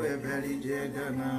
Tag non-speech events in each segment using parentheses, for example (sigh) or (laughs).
kwe beli jedana.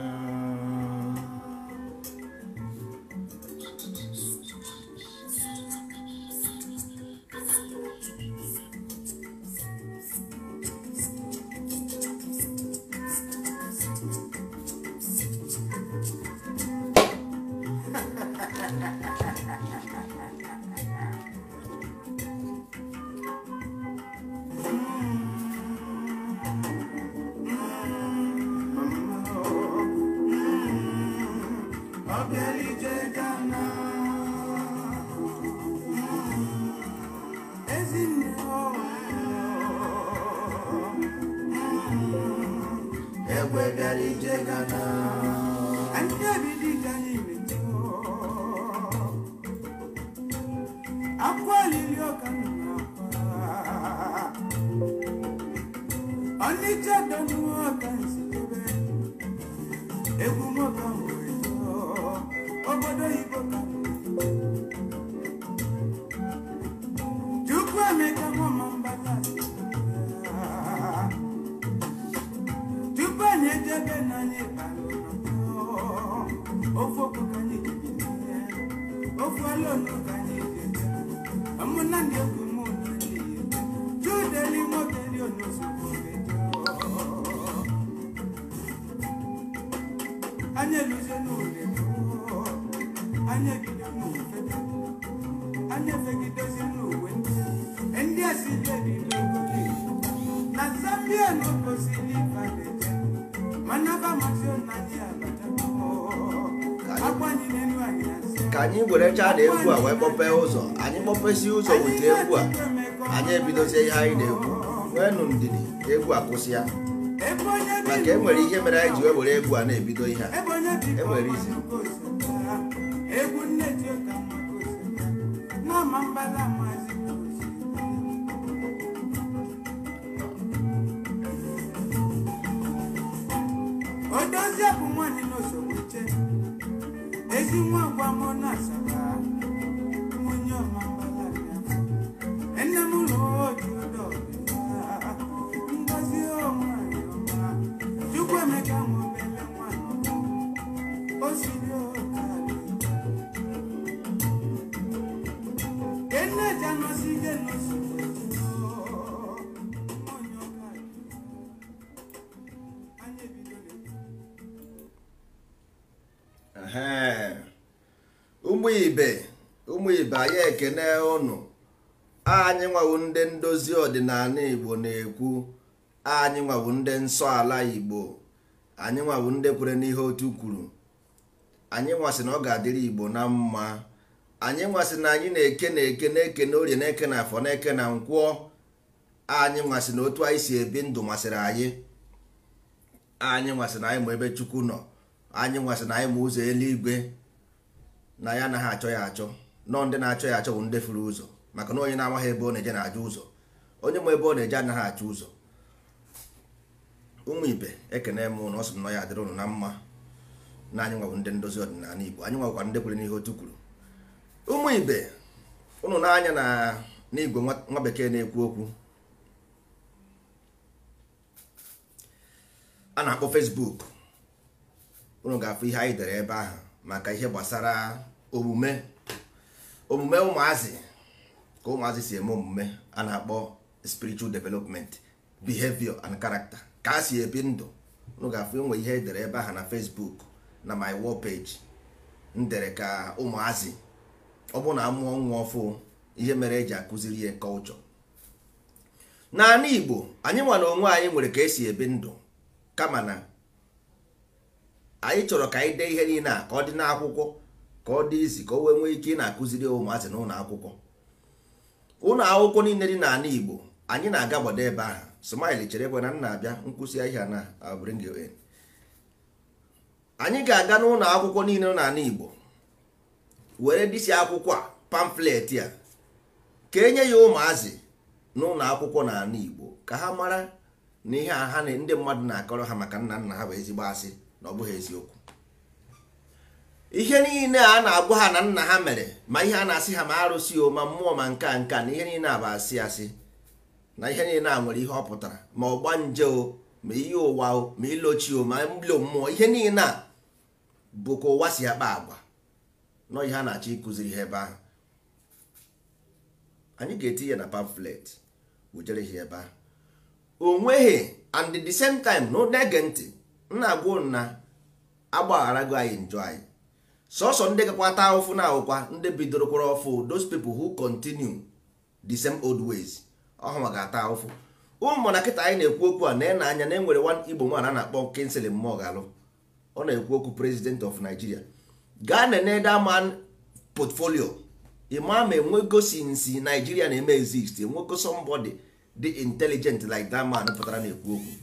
chaa na egwu a wee kpọpee ụzọ anyị kpọpesi ụzọ weta egwu a anyị ebidozie ihe anyị na wee nụ ndidi egwu akwụsị ya maka enwere ihe mere anyị ji wee were egwu a na-ebido ihe a enwere izi ekene ụnụ anyị nwawu ndị ndozi ọdịnala igbo na-ekwu anyị nwawu ndị nsọ ala igbo anyị nwawu ndị kwere n'ihe otu kwuru anyị nwasị na ọ ga-adịrị igbo na mma anyị nwasị na anyị na-eke na-eke na-eke na orie na-eke na afọ na-eke na nkwụọ anyị nwasị na otu anyị si ebi ndụ masịrị anyị anyị nwasị na anyị ma ebe chukwu nọ anyị nwasị na anyị ma ụzọ eluigwe na ya anaghị achọ ya achọ nọ ndị na-achọ ya achọwụ ndị furu ụzọ maka na onye na-amaghị ebe ọ na-eje na-ajụ ụzọ onye ma ebe ọ na-eje anaghị achụ ụzọ ụmụ ibe ekene m na ọ sị nọ ya adịrị ụnụ na mma na anyị nwabụ ndị ndozi ọdịnala Igbo anyị nwakwa ndị kwere n'ihe otu kwuru ụmụ ibe ụnụ na na n'igwe nwa bekee na-ekwu okwu a na-akpọ fesbuk ụnụ ga-afụ ihe anyị dere ebe ahụ maka ihe gbasara omume omume ụmụazị ka ụmụazị si eme omume a na-akpọ spiritual development behavior and character ka a si ebi ndụ nụ ga-afụ e ihe edere ebe ahụ na Facebook na my wall page ndere ka ụmụazị ọ bụ na amụọ nwa ọfụ ihe mere eji akụziri ya kọlchọ naanị Igbo anyị nwa na onwe anyị nwere ka esi ebi ndụ kama na anyị chọrọ ka anyị dee ihe niile a ka ọ dị n'akwụkwọ ka ọ dị izi ka o wee nwee ike ị na-akụziri ụmụazị na ụlọ akwụkwọ ụlọ akwụkwọ niile dị n'ala Igbo anyị na-aga gbado ebe ahụ smile chere ekwe na nna abịa nkwụsị ahịa na bring you in anyị ga-aga n'ụlọ akwụkwọ niile n'ala Igbo were dịsi akwụkwọ a pamflet a ka enye ya ụmụazị n'ụlọ akwụkwọ n'ala Igbo ka ha mara na ihe a ha ndị mmadụ na-akọrọ ha maka nna nna ha bụ ezigbo asị na ọ bụghị eziokwu ihe niile a na-agwa ha na nna ha mere ma ihe a na-asị ha ma arụsị o ma mmụọ ma nka nka na ihe niile a bụ asị asị na ihe niile a nwere ihe ọ pụtara ma ọgba nje o ma ihe ụwa o ma ilochi o ma mbilo mmụọ ihe niile a bụkwa ụwa si akpa agwa nọ ihe a na-achọ ịkụziri ihe ebe ahụ anyị ga-etinye na pamflet wujere ebe ahụ o nweghị and the same time na ege ntị nna agwa nna agbagharago anyị njọ anyị sọsọ ndị ata ụfụ na ahụkwa ndị bidoro kwụrụ ọfụ those people who continue the same old ways ọhụma ga-ata ụfụ ụmụ na kịta anyị na-ekwu okwu a na-ena anya na enwere one igbo nwaanyị a na-akpọ Kingsley Moghalu ọ na-ekwu okwu president of Nigeria gaa na nedaman portfolio imam enwego sinsi Nigeria na-eme exist enwego somebody dị intelligent like that man pụtara na-ekwu okwu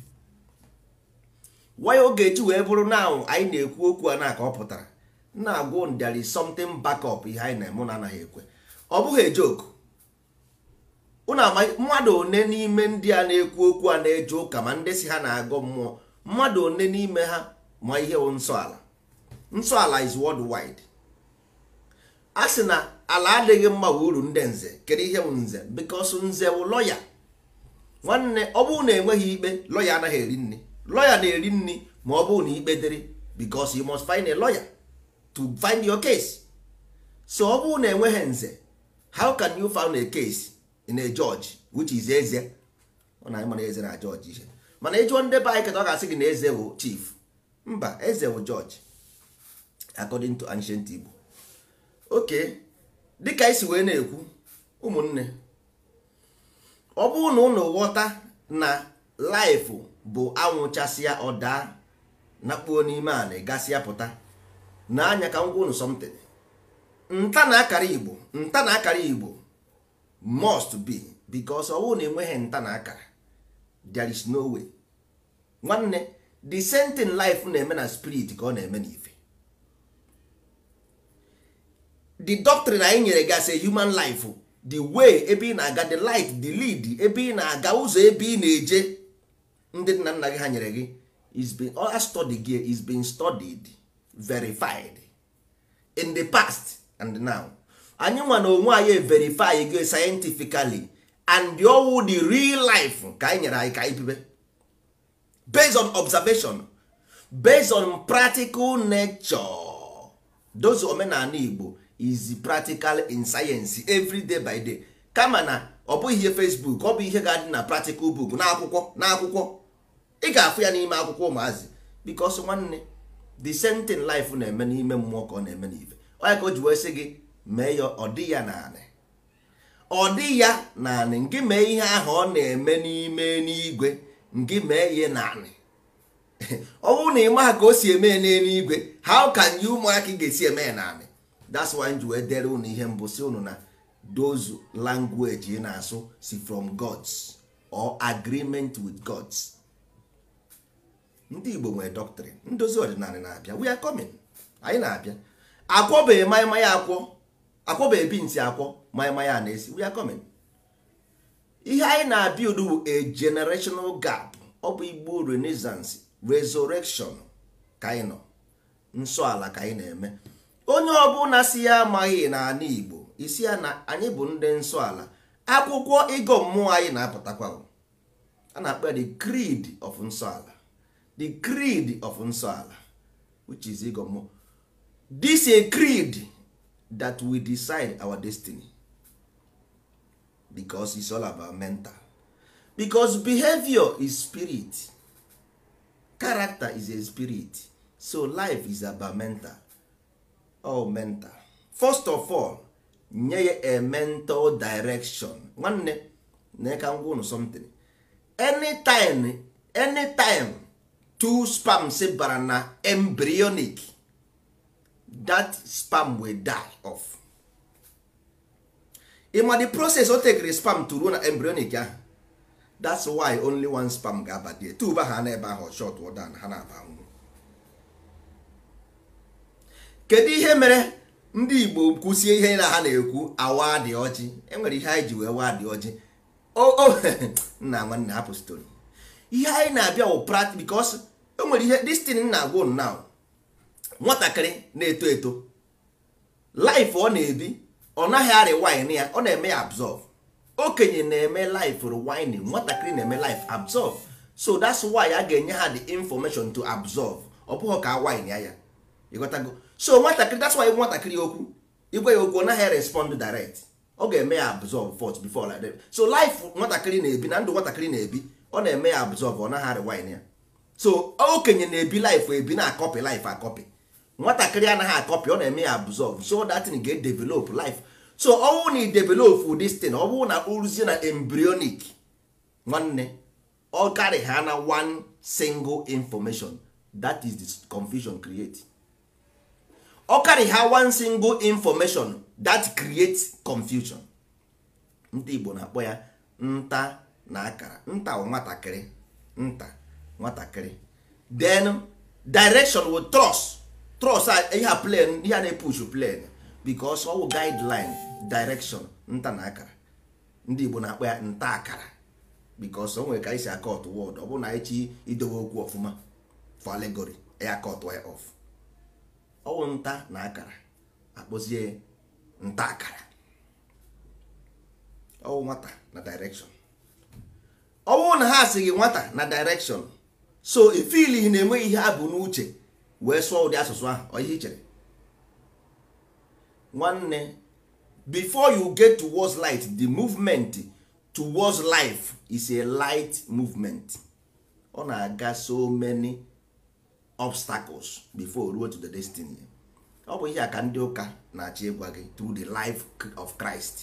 waya oge eji wee bụrụ na anyị na-ekwu okwu a na-aka ọ pụtara na-agwụ there is backup ihe anyị na-eme na anaghị ekwe ọ bụghị ejoku mmadụ one n'ime ndị a na-ekwu okwu a na-eje ụka ma ndị si ha na agụ mmụọ mmadụ one n'ime ha ma ihe bụ nsọala nsọala is worldwide a sị na ala adịghị mma bụ uru ndị nze kedu ihe bụ nze because nze bụ lọya nwanne ọ bụụ na enweghị ikpe lọya anaghị eri nri lọya na-eri nri ma ọ na ikpe dịrị bikos you must find a lọya. to find your case so ọ bụrụ na enweghị nze how can you find a case in a judge which is eze ọ na mana eze na george ihe mana ịjụọ ndị be anyị keta ọ ga-asị gị na eze bụ chief mba eze bụ george according to ancient Igbo okay dịka isi wee na-ekwu ụmụnne ọ bụrụ na ụnụ ghọta na life bụ anwụchasịa ọ daa nakpuo n'ime ala gasịa pụta na anya ka ngwa unu something nta na akara igbo nta na akara igbo must be because ọwụ na enweghị nta na akara there is no way nwanne the same thing life na-eme na spirit ka ọ na-eme n'ife the doctrine anyị nyere gị as a human life the way ebe ị na-aga the light the lead ebe ị na-aga ụzọ ebe ị na-eje ndị nna nna gị ha nyere gị is being all study gị is being studied verified in the past and now anyị nwa na onwe anyị verify go scientifically and owu the real life ka anyị nyere anyị ka anyị bibe based on observation based on practical nature those omenala Igbo is practical in science every day by day kama na ọ bụghị ihe Facebook ọ bụ ihe ga-adị na practical book n'akwụkwọ n'akwụkwọ ị ga-afụ ya n'ime akwụkwọ ụmụazị because nwanne the same thing life na-eme n'ime mmụọ ka ọ na-eme n'ife onye ka o ji wee sị gị mee ya ọ dị ya naanị ọ dị ya naanị ngị mee ihe ahụ ọ na-eme n'ime n'igwe ngị mee ihe naanị (laughs) ọ bụrụ na ị maha ka o si eme n'eluigwe how can you ị ga-esi eme ya naanị that's why ji wee dere unu ihe mbụ si unu na those language ị na-asụ si from gods or agreement with gods ndị igbo nwere dọktịrị ndozi ọdịnala na-abịa we are coming anyị na-abịa akwọbeghị maịmaya akwọ ebi ntị akwọ maịmaya na-esi we are coming ihe anyị na-abịa udu a generational gap ọ bụ igbo renaissance resurrection ka anyị nọ nsọ ala ka anyị na-eme onye ọbụla si ya amaghị n'ala igbo isi ya na anyị bụ ndị nsọ ala akwụkwọ ịgọ mmụọ anyị na-apụtakwa a na-akpa the creed of nsọ ala the creed of nsọala which is igomo this a creed that we decide our destiny because it's all about mental because behavior is spirit character is a spirit so life is about mental all mental first of all nye ya a mental direction nwanne na ka ngwa unu something anytime anytime two spams bara na embryonic that spam will die off ịma the process o tekere spam to ruo na embryonic ahụ that's why only one spam ga-aba die tuba ha na ebe ahụ shot na ha na-aba nwụ kedu ihe mere ndị igbo kwụsie ihe na ha na-ekwu awa dị ọjị enwere ihe anyị ji wee waa dị ọjị o (laughs) nna nwanne hapụ story ihe anyị na-abịa wụ prat bikos e nwere ihe destin na-agwa unu now nwatakịrị na-eto eto laif ọ na-ebi ọ naghị arị wine ya ọ na-eme ya absorb okenye na-eme life rewinding nwatakịrị na-eme life absorb so that's why a ga-enye ha the information to absorb ọ bụghị ka wine ya ya ịghọtago so nwatakịrị that's why nwatakịrị okwu igwe ya okwu ọ naghị respond direct ọ ga-eme ya absorb first before like that so life nwatakịrị na-ebi na ndụ nwatakịrị na-ebi ọ na-eme ya absorb ọ naghị rewind ya so okenye na-ebi life ebi na akọpi life akọpị nwatakịrị anaghị akọpi ọ na-eme ya absorb so that thing ga develop life so ọ bụrụ na e develop this thing ọ bụrụ na uruzie na embryonic nwanne ọ karị ha na one single information that is the confusion create ọ karị ha one single information that creates confusion ndị Igbo na-akpọ ya nta na akara nta nwatakịrị nta nwatakịrị then direction with trust trust ihe a plan ihe a na-epush plan because wụ guideline direction nta na akara ndị Igbo na-akpọ ya nta akara because o nwere ka anyị si akọt wọd ọ bụrụ na anyị chi idowe okwu ọfụma for allegory ya e akọt ya off ọwụ nta na akara akpọzie nta akara ọwụ nwata na direction ọ bụrụ na ha asị gị nwata na direction so ifili e na-enweghị ihe a bụ n'uche wee sụọ ụdị asụsụ ahụ ọ ichere nwanne before you get towards light the movement towards life is a light movement ọ na-aga so many obstacles before ruo to the destiny ọ bụ ihe a ka ndị ụka na achị ịgwa gị through the life of Christ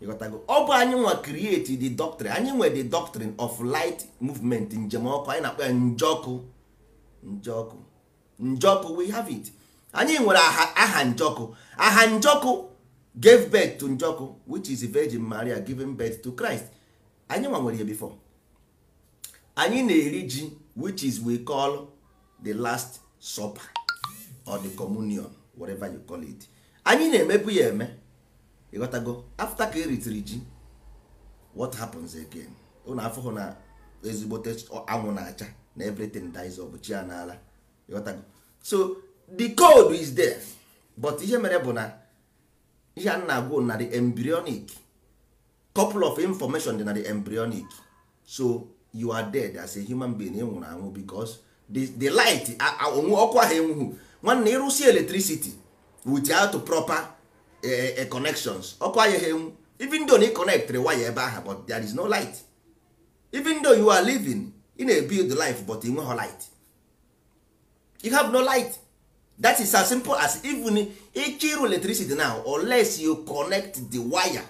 ọ bụ anyị nwa create the doctrine anyị nwe the doctrine of light movement njem ọkụ anyị na-akpọ ya njọkụ njọkụ njọkụ we have it anyị nwere aha njọkụ aha njọkụ gave birth to njọkụ which is virgin maria giving birth to christ anyị nwa nwere ya before anyị na-eri ji which is we call the last supper or the communion whatever you call it anyị na-emebu ya eme ịghọtago afta ka eritiri ji what happens again ụnụ afụhụ na ezigbote anwụ na-acha na everything dies of chi a n'ala ịghọtago so the code is there but ihe mere bụ na ihe a na-agwụ na the embryonic couple of information dị na the embryonic so you are dead as a human being ị na anwụ because the, light onwe ọkụ ahụ enwughụ nwanne ịrụsi electricity without proper connections ọkụ anya even though you connect connectịrị waya ebe ahụ but there is no light even though you are living ị na-ebuild life but ị nweghị light you have no light that is as simple as even ịchịrụ electricity now unless you connect the wire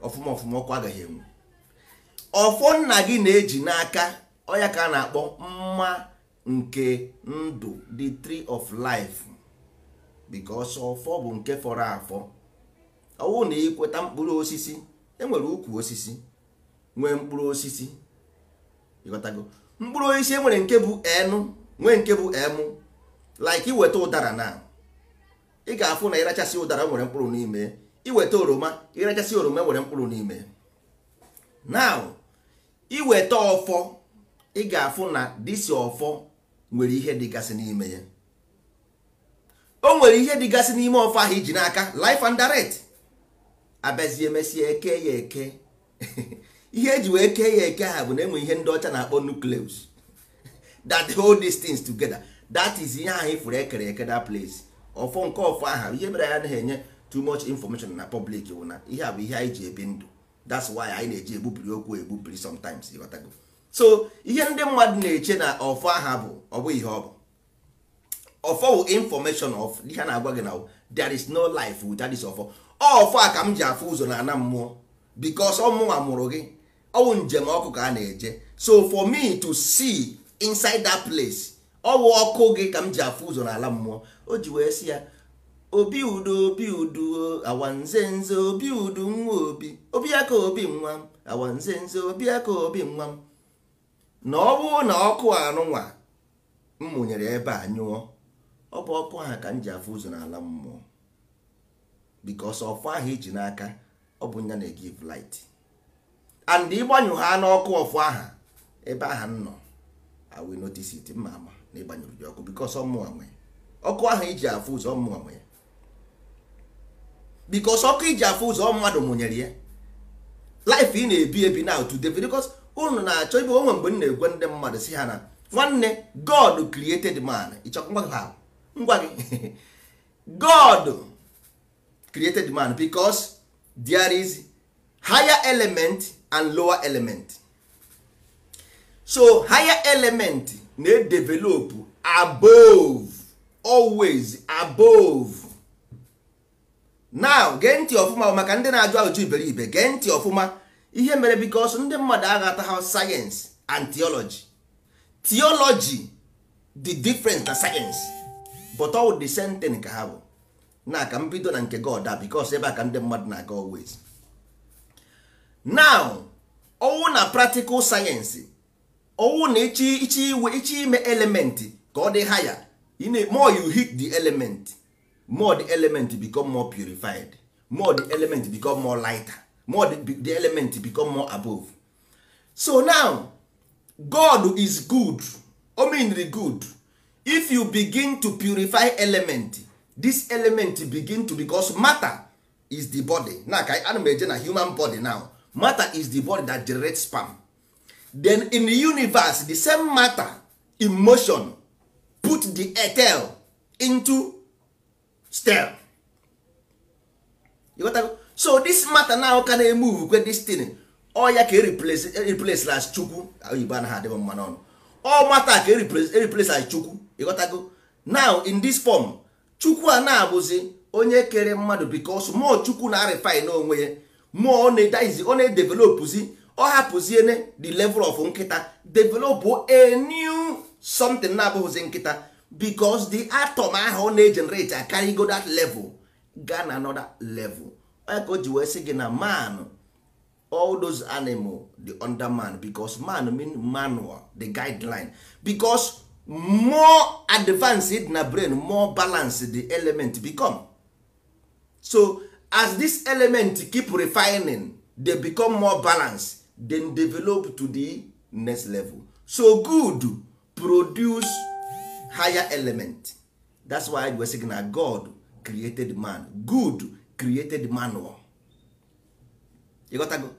of ọfụma ọkụ agaghị enwu ọfọ nna gị na-eji n'aka ọya ka a na-akpọ mma nke ndụ the tree of life because ọfọ bụ nke fọrọ afọ ọwụ na ịkweta mkpụrụ osisi enwere ukwu osisi nwee mkpụrụ osisi ịghọtago mkpụrụ osisi enwere nke bụ enu nwee nke bụ emu like iweta ụdara na ị ga-afụ na ịrachasị ụdara e nwere mkpụrụ n'ime iweta oroma ịrachasị oroma e nwere mkpụrụ n'ime now iweta ọfọ ị ga-afụ na disi ọfọ nwere ihe dịgasị n'ime ya o nwere ihe dịgasị n'ime ọfọ ahụ iji n'aka life and direct abịazie mesie eke ya eke (laughs) ihe eji wee kee ya eke ha bụ na enwe ihe ndị ọcha na-akpọ nucleus (laughs) that hold these things together that is ihe ahụ ifuru ekere eke that place ọfọ nke ọfọ aha ihe mere ya anaghị enye too much information na public wụ na ihe a bụ ihe anyị ji ebi ndụ that's why anyị na-eji egbubiri okwu egbubiri sometimes ịghọtago so ihe ndị mmadụ na-eche na ọfọ aha bụ ọ ihe ọ bụ ọfọ wụ information of ihe a na-agwa gị na there is no life without this ọfọ ọfụ a ka m ji afụ ụzọ na ana mmụọ bikos ọmụnwa mụrụ gị ọwụ njem ọkụ ka a na-eje so for me to see inside that place ọwụ ọkụ gị ka m ji afụ ụzọ n'ala mmụọ o ji wee si ya obi udo obi udo awanze nze obi udu nwa obi obi aka obi nwa m awanze nze obi aka obi nwa m na ọ na ọkụ anụnwa m mụnyere ebe a nyụọ ọ bụ ọkụ ahụ ka m ji afụ ụzọ n'ala mmụọ bikos ọfụ ahụ iji n'aka ọ bụ nya na-egive light and ịgbanyụ ha n'ọkụ ọfụ aha ebe aha m nọ I will notice it mma ama na ịgbanyụrụ gị ọkụ bikos ọmụwa nwe ọkụ ahụ iji afụ ụzọ ọmụwa nwe bikos ọkụ iji afụ ụzọ mmadụ mụnyere ya life ị na-ebi ebi na otu david bikos unu na-achọ ibe onwe mgbe m na-egwe ndị mmadụ si ha na nwanne god created man ịchọkwa gị ha ngwa gị (laughs) god created man because there is higher element and lower element so higher element na-edevelop above always above now gee ntị ọfụma maka ndị na-ajụ ajụ iberibe gee ntị ọfụma ihe mere bikos ndị mmadụ aghata ha and theology theology the different na science but all the same thing ka ha bụ na ka mbido na nke god a bikos ebe a ka ndị mmadụ na-aga always now owu na practical sayensị owu na ichi ichi iwe ichi ime elementị ka ọ dị haya more you hit the element more the element become more purified more the element become more lighter more the, element become more above so now god is good omenri good if you begin to purify element this element begin to because matter is the body na ka ana m eje na human body now matter is the body that generate sperm then in the universe the same matter in motion put the etel into stem you got so this matter now can move kwe this thing ọ ya ka replace eh, las chukwu oyibo anaghị adịghị mma n'ọnụ ọ matter ka replace eh, las chukwu ịghọtago now in this form chukwu a na-abụzi onye kere mmadụ bikos mmụọ chukwu na-arịfin onwe ya mmụọ ọ na-edevelopụzi ọ hapụziene the level of nkịta developụ a new something na-abụghịzi nkịta bikos the atom ahụ ọ na ejenereti akarịgo that level ga na anoda level ka o ji wee sị gị na man all those animal the under man bicos man mean manual the guideline bicos more advanced na brain more balanced the element become so as this element keep refining they become more balanced then develop to the next level so good produce higher element that's why we say na god created man good created manual you got to go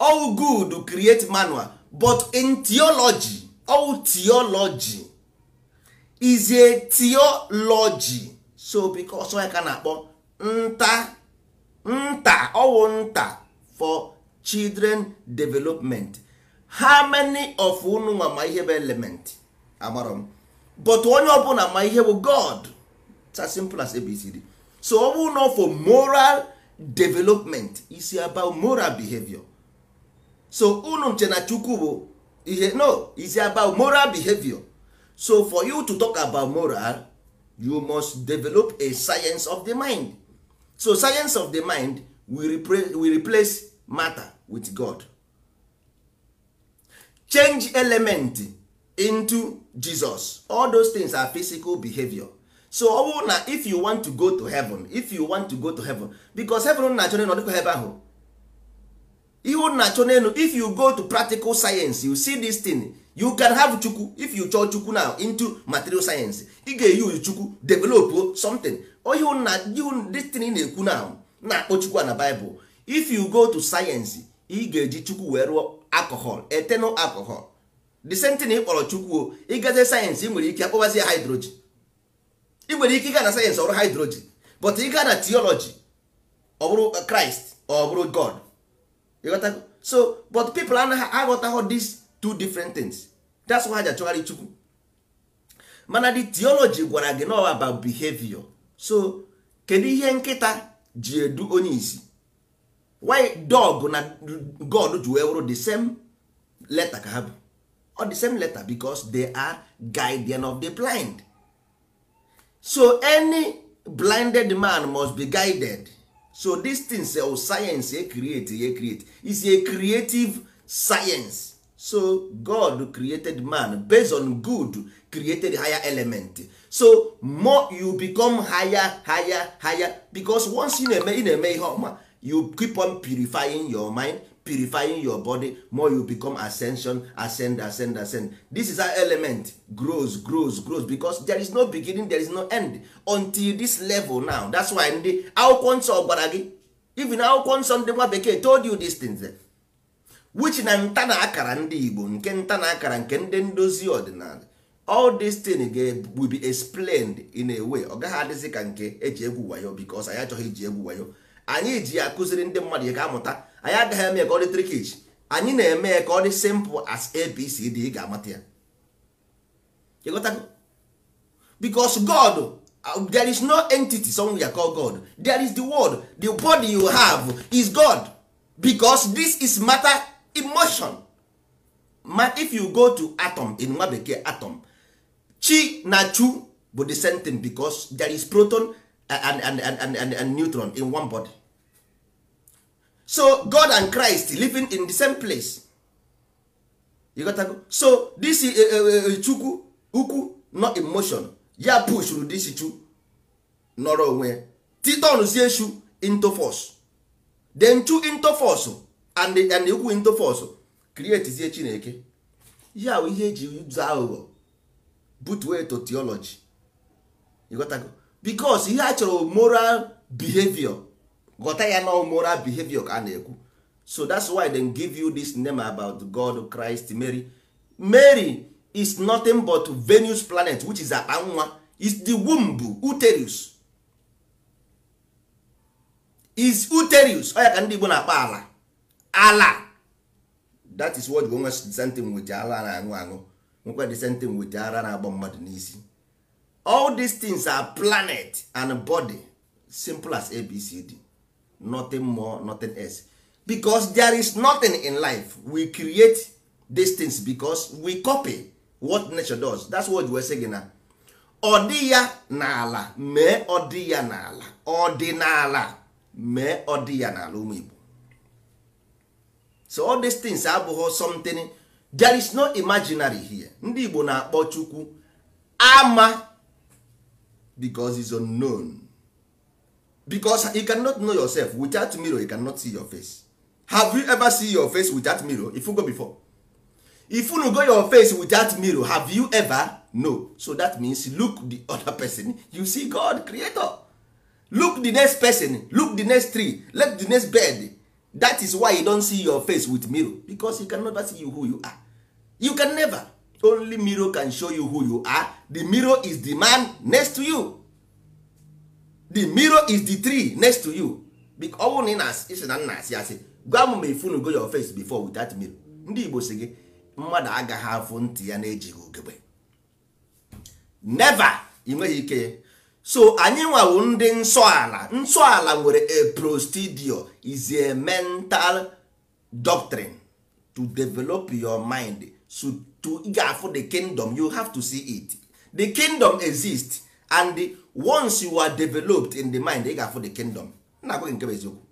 all good create manual but in theology all theology is a theology so because onye ka na-akpọ nta nta ọwụ nta for children development how many of unu nwa ma ihe bụ element amarọ m but onye ọbụla ma ihe bụ god it's as simple as abcd so ọ bụrụ for moral development is about moral behavior so unu nche na chukwu bụ ihe no is about moral behavior so for you to talk about moral you must develop a science of the mind so science of the mind will replace, matter with god change element into jesus all those things are physical behavior so ọ bụrụ na if you want to go to heaven if you want to go to heaven because heaven na-achọ n'elu ọdịkwa ebe ahụ ihe na-achọ n'elu if you go to practical science you see this thing you can have chukwu if you chọọ chukwu now into material science ị ga-eyuzu chukwu develop something ohi na destiny na-ekwu now na-akpọ chukwu na bible if you go to science ị ga-eji chukwu wee rụọ alcohol eternal alcohol the same thing ị kpọrọ chukwu o ịgaze sayensị ị nwere ike akpọbazi ya hydrogen ị nwere ike ịga na sayensị ọrụ hydrogen but ị gaa na theology ọ bụrụ Christ ọ bụrụ God so but people anaghị aghọtaghọ this two different things that's why ha ji achọgharị chukwu mana the theology gwara gị nọ about behavior so kedu ihe nkịta ji edu onye isi why dog na god ji wee wụrụ the same letter ka ha bụ or the same letter because they are guardian of the blind so any blinded man must be guided so this thing sel eh, oh, science e create e create is a creative science so god created man based on good created higher element so more you become higher higher higher because once you na-eme ị na-eme ihe ọma you keep on purifying your mind purifying your body more you become ascension ascend ascend ascend this is how element grows grows grows because there is no beginning there is no end until this level now that's why ndị akwụkwọ nsọ gwara gị even akwụkwọ nsọ ndị nwa bekee told you these things. which na nta na akara ndị Igbo nke nta na akara nke ndị ndozi ọdịnala all this thing will be explained in a way ọ gaghị adịzi ka nke eji egwu wayo because anyị achọghị iji egwu wayo anyị ji ya akụziri ndị mmadụ ya ka amụta anyị agaghị eme ka ọ dị trikich anyị na-eme ya ka ọ dị simple as abcd ị ga-amata ya ịghọtago because God uh, there is no entity somewhere called God there is the word the body you have is God because this is matter emotion ma if you go to atom in nwa bekee atom chi na chu bụ the same thing because there is proton and, and, and, and, and neutron in one body so god and christ living in the same place you got to go. so this eh, eh, eh, chukwu ukwu not emotion ya push ru this chu nọrọ onwe titonzie chu into force then chu into force and and ikwu into force create chineke ihe ahụ ihe eji ụzọ aghụghọ butuo to theology ịghọtago bikos ihe a chọrọ moral behavior ghọta ya na moral behavior ka na-ekwu so that's why they give you this name about god christ mary mary is nothing but venus planet which is akpa is the womb uterus is uterus ọ ya ka ndị igbo na-akpa ala ala that is what nwe disentin wete ala na-aṅụ aṅụ nwekwa disentin wete ara na-agba mmadụ n'isi all these things are planet and body simple as abcd nothing more nothing else because there is nothing in life we create these things because we copy what nature does that's what we say gị na ọ dị ya n'ala mee ọ dị ya n'ala ọdịnala mee ọ dị ya n'ala ụmụ Igbo so all these things abụghị something there is no imaginary here ndị Igbo na-akpọ Chukwu ama because is unknown because you cannot know yourself without mirror you cannot see your face have you ever see your face without mirror if you go before if you go your face without mirror have you ever no so that means look the other person you see God creator look the next person look the next tree look the next bed that is why you don't see your face with mirror because you can never see you who you are you can never only mirror can show you who you are the mirror is the man next to you the mirror is the tree next to you ọnwụ na ịsị na nna asị asị gwa m ma go your face before with that mirror ndị Igbo si gị mmadụ agaghị afụ ntị ya na-ejighị ogebe never ị nweghị ike so anyị nwawo ndị nsọala nsọala nwere a prostudio is a mental doctrine to develop your mind so to ga-afụ the kingdom you have to see it the kingdom exist and once you are developed in the mind ị ga-afụ the kingdom nna agwaghị nke eziokwu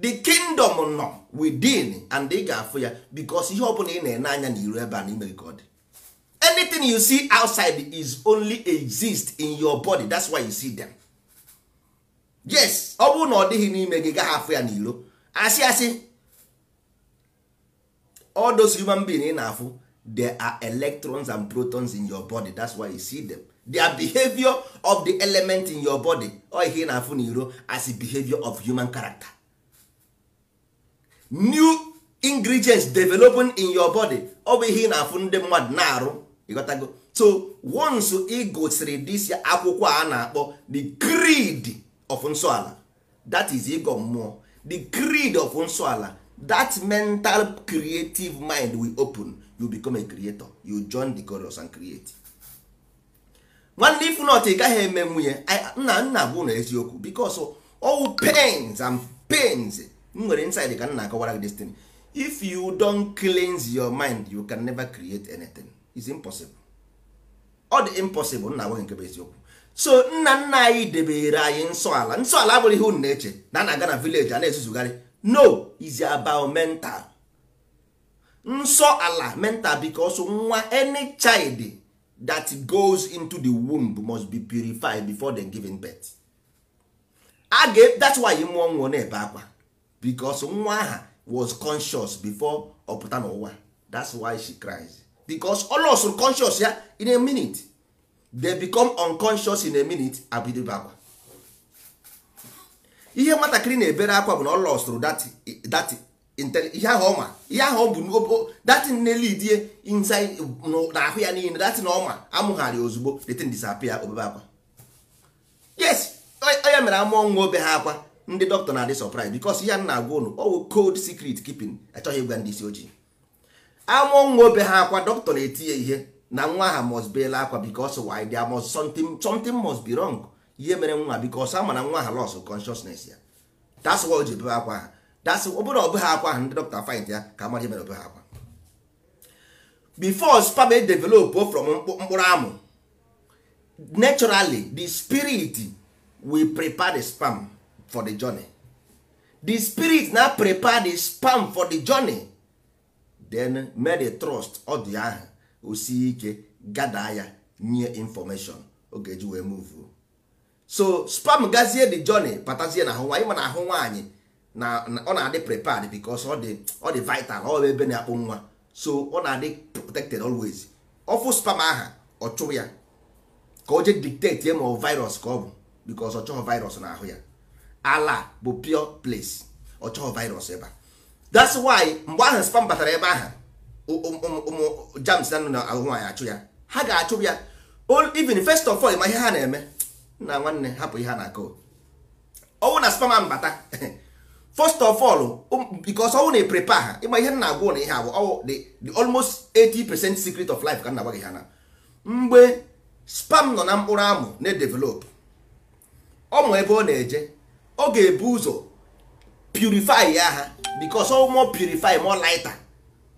the kingdom nọ within and ị ga-afụ ya because ihe ọbụla ị na-ene anya na iru ebe a na imere ka ọ dị anything you see outside is only exist in your body that's why you see them yes ọ bụrụ na ọ dịghị n'ime gị gaa afọ ya n'ilo asị asị all those human being ị na-afụ there are electrons and protons in your body that's why you see them their behavior of the element in your body ọ ihe ị na-afụ n'iro as a behavior of human character new ingredients developing in your body ọ bụ ihe ị na-afụ ndị mmadụ na-arụ ịghọtago so once ị gosiri this akwụkwọ a na-akpọ the creed of nsọala that is ịgọ mmụọ the creed of nsọala that mental creative mind will open you become a creator you join the chorus and create nwanne ikwu not ị gaghị eme nwunye nna nna bụ na eziokwu because all pains and pains m nwere inside ka nna akọwara gị destiny if you don cleanse your mind you can never create anything. is impossible ọ dị impossible nna agwaghị nke bụ eziokwu so nna nna anyị debere anyị nsọ ala nsọ ala abụghị ihe na-eche na a na-aga na vileji a na-ezuzugharị no is about mental nsọ ala mental because nwa any child that goes into the womb must be purified before then giving birth a ga that's why ị mụọ nwụọ na-ebe akwa because nwa aha was conscious before ọ pụta n'ụwa that's why she cries because ọ lọsụrụ conscious ya in a minute they become unconscious in a minute abidobe akwa ihe nwatakịrị na-ebere akwa bụ na ọ lọsụrụ that ihe ahụ ọma ihe ahụ bụ dati na-elidie inside n'ahụ ya niile datin ọma amụghari ozugbo detin disapia obebe akwa yes onye mere ama nwa obe ha akwa ndị dọkịta na-adị surprise because ihe a na-agwa ụnụ ọwụ cold secret keeping achọghị ịgwa ndị isi ojii amụọ nwa obe ha akwa dọkịta na etinye ihe na nwa ha must be akwa because why there must something something must be wrong ihe mere nwa because ama na nwa ha loss consciousness ya that's why o ji bebe akwa ha that's ọ bụrụ ọbụ ha akwa ha ndị dọkịta find ya ka amara ihe mere ọbụ ha akwa before sperm e develop from mkpụrụ amụ naturally the spirit will prepare the spam for the journey the spirit na prepare the spam for the journey then mary trust ọ dị ahụ o ike gada ya nye information oge ji wee move so spam gazie the journey patazie na ahụ nwaanyị mana ahụ nwaanyị na ọ na-adị prepared because ọ dị ọ dị vital ọ ebe na-akpụ nwa so ọ na-adị protected always fụ spam aha ọ chụrụ ya ka o jee dictate ye ma ọ virus ka ọ bụ because ọ chọghị virus na ahụ ya ala bụ pure place ọ chọghị virus ebe a that's why mgbe ahụ spam batara ebe ahụ ụmụ jams na na ahụ nwaanyị achụ ya ha ga-achụ ya even first of all ma ihe ha na-eme na nwanne hapụ ihe ha na-akọ ọnwụ na spam ahụ bata (laughs) first of all because ọnwụ na-eprepa ha ịma ihe na-agwụ na ihe agwụ ọwụ the almost 80% secret of life ka na-agwa ha na mgbe spam nọ na mkpụrụ amụ na-edevelop ọ ebe ọ na-eje ọ ga-ebu ụzọ purifi ya ha bikos ọ mụọ purify mụọ lighter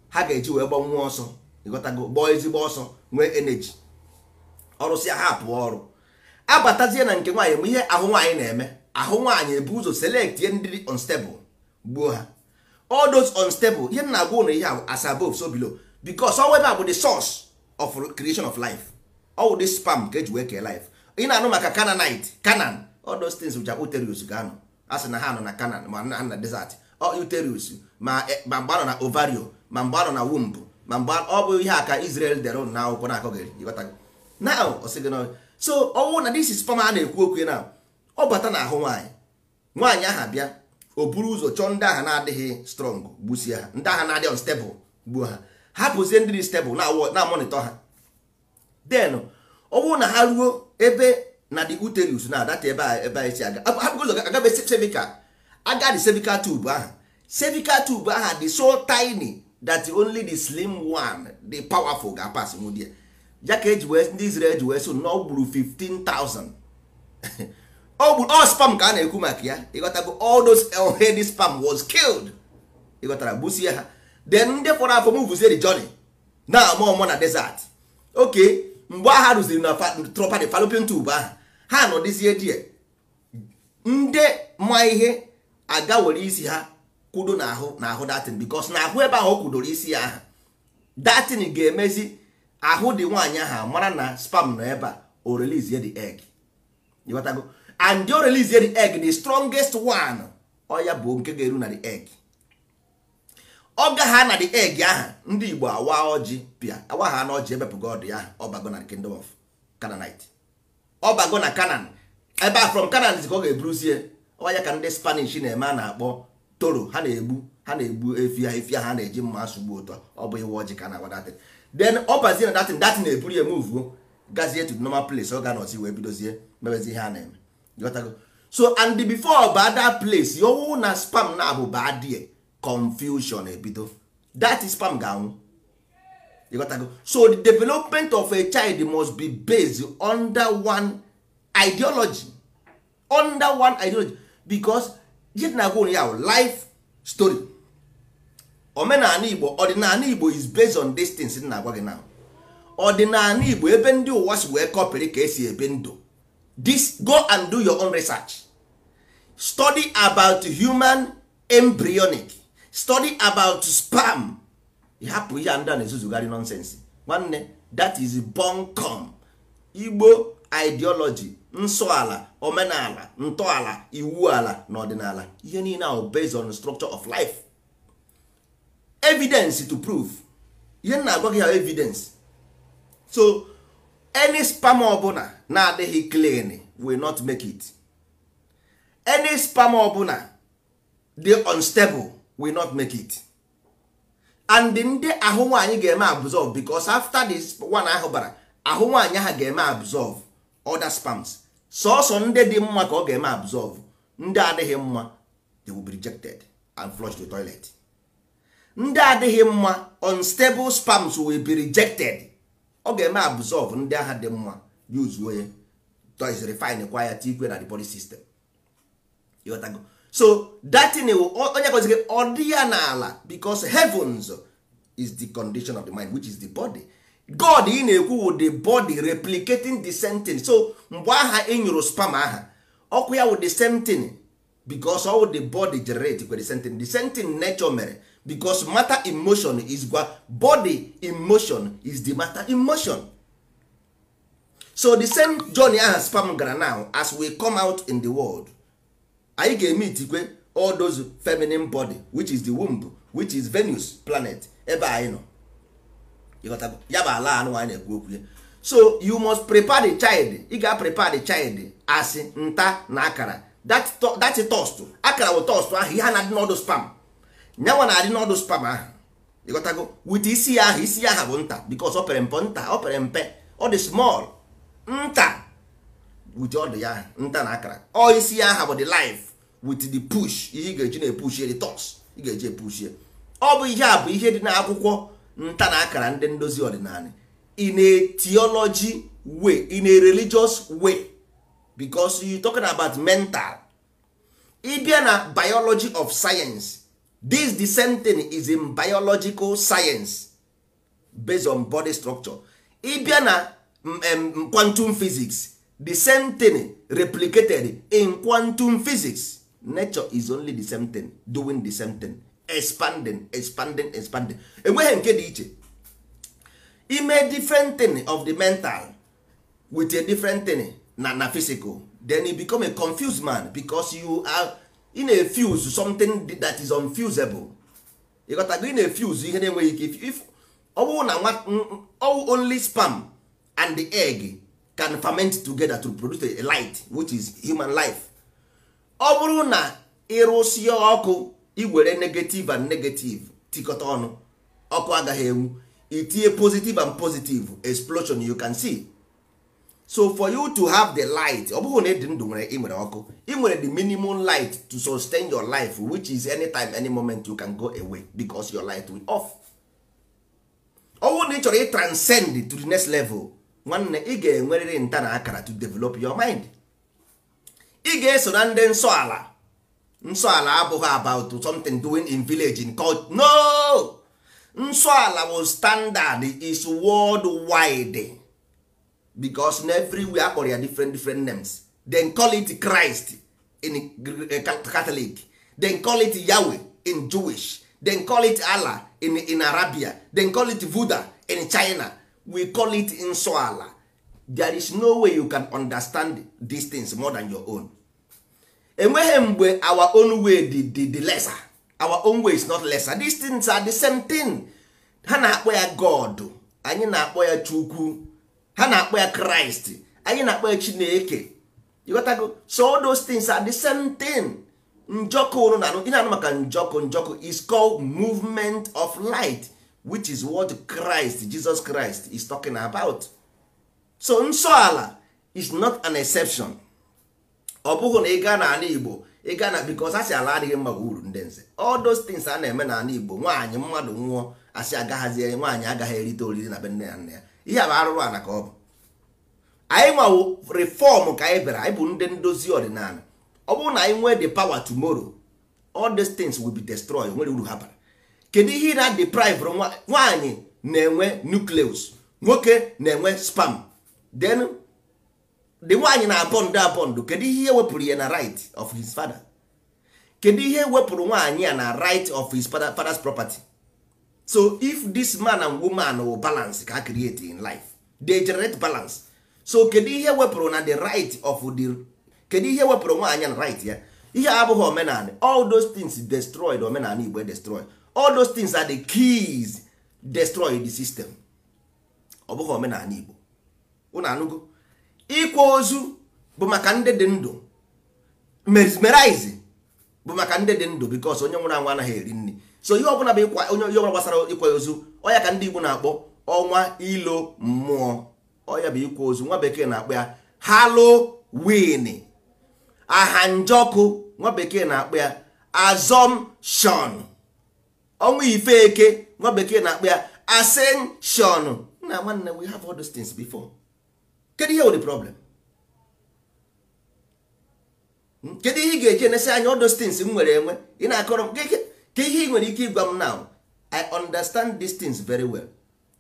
ha ga-eji wee gbanwuo ọsọ ịghọtago ezigbo ọsọ nwee energy ọrụsịa ha pụọ ọrụ abatazie na nke nwaanyị bụ ihe ahụ nwaanyị na-eme ahụ nwaanyị ebu ụzọ selekt ihe ndị dị gbuo ha all those unstable ihe na agwa ụlọ ihe as above so below because ebe a bụ the source of creation of life ọwụ the spam ka eji wee kee life ị na-anụ maka Canaanite Canaan all those things which are uterus ga a sị na ha nọ na Canaan ma na desert uterus ma eh, mgbe anọ na ovario ma mgbe na womb ma mgbe ọ bụ ihe a ka Israel dere na akwụkwọ na-akọghị so ọnwụ na this is a na-ekwu okwu na ọ bata na ahụ nwaanyị nwaanyị aha bịa o buru ụzọ chọọ ndị agha na-adịghị strong gbusie ha ndị agha na-adịghị unstable gbuo ha hapụzie ndị dị stable na-amonitọ ha Den ọ na ha ruo ebe na the uterus na adata ebe a ebe anyị si aga ụzọ agabesi cervical agadi cervical tube ahụ cervical tube ahụ dị so tiny that only the slim one the powerful ga pass nwudie ya ka eji ndị Israel ji wee so na ọ gburu 15,000 ọ all spam ka a na-ekwu maka ya ịghọtago all those heady spam was killed ịghọtara gbusie ha then ndị fọrọ afọ mvuzie the journey na amụ ọmụ na desert okay mgbe agha rụziri na tropa the fallopian tube ahụ ha nọ nọdịzie die ndị ma ihe aga were isi ha kwudo n'ahụ n'ahụ datin bikos na ahụ ebe ahụ o kwudoro isi ya aha datin ga-emezi ahụ dị nwaanyị ahụ mara na spam nọ ebe a o release eg egg ịghọtago and o release the egg the strongest one ọya bụ nke ga-eru na the eg ọ gagha na the eg aha ndị igbo awa ọjị pịa awa ha na ọjị ebepụgo ọdụ ya ọbago na kingdom of Canaanite ọbago na Canaan ebe a from Canaan ka ọ ga-eburuzie ọya ka ndị spanish na-eme a na-akpọ toro ha na-egbu ha na-egbu efi ha efi ha na-eji mma asụgbu ụtọ ọ bụ iwe ọjị ka na agwa then ọ bazie na datin datin na-eburu ya muvuo gazie to normal place ọ ga na nọzi wee bidozie mebezi ihe a na-eme ghọtago so and before bad that place yowu na spam na abụ badie confusion ebido that spam ga-anwụ ịghọtago so the development of a child must be based under one ideology under one ideology because jit na agwa ya life story omenala igbo ọdịnala igbo is based on distance things na agwa gị now ọdịnala igbo ebe ndị ụwa si wee kọpịrị ka esi ebi ndụ this go and do your own research study about human embryonic study about spam hapụ ihe ndị a na-ezuzugharị nonsense nwanne that is bunkum igbo ideology ala omenala ntọala iwu ala na ọdịnala ihe niile ahụ based on structure of life evidence to prove ihe nna na-agwa gị ya evidence so any spam ọbụla na-adịghị clean will not make it any spam ọbụla dey unstable will not make it and ndị ahụ nwaanyị ga-eme absorb because after this one ahụ bara ahụ nwaanyị ha ga-eme absorb other spams sọsọ ndị dị mma ka ọ ga-eme absorb ndị adịghị mma they will be rejected and flushed to toilet ndị adịghị mma unstable spams will be rejected ọ ga-eme absorb ndị agha dị mma use onye toys refine kwa ya tikwe na the body system ịghọtago so datin onye kwezigị ọ dị ya n'ala because heavens is the condition of the mind which is the body god ị na-ekwu the body replicating the same so mgbe aha ị e spam aha ọkụ ya wụ the same thing because all the body generate the same the same thing nature mere because matter emotion is gwa body emotion is the matter emotion so the same journey aha spam gara now as we come out in the world anyị ga-eme itikwe all those feminine body which is the womb which is Venus planet ebe anyị nọ ịghọtago ya bụ ala anụ anyị na-ekwu okwu ya so you must prepare the child ị ga prepare the child asị nta na akara that toast akara bụ toast ahụ ihe a na-adị n'ọdụ spam nyanwa na-adị n'ọdụ spam ahụ ịghọtago wit isi ya ahụ isi ya aha bụ nta because ọ pere mpe nta ọ pere mpe ọ dị small nta wit ọdụ ya nta na akara ọ isi ya aha bụ the life wit the push ihe ị ga-eji na-epushie the toast ị ga-eji epushie ọ bụ ihe a bụ ihe dị n'akwụkwọ nta na akara ndị ndozi ọdịnala in a theology way in a religious way because you talking about mental ịbịa na biology of science this the same thing is in biological science based on body structure ịbịa na um, quantum physics the same thing replicated in quantum physics nature is only the same thing doing the same thing expanding expanding expanding enweghị nke dị iche ime different thing of the mental with a different thing na na physical then you become a confused man because you are in a fuse something that is unfusable ịghọtago in a fuse ihe na-enweghị ike if ọ bụrụ na nwa only sperm and the egg can ferment together to produce a light which is human life ọ bụrụ na ịrụsie ọkụ iwere negative and negative tikọta ọnụ ọkụ agaghị enwu itinye positive and positive explosion you can see so for you to have the light ọ bụghị na ịdị ndụ nwere ị nwere ọkụ ị nwere the minimum light to sustain your life which is anytime any moment you can go away because your light will off ọnwụ na ị chọrọ ị transcend to the next level nwanne ị ga-enwerịrị nta na akara to develop your mind ị ga-eso na ndị nsọ ala nsọ ala abụghị about something doing in village in culture no nsọ ala bụ standard is world wide because everywhere akpọrọ ya different different names then call it Christ in Catholic then call it Yahweh in Jewish then call it Allah in in Arabia then call it Buddha in China we call it nsọ ala there is no way you can understand these things more than your own enweghị mgbe our own way di dị lesser our own way is not lesser these things are the same thing ha na-akpọ ya god anyị na-akpọ ya chukwu ha na-akpọ ya kraịst anyị na-akpọ ya chineke ịghọtago so all those things are the same thing njọkụ unu na maka njọkụ njọkụ is called movement of light which is what christ jesus christ is talking about so nsọ ala is not an exception ọ bụghị na ị gaa n'ala igbo ị gaa na because asị ala adịghị mma uru ndị nze all those a na-eme n'ala igbo nwaanyị mmadụ nwụọ asị agaghazi nwaanyị agaghị erite oriri na be nne ya ya ihe a bụ arụrụ ana ka ọ bụ anyị nwawo reform ka anyị bịara anyị bụ ndị ndozi ọdịnala ọ bụrụ na anyị nwee de pawa tomorrow all these things be destroyed nwere uru ha bara kedu ihe na deprive nwaanyị na-enwe nucleus nwoke na-enwe spam then the nwaanyị na abọndụ abọndụ kedu ihe wepụrụ ya na right of his father kedu ihe wepụrụ nwaanyị a na right of his father's property so if this man and woman will balance ka create in life they generate balance so kedu ihe wepụrụ na the right of the kedu ihe wepụrụ nwaanyị na right ya ihe abụghị omenala all those things destroyed omenala igbo destroyed all those things are the keys destroy the system ọ bụghị omenala igbo unu anụgo ịkwa ozu bụ maka ndị dị ndụ mesmerize bụ maka ndị dị ndụ bikos onye nwụrụ anwụ anaghị eri nri so ihe ọbụla bụ ịkwa onye ihe ọbụla gbasara ịkwa ozu ọya ka ndị Igbo na-akpọ ọnwa ilo mmụọ ọya bụ ịkwa ozu nwa bekee na-akpọ ya Halloween aha njọkụ nwa bekee na-akpọ ya assumption ọnwa ife eke nwa bekee na-akpọ ya ascension na nwanne we have all those things before. kedu ihe wụ problem kedu ihe ị ga-eji enesị anya ọdos things m nwere enwe ị na-akọrọ m ka ihe ị nwere ike ịgwa m now i understand these things very well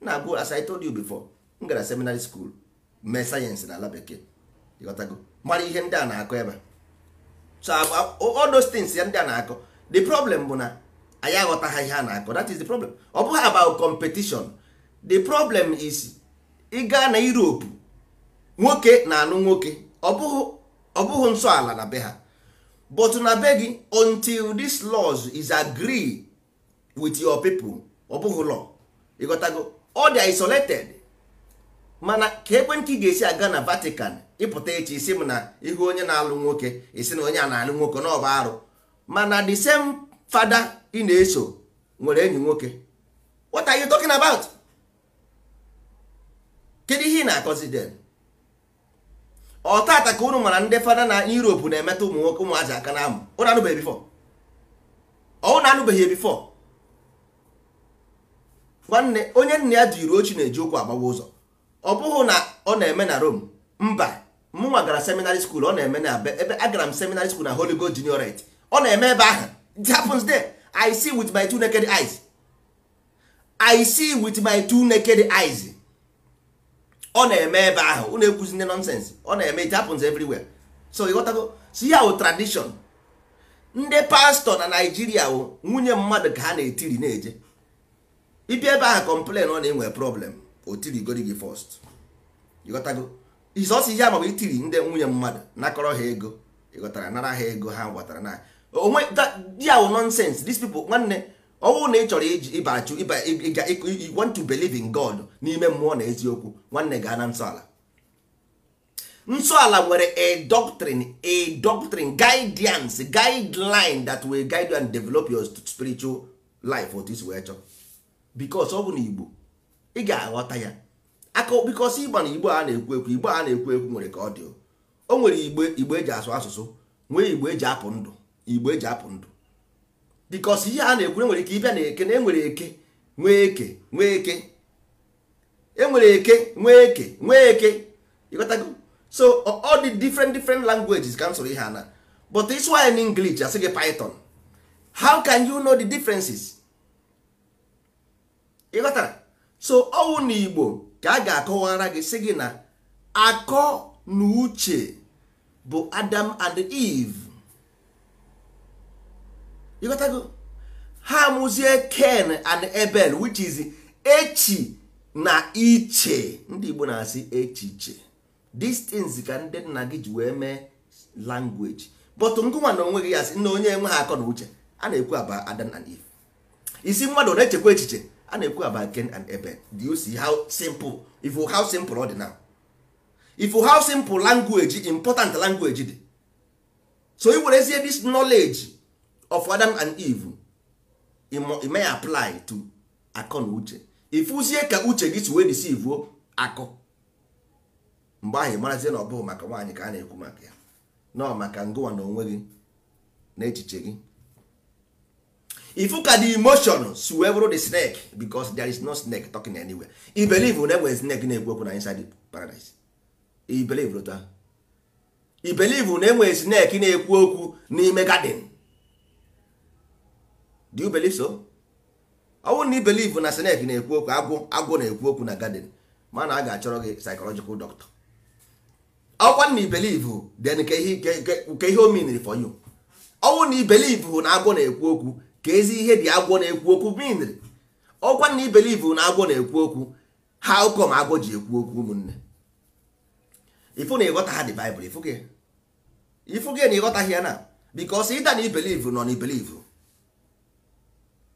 na-abụ as i told you before m gara seminary school mee sayensị na ala bekee mara ihe ndị a na-akọ ebe so all ya ndị a na-akọ the problem bụ na anyị aghọtaghị ihe a na-akọ that is the problem ọ bụghị about competition the problem is ịga na Europe nwoke na alụ nwoke ọ bụghị nsọ ala na be ha but na be gị until this laws is agree with your people ọ bụghị law ịghọtago ọ dị isolated mana ka ekwentị ga-esi aga na Vatican ịpụta echi isi m na ihu onye na-alụ nwoke isi na onye a na-alụ nwoke na ọba arụ mana the same fada ị na-eso nwere enyi nwoke what are you talking about kedu ihe ị na-akọzi den ọtata ka unu mara ndị fada na Europe na-emetụ ụmụ nwoke ụmụazị aka na amụ unu anụbeghị bifọ unu anụbeghị bifọ nwanne onye nna ya jiri ochi na-eji ụkwụ agbawa ụzọ ọ bụghị na ọ na-eme na Rome mba mụnwa gara seminary school ọ na-eme na ebe agara m seminary school na Holy Ghost Juniorate ọ na-eme ebe ahụ it happens there I see with my two naked eyes I see with my two naked eyes ọ na-eme ebe ahụ unu ekwuzi ndị nọnsensị ọ na-eme it happens everywhere so ịghọtago si ya wụ ndị pastọ na naijiria wụ nwunye mmadụ ka ha na-etiri na-eje ibi ebe ahụ na ọ na-enwe problem otirigori gị first ịghọtago izọsi ihe ma ịtiri itiri ndị nwunye mmadụ nakọrọ ha ego ịghọtara nara ha ego ha gwatara na onwe ya wụ nọnsensị these people nwanne ọnwụ na ị chọrọ iji ịba achụ want to believe in God n'ime mmụọ na eziokwu nwanne gaa na nsọala nsọala nwere a doctrine a doctrine guidance guideline that will guide you and develop your spiritual life otu isi wee chọọ because ọ bụ na Igbo ị ga-aghọta ya aka because ịgba na Igbo a na-ekwu ekwu Igbo a na-ekwu ekwu nwere ka ọ dị o nwere Igbo Igbo eji asụ asụsụ nwee Igbo eji apụ ndụ Igbo eji apụ ndụ because ihe a na ekwure nwere ike ịbịa na eke na enwere eke nwee eke nwee eke enwere eke nwee eke nwee eke ịghọtago so all the different different languages ka m ihe ana, but it's why in English as gị python how can you know the differences ịghọtara so owu na Igbo ka a ga-akọwara gị sị gị na akọ na uche bụ Adam and Eve ịghọtago ha amụzie ken and ebel which is echi na iche ndị igbo na-asị echiche these ka ndị nna gị ji wee mee language but ngụnwa na onwe gị ya sị na onye ha akọ na uche a na-ekwu aba adam and eve isi mmadụ na-echekwa echiche a na-ekwu aba ken and ebel do you see how simple if how simple ọ dị na if how simple language important language dị so i were ezie this knowledge of Adam and Eve I may apply to akọ na uche ịfụzie ka uche gị siwe wee deceive akọ mgbe ahụ ị marazie na ọ bụghị maka nwaanyị ka a na-ekwu maka ya nọ maka ngụwa na onwe gị na echiche gị ifu ka the emotion si wee bụrụ the snake because there is no snake talking anywhere i believe na enwere snake na-ekwu okwu na inside paradise i believe na enwere snake na-ekwu okwu n'ime garden do you believe so? ọ bụrụ na ị na snake na-ekwu okwu agwụ agwụ na-ekwu okwu na garden mana a ga-achọrọ gị psychological doctor ọkwa na i believe then ka ihe o for you ọ na i na agwọ na-ekwu okwu ka ezi ihe dị agwọ na-ekwu okwu mean ọkwa na i na agwọ na-ekwu okwu how come agwọ ji ekwu okwu ụmụnne ifu na ịghọta ha dị Bible ifu gị na ịghọtaghị ya na because ịda na i nọ na i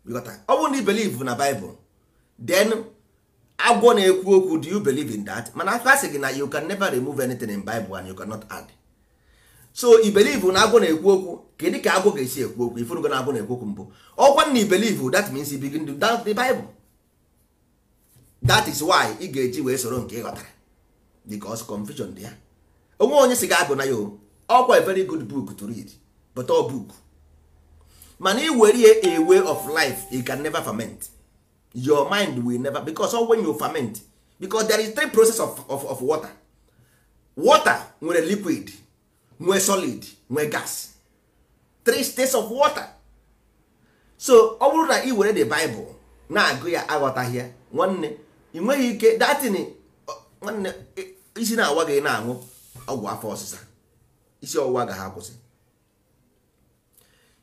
ọ bụrụ na ị believe na Bible then agwọ na-ekwu okwu do you believe in that mana aka sị gị na you can never remove anything in Bible and you cannot add so i believe na agwọ na-ekwu okwu kedu ka agwọ ga-esi ekwu okwu ifurugo na agwọ na-ekwu okwu mbụ ọkwa na i believe that means you begin to doubt the Bible that is why ị ga-eji wee soro nke ị ghọtara because confusion dị ya onwe onye si gị agụ na ya ọkwa a very good book to read but ọ book mana i were a way of life you can never ferment your mind will never because all when you ferment because there is three process of, of, of water water nwere liquid nwee solid nwee gas three states of water so ọ bụrụ na i were the bible na-agụ ya aghọtaghị ya nwanne ị nweghị ike datini nwanne isi na-awa gị na-aṅụ ọgwụ afọ ọsịsa isi ọwụwa ga ha kwụsị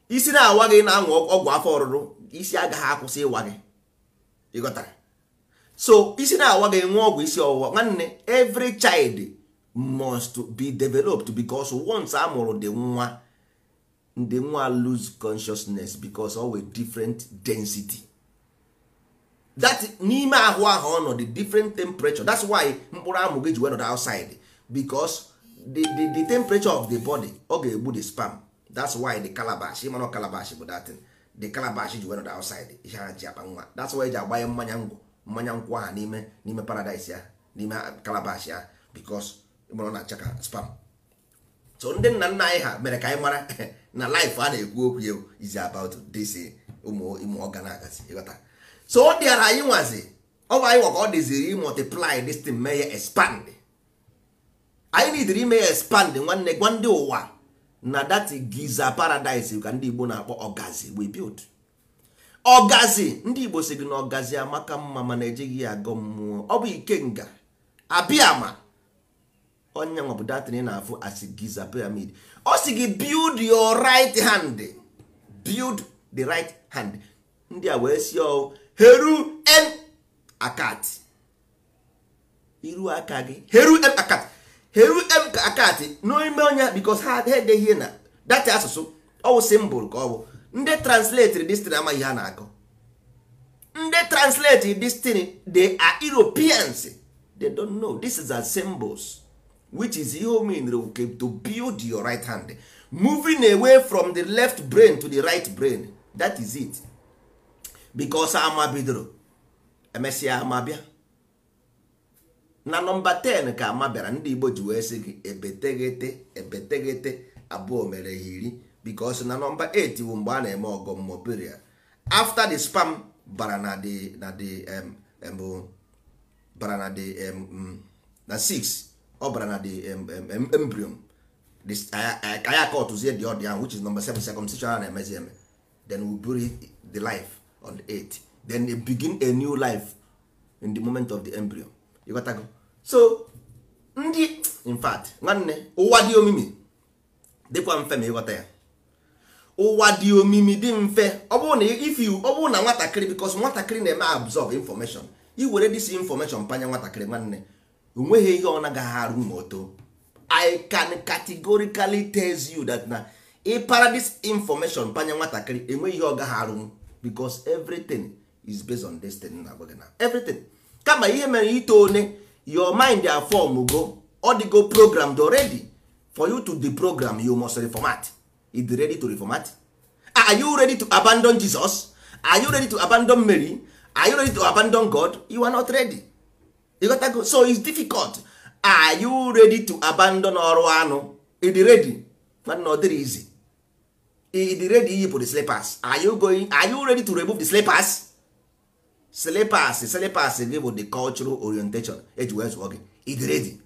isi na-awa gị na-aṅụ ọgwụ afọ ọrụrụ isi agaghị akwụsị ịwa gị ịghọtara so isi na-awa gị nwa ọgwụ isi ọwụwa nwanne every child must be developed because once a mụrụ dị nwa ndị nwa lose consciousness because of a different density that n'ime ahụ ahụ ọnọdụ different temperature that's why mkpụrụ amụ gị ji wenọd outside because the, the, the temperature of the body ọ ga-egbu the sperm that's why the calabash ịma calabash bụ the calabash ji were outside ihe ha ji akpa nwa that's why ji agbanye mmanya ngwụ mmanya nkwụ aha n'ime n'ime paradise ya n'ime calabash ya because ịmara na spam so ndị nna nna anyị mere ka anyị mara (laughs) na life a na-ekwu okwu ya is about this ya expand anyị ime ya expand nwanne gwa ndị ụwa na that giza paradise ka ndị igbo na-akpọ ọgazi we build ọgazi ndị igbo si gị na ọgazi amaka mma mana ejighị ya agọ mmụọ ọ bụ ikenga abịama onye nwa bụ datịrị na-afụ asị giza pyramid ọ si gị build your right hand build the right hand ndị a wee si ọ heru en akat iru aka gị heru en akat heru akati n'ime onya because ha edeghị na data asụsụ ọwụ simbụl ka ọ bụ ndị translate destiny amaghị ha na-akọ ndị translate destiny they are Europeans they don't know this is a symbols which is ihe mean to build your right hand moving away from the left brain to the right brain that is it because ama bidoro emesịa ama bịa na nọmba 10 ka ama bịara ndị igbo ji wee sị gị ebeteghete ebeteghete abụọ mere ha iri because na nọmba 8 bụ mgbe a na-eme ọgọ mmụọ after the spam bara na the na the bara na the mm, na 6 ọ bara na the embryon ka ya ka ọtụzie dị ọdị ahụ which is number 7 circumcision a na-emezi eme then we bury the life on the 8 then they begin a new life in the moment of the embryo you got to go. so ndị in nwanne ụwa dị omimi dịkwa mfe ma ịghọta ya ụwa dị omimi dị mfe ọ bụrụ na ifi ọ bụrụ na nwatakịrị bikos nwatakịrị na-eme absorb information iwere dis information panya nwatakịrị nwanne onweghị ihe ọ nagaghị arụ ma o i can categorically tell you that na ị para this information panya nwatakịrị enweghị ihe ọ gaghị arụ bikos everything is based on destiny na agwa na everything kama ihe mere ito one your mind are form go all the go programmed already for you to program you must reformat is ready to reformat are you ready to abandon jesus are you ready to abandon mary are you ready to abandon god you are not ready you got go. so it's difficult are you ready to abandon ọrụ anụ ịdị ready mana ọ dịrị easy the slippers are you going are you ready to remove the slippers Slipers slipers gị bụ the cultural orientation eji wee zụọ gị idiredi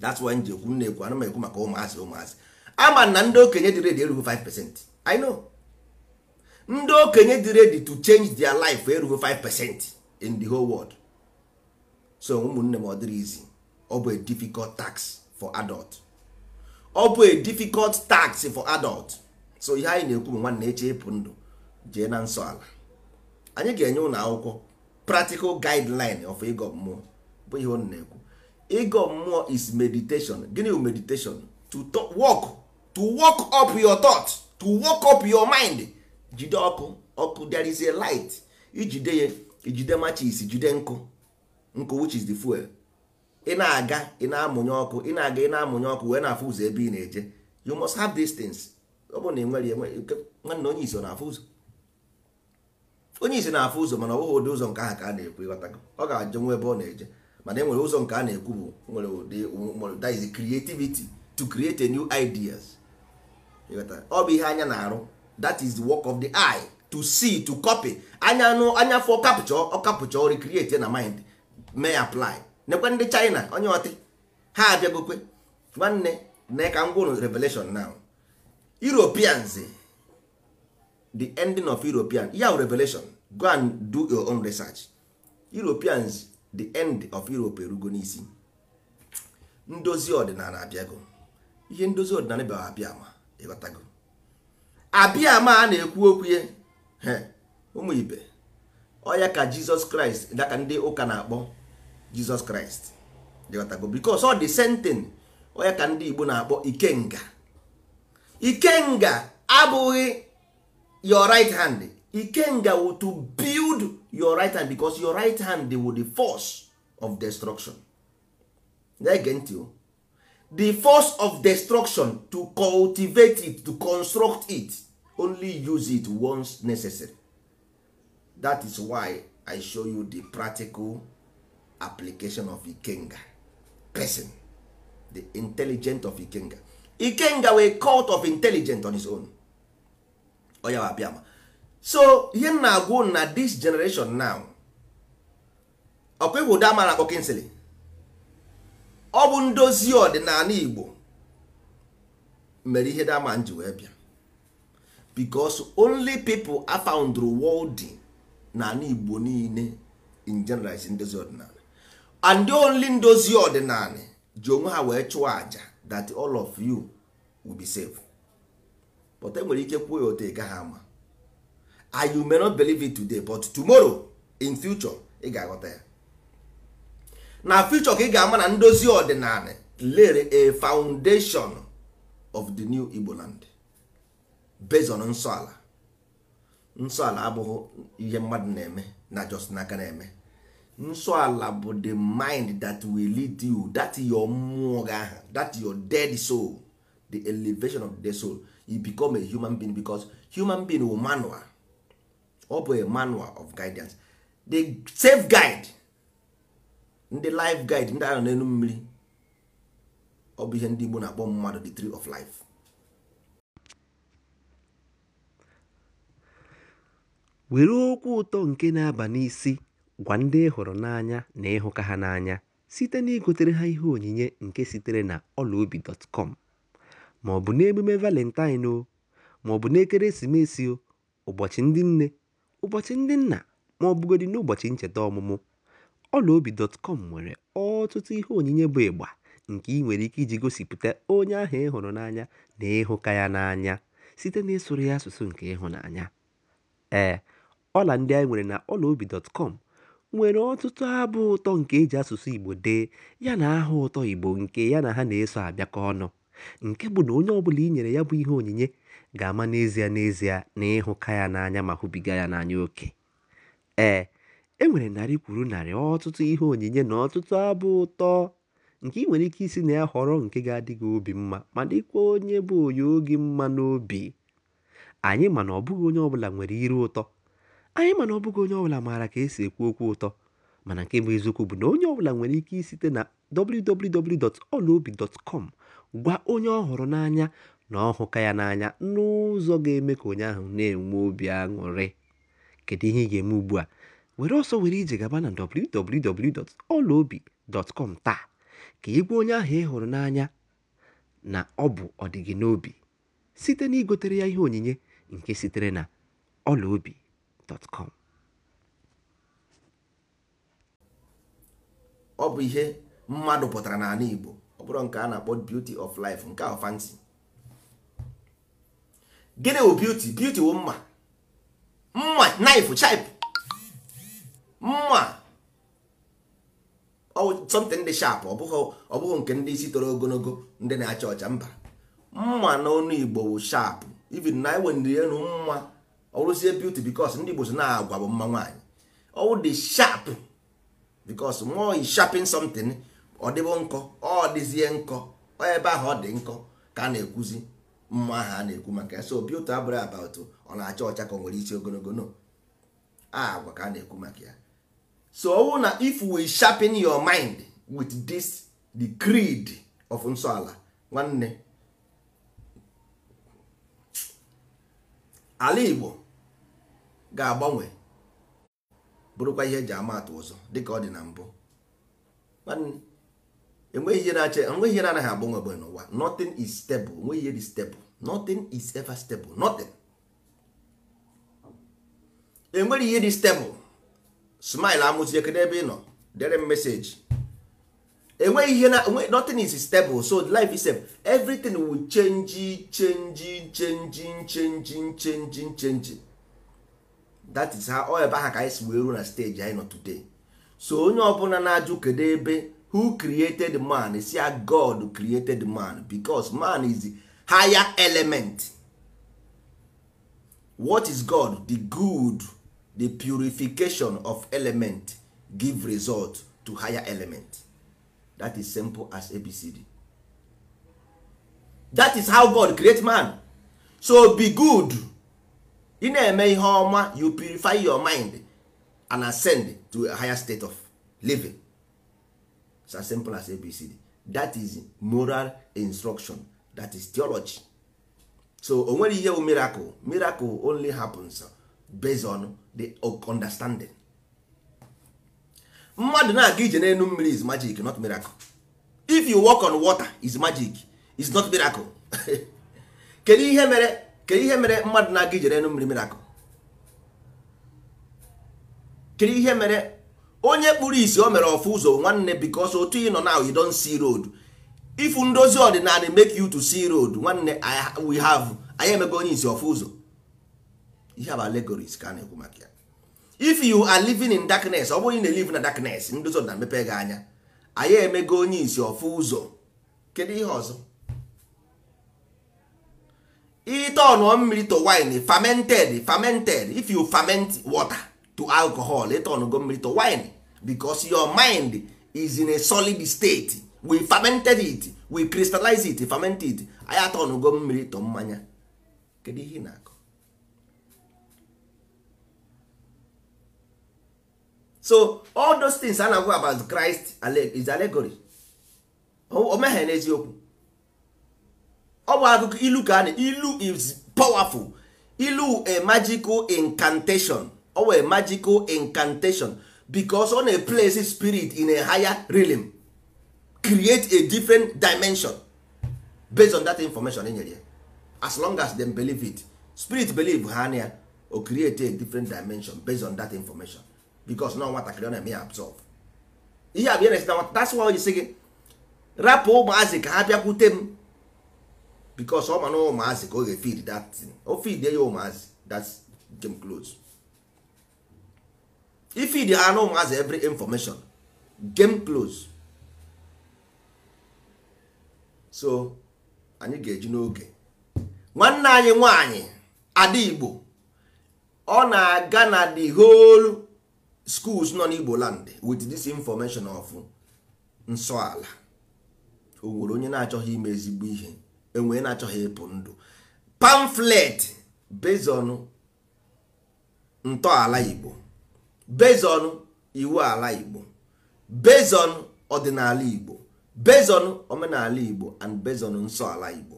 that's why ji ekwu na ekwu anụ ekwu maka ụmụazị ụmụazị ama na ndị okenye dị redi erughị 5% I know ndị okenye dị redi to change their life erughị 5% in the whole world so ụmụnne m ọ dịrị izi ọ bụ a difficult tax for adult ọ bụ a difficult tax for adult so ihe anyị na-ekwu bụ nwanne eche ịpụ ndụ jee na nsọ ala anyị ga-enye ụlọ akwụkwọ practical guideline of ego mmụọ bụ ihe ọ na-ekwu mmụọ is meditation gịnị bụ meditation to work to work up your thought to work up your mind jide ọkụ ọkụ there is a light ijide ya ijide matches jide nkụ nkụ which is the fuel ị na-aga ị na-amụnye ọkụ ị na-aga ị na-amụnye ọkụ wee na-afụ ụzọ ebe ị na-eje you must have these things ọ bụrụ na ị nwere nwanne onye isi ọ na-afụ ụzọ onye isi na-afụ ụzọ mana ọ bụghị ụdị ụzọ nke ahụ ka a na-ekwu ịghọtago ọ ga-ajụ nwa ebe ọ na-eje mana e nwere ụzọ nke a na-ekwu bụ nwere ụdị that is creativity to create a new ideas ọ bụ ihe anya na-arụ that is the work of the eye to see to copy anya anụ anya fọ kapchọ ọ kapchọ recreate na mind may apply nekwe ndị China onye ọtị ha abịagokwe nwanne na ka m gwụrụ revelation now Europeans the ending of european ya revelation go and do your own research europeans the end of europe erugo n'isi ndozi ọdịnala abịago ihe ndozi ọdịnala bịara abịa ma ịghọtago abịa ma a na-ekwu okwu ya ụmụ ibe ọya ka jizọs kraịst daka ndị ụka na-akpọ jizọs kraịst ịghọtago bikos ọ dị sentin ọya ka ndị igbo na-akpọ ikenga ikenga abụghị your right hand ikenga to build your right hand because your right hand will the force of destruction ntị the force of destruction to cultivate it to construct it only use it once necessary that is why i show you the practical application of ikenga person the intelligent of ikenga ikenga wey cult of intelligent on his own onye abịa ma so ihe m na-agwụ na this generation now ọkwa ịhụ ụda mara akpọ ọ bụ ndozi ọdịnala Igbo mere ihe dama ji wee bịa because only people a found n'ala Igbo niile in general ndozi ọdịnala and the only ndozi ọdịnala ji onwe ha wee chụọ aja that all of you will be safe. but enwere ike kwuo ya otu ị gaghị ama I you may not believe it today but tomorrow in future ị ga-aghọta ya na future ka ị ga-ama na ndozi ọdịnala lere a foundation of the new Igbo land based on nsọ ala abụghị ihe mmadụ na-eme na just n'aka na-eme nsọ ala bụ the mind that will lead you that your mmụọ gị that your dead soul the elevation of the soul you become a human being because human being will manual ọ bụ a manual of guidance the safe guide ndị life guide ndị ahụ n'elu mmiri ọ bụ ihe ndị Igbo na-akpọ mmadụ the tree of life were okwu ụtọ nke na-aba n'isi gwa ndị hụrụ n'anya na ịhụka ha n'anya site na igotere ha ihe onyinye nke sitere na ọlaobi.com ma ọ bụ n'emume Valentine o, ma ọ bụ n'ekeresimesi o, ụbọchị ndị nne, ụbọchị ndị nna ma ọ bụgodị n'ụbọchị ncheta ọmụmụ, ọlaobi.com nwere ọtụtụ ihe onyinye bụ ịgba nke ị nwere ike iji gosipụta onye ahụ ị hụrụ n'anya na ịhụka ya n'anya site ịsụrụ ya asụsụ nke ịhụnanya. Ee, ọla ndị anyị nwere na ọlaobi.com nwere ọtụtụ abụ ụtọ nke eji asụsụ Igbo dee yana aha ụtọ Igbo nke ya na ha na-eso abịakọ ọnụ. nke bụ na onye ọbụla i nyere ya bụ ihe onyinye ga-ama n'ezie n'ezie na ịhụka ya n'anya ma hụbiga ya n'anya oke ee e nwere narị kwuru narị ọtụtụ ihe onyinye na ọtụtụ abụ ụtọ nke ị nwere ike isi na ya họrọ nke ga-adị gị obi mma ma dịkwa onye bụ onye oge mma n'obi anyị mana ọbụghị onye ọbụla nwere iru ụtọ anyị mana ọbụghị onye ọbụla maara ka esi ekwu okwu ụtọ mana nke bụ eziokwu bụ na onye ọbụla nwere ike site na www.olaobi.com Gwa onye ọ hụrụ n'anya na ọ hụka ya n'anya n'ụzọ ga-eme ka onye ahụ na-enwe obi aṅụrị. Kedu ihe ị ga-eme ugbu a? Were ọsọ were ije gaba na www.ọlaobi.com taa ka ị gwa onye ahụ ị hụrụ n'anya na ọ bụ ọdịgị n'obi site na igotere ya ihe onyinye nke sitere na ọlaobi.com. ọ bụ ihe mmadụ pụtara n'ala Igbo ọ bụrụ nke a na-akpọ beauty of life nke ahụ fancy gịnị wụ beauty beauty wụ mma mma knife chip mma something dị sharp ọ bụghị nke ndị isi toro ogologo ndị na-acha ọcha mba mma n'ọnụ igbo wụ sharp even na iwendiri elu mma ọrụzie beauty because ndị igbo so na-agwa bụ mma nwaanyị ọwụ dị sharp because more is sharping something ọ dịbụ nkọ ọ dịzie nkọ ebe ahụ ọ dị nkọ ka a na-ekwuzi mma ahụ a na-ekwu maka ya so obi ụtọ abụrụ ọ na-acha ọcha ka ọ nwere isi ogologo no agwa ka a na-ekwu maka ya so owu na if we sharpen your mind with this the creed of nsọala nwanne ala Igbo ga-agbanwe bụrụkwa ihe eji ama atụ ụzọ dịka ọ dị na mbụ enweghị ihe na-ache enweghị ihe na-anaghị agbanwe agbanwe n'ụwa nothing is stable enweghị ihe dị stable nothing is ever stable nothing enwere ihe dị stable smile amụzie kede ebe ị nọ dere m meseji enweghị ihe na nothing is stable so life is everything will change change change change change change that is how ọ ebe aha ka anyị si wee ruo na stage anyị nọ today so onye ọbụla na-ajụ kedu ebe who created man si ah, god created man because man is the higher element what is god the good the purification of element give result to higher element that is simple as abcd that is how god create man so be good ị na-eme ihe ọma you purify your mind and ascend to a higher state of living as simple as abcd that is moral instruction that is theology so o nwere ihe miracle miracle only happens based on the understanding mmadụ na-aga ije n'elu mmiri is magic not miracle if you walk on water is magic is not miracle (laughs) kedu ihe mere kedu ihe mere mmadụ na-aga ije n'elu mmiri miracle kedu ihe mere onye kpụrụ isi o mere ọfụ ụzọ nwanne because otu ị nọ na you don see road ifu ndozi ọdịnala make you to see road nwanne we have anyị emego onye isi ọfụ ụzọ ihe bụ allegories ka a na-ekwu maka ya if you are living in darkness ọ bụghị na live na darkness ndozi ọdịna mepe gị anya anyị emego onye isi ọfụ ụzọ kedu ihe ọzọ ite ọnụọ mmiri to wine fermented fermented if you ferment water to alcohol ite ọnụgo mmiri to wine because your mind is in a solid state we fermented it we crystallize it ferment it anyị atọnugo mmiri tọ mmanya kedu ihe na-akọ so all those things a na-agwa about Christ is allegory o meghe n'eziokwu ọ bụ akụkọ ilu ka na ilu is powerful ilu a magical incantation ọ a magical incantation because ọ na-place spirit in a higher realm create a different dimension based on that information enyere ya as long as them believe it spirit believe ha na o create a different dimension based on that information because na nwatakịrị ọ na-eme ya absorb ihe abịa na that's why onye si gị rapụ ụmụazị ka ha bịakwute m because ọ ma na ụmụazị ka ọ ga-efid that thing o oh, feed ụmụazị that's game close ifidi anụ ụmụazị every information game close so anyị ga-eji n'oge nwanne anyị nwanyị ada igbo ọ na-aga na the whole schools nọ n'igbo land with this information of nsọala o nwere onye na-achọghị ime ezigbo ihe enwee na-achọghị ịpụ ndụ pamflet bezọnụ ntọala igbo bezon iwu ala igbo bezon ọdịnala igbo bezon omenala igbo and bezon nsọ ala igbo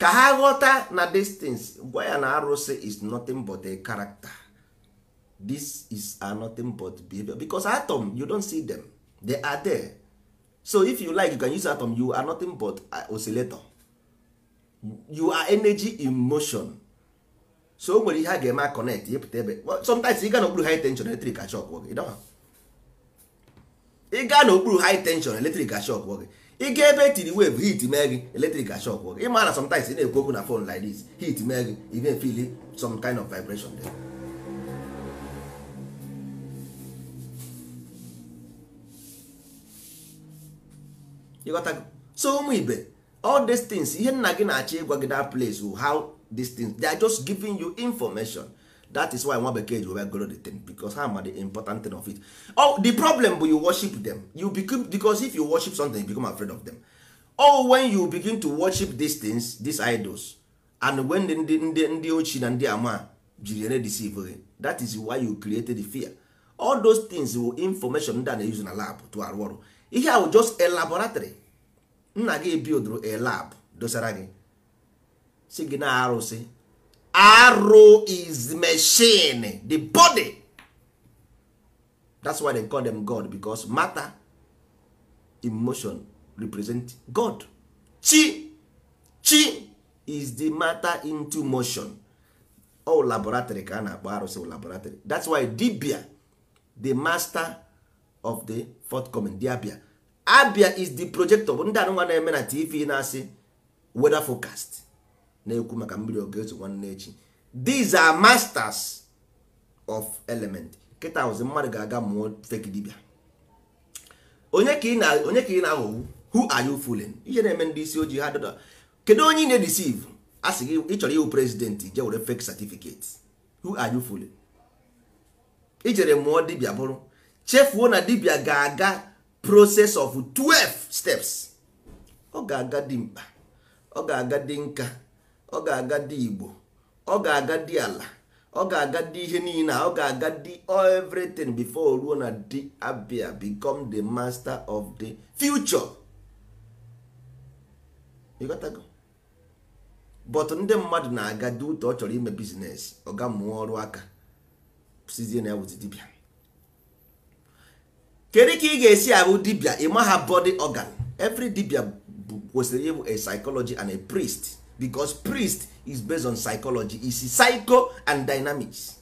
ka ha ghọta na distance gwa ya na arụsị is nothing but a character this is nothing but behavior because atom you don't see them they are there so if you like you can use atom you are nothing but oscillator you are energy in motion so o nwere ihe a ga-eme a connect ịpụta ebe sometimes ị gaa n'okpuru high tension eletrik ashok gị i gaa n'okpuru high tension eletrik ashok gị ị ebe etiri wave hit mee gị eletrik ashok gị ị ma na sometimes ị na-ekwu okwu na phone like this hit mee gị ị na-efeel some kind of vibration there. ịghọtago so ụmụ ibe all these ihe nna gị na-achọ ịgwa gị that place how these things they are just giving you information that is why nwa bekee ji wee goro the thing because ha ma the important thing of it oh, the problem bụ you worship them you become, because if you worship something you become afraid of them oh when you begin to worship these things these idols and when ndị ndị ndị ochie na ndị ama jiri ere deceive gị that is why you created the fear all those things will information ndị a na-use na lab to arụ ọrụ ihe just a laboratory nna gị ebiodoro a lab dosara gị si gị na arụsị arụ is machine the body that's why they call them god because matter emotion represent god chi chi is the matter into motion all laboratory ka a na-akpọ arụsị laboratory that's why dibia the master of the forthcoming the abia abia is the projector ndị anụnwa na-eme na tv na-asị weather forecast na-ekwu maka mmiri okezu nwanne echi these are masters of element kịta ụzi mmadụ ga-aga mụọ fake dibia onye ka ị na-aghọgbu who are you fooling ihe na-eme ndị isi ojii ha dada kedu onye ị na-edeceive a sị gị ịchọrọ ịhụ prezidentị je were fake certificate who are you fooling ijere mụọ dibia bụrụ chefuo na dibia ga-aga process of 12 steps ọ ga-aga dị mkpa ọ ga-aga dị nka ọ ga-aga dị igbo ọ ga-aga dị ala ọ ga-aga dị ihe niile ọ ga-aga dị everything bifo ruo na dị abia become the master of the future but ndị mmadụ na-aga dị ụtọ ọ chọrọ ime bizines ọ ga mụọ ọrụ aka sizie na ya wụzi dibia kedu ka ị ga-esi ahụ dibia ịma ha body ọgan? every dibia kwesịrị ịbụ a psychology and a priest because priest is based on psychology is psycho and dynamics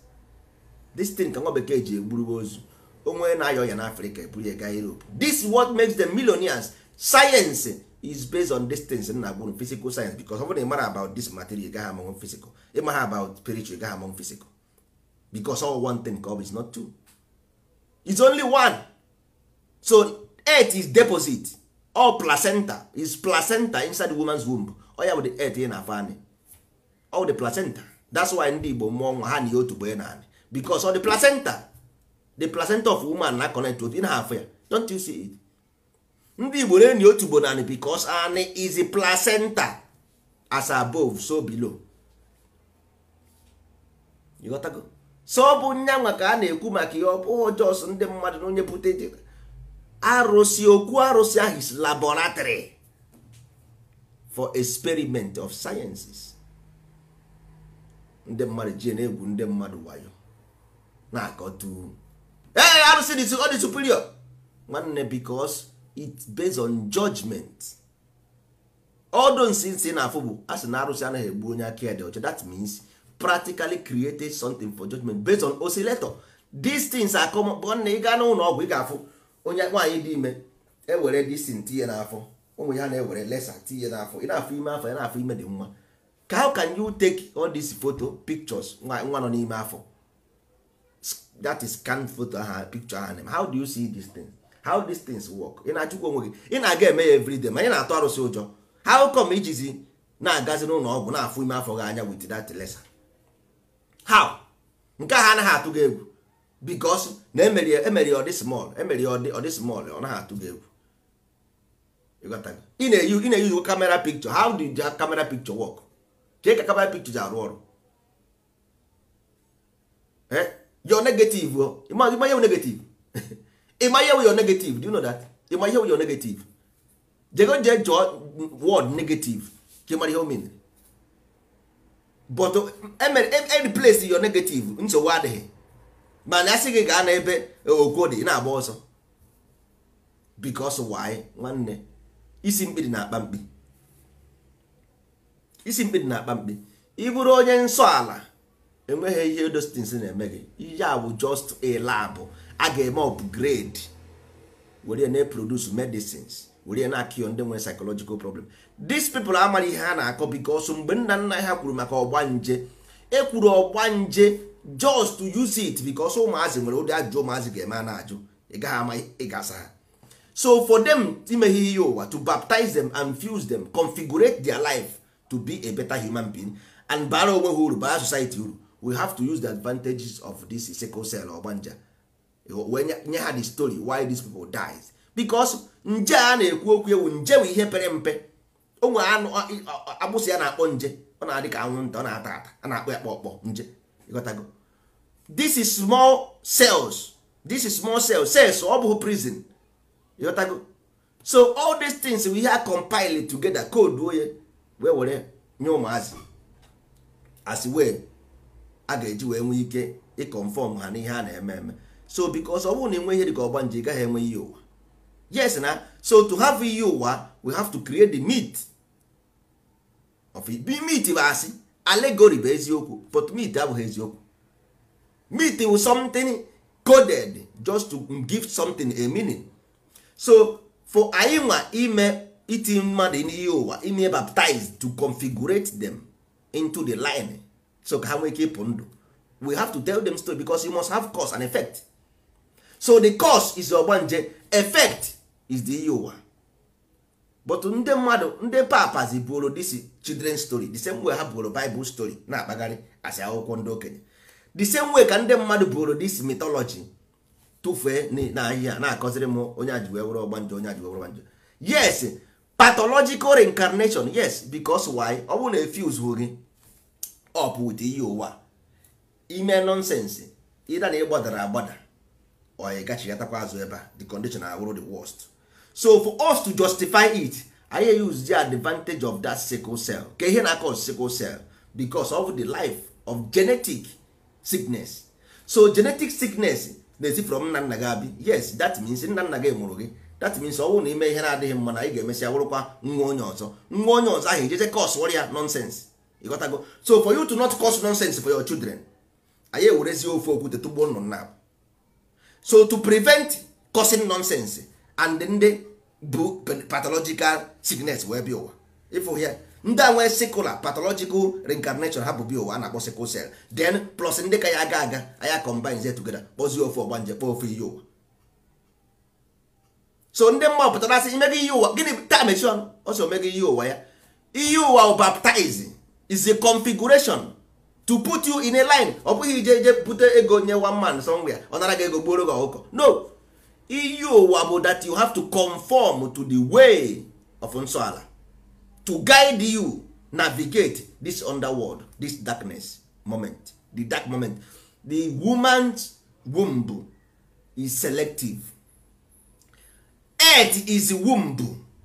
this thing ka nwa bekee ji egburugo ozu onwe na-ayọ ya n'afrịka eburu ya gaa europe this is what makes the millionaires science is based on distance na agbụrụ physical science because ọ bụrụ na ịmara about this material gaghị among physical ịmara about spiritual gaghị among physical because all one thing ka ọ bụ is not two is only one so earth is deposit all placenta is placenta inside the woman's womb ọya bụ the earth ị na-afọ anyị. ọ dị placenta that's why ndị Igbo mmụọ nwa ha na ihe otubo ya na anị because ọ dị placenta the placenta of woman na connect otu ị na-afọ ya don't you see it ndị Igbo na-enyi otubo na anị because anyị is a placenta as above so below you so ọ bụ nyanwa ka a na-ekwu maka ihe ọbụ jọs ndị mmadụ na onye pụta arụsị okwu arụsị ahụ is laboratory for experiment of sciences ndị mmadụ ji na-egwu ndị mmadụ wayo na-akọtu ee arụsị dị ọ dị superior nwanne because it's based on judgment odo nsi nsi na-afụ bụ a sị na arụsị anaghị egbu onye aka ya dị ọcha that means practically created something for judgment based on oscillator these things akọ nwanne ị gaa n'ụlọ ọgwụ ị ga-afụ onye nwaanyị dị ime ewere disin tinye n'afọ ụmụ ya na-ewere lesa tinye n'afọ ị na-afọ ime afọ ya na-afọ ime dị nwa ka how can you take all these photo pictures nwa nọ n'ime afọ that is scan photo aha picture aha name how do you see these things how these things work ị na-ajụkwa onwe gị ị na-aga eme ya everyday ma ị na-atụ arụsị ụjọ how come ijizi na-agazi n'ụlọ ọgwụ na-afụ ime afọ gị anya with that lesa how nke ha anaghị atụ gị egwu because na emeri ya ọdị small emeri ọ ọdị small ọ naghị atụ gị egwu ị na-eyuzu kamera pikchọ how do the camera picture work ka ka kamera pikchọ ji arụ ọrụ eh? yo negative ịma ihe negative ịma ihe yo negative do you know that ịma ihe yo negative jego je chọọ word negative ka ịmara ihe o mere but emere eh, eh, replace negative nsogbu adịghị mana asị gị gaa n'ebe okwo ị na-agba ọsọ because why nwanne isi mkpiri na-akpa mkpi isi mkpiri na-akpa mkpi ịbụrụ onye nsọ ala enweghị ihe dostins na-eme gị ihe a bụ just a a ga-eme upgrade were na-eproduce medicines were na-akịọ ndị nwere psychological problem these people amaghị ihe ha na-akọ because mgbe nna nna ha kwuru maka ọgbanje ekwuru ọgbanje just use it because ụmụazị nwere ụdị ajụjụ ụmụazị ga-eme a na-ajụ ị gaghị ama ị ha so for them imeghe ihe ụwa to baptize them and fuse them configurate their life to be a better human being and bara onwe ha uru bara society uru we have to use the advantages of this sickle cell ogbanja wee nye ha the story why these people dies because nje a na-ekwu okwu ewu nje bụ ihe pere mpe onwe agbụsị ya na-akpọ nje ọ na-adị ka anwụnta ọ na-ata ata a na-akpọ ya kpọkpọ nje ịghọtago this is small cells this is small cells cells ọ bụghị prison ịghọtago so all these things we have compile together code onye wee were nye ụmụazị as wee a ga-eji wee nwee ike ịconfọm ha n'ihe a na-eme eme so because ọ bụrụ na enwe ihe dịka ọgba nje ị gaghị enwe ihe ụwa yes na so to have ihe ụwa we have to create the meat of it. meat bụ asị allegory bụ eziokwu but meat abụghị eziokwu meat bụ something coded just to give something a meaning so for anyị nwa ime iti mmadụ n'ihe ụwa ime baptize to configurate them into the line so ka ha nwee ike ịpụ ndụ we have to tell them story because you must have cause and effect so the cause is ogbanje effect is the ihe ụwa but ndị mmadụ ndị papas bụrụ this children story the same way ha bụrụ Bible story na-akpagharị asị akwụkwọ ndị okenye the same way ka ndị mmadụ bụrụ this mythology tụfee n'ahịhịa na-akọziri m onye a ji wee were onye a ji yes pathological reincarnation yes because why ọ bụrụ na efuse gị up with ihe ụwa ime nonsense ịda na ịgbadara agbada or ị gachigatakwa azụ ebe a the condition awụrụ the worst so for us to justify it anyị use the advantage of that sickle cell ka ihe na-akọ sickle cell because of the life of genetic sickness so genetic sickness na-esi from nna nna gị abịa yes that means nna nna gị mụrụ gị that means ọ bụrụ na ime ihe na-adịghị mma na anyị ga-emesịa wụrụkwa nwa onye ọzọ nwa onye ọzọ ahụ ejeze cos ya nonsense ịghọtago so for you to not cause nonsense for your children anyị ewerezi ofe okwute tụgbuo nnụ nna so to prevent causing nonsense and ndị bụ pathological sickness wee bịa ụwa ịfụ ya ndị a nwee sikula pathological reincarnation ha bụ bi ụwa na-akpọ sikụl sel Den plus ndị ka ya aga aga aya combine together kpọzie ofe ọgbanje kpọọ ofe iyi ụwa so ndị mma pụtara asị imega iyi ụwa gịnị taa mechie ọnụ ọ sị omega ụwa ya iyi ụwa baptize is a configuration to put you in a line ọ bụghị ije ije bute ego nye one man somewhere ọ nara gị ego gbuoro gị ọkụkọ no iyi ụwa bụ that you have to conform to the way of nsọ ala to guide you navigate this underworld this darkness moment the dark moment the woman's womb is selective earth is womb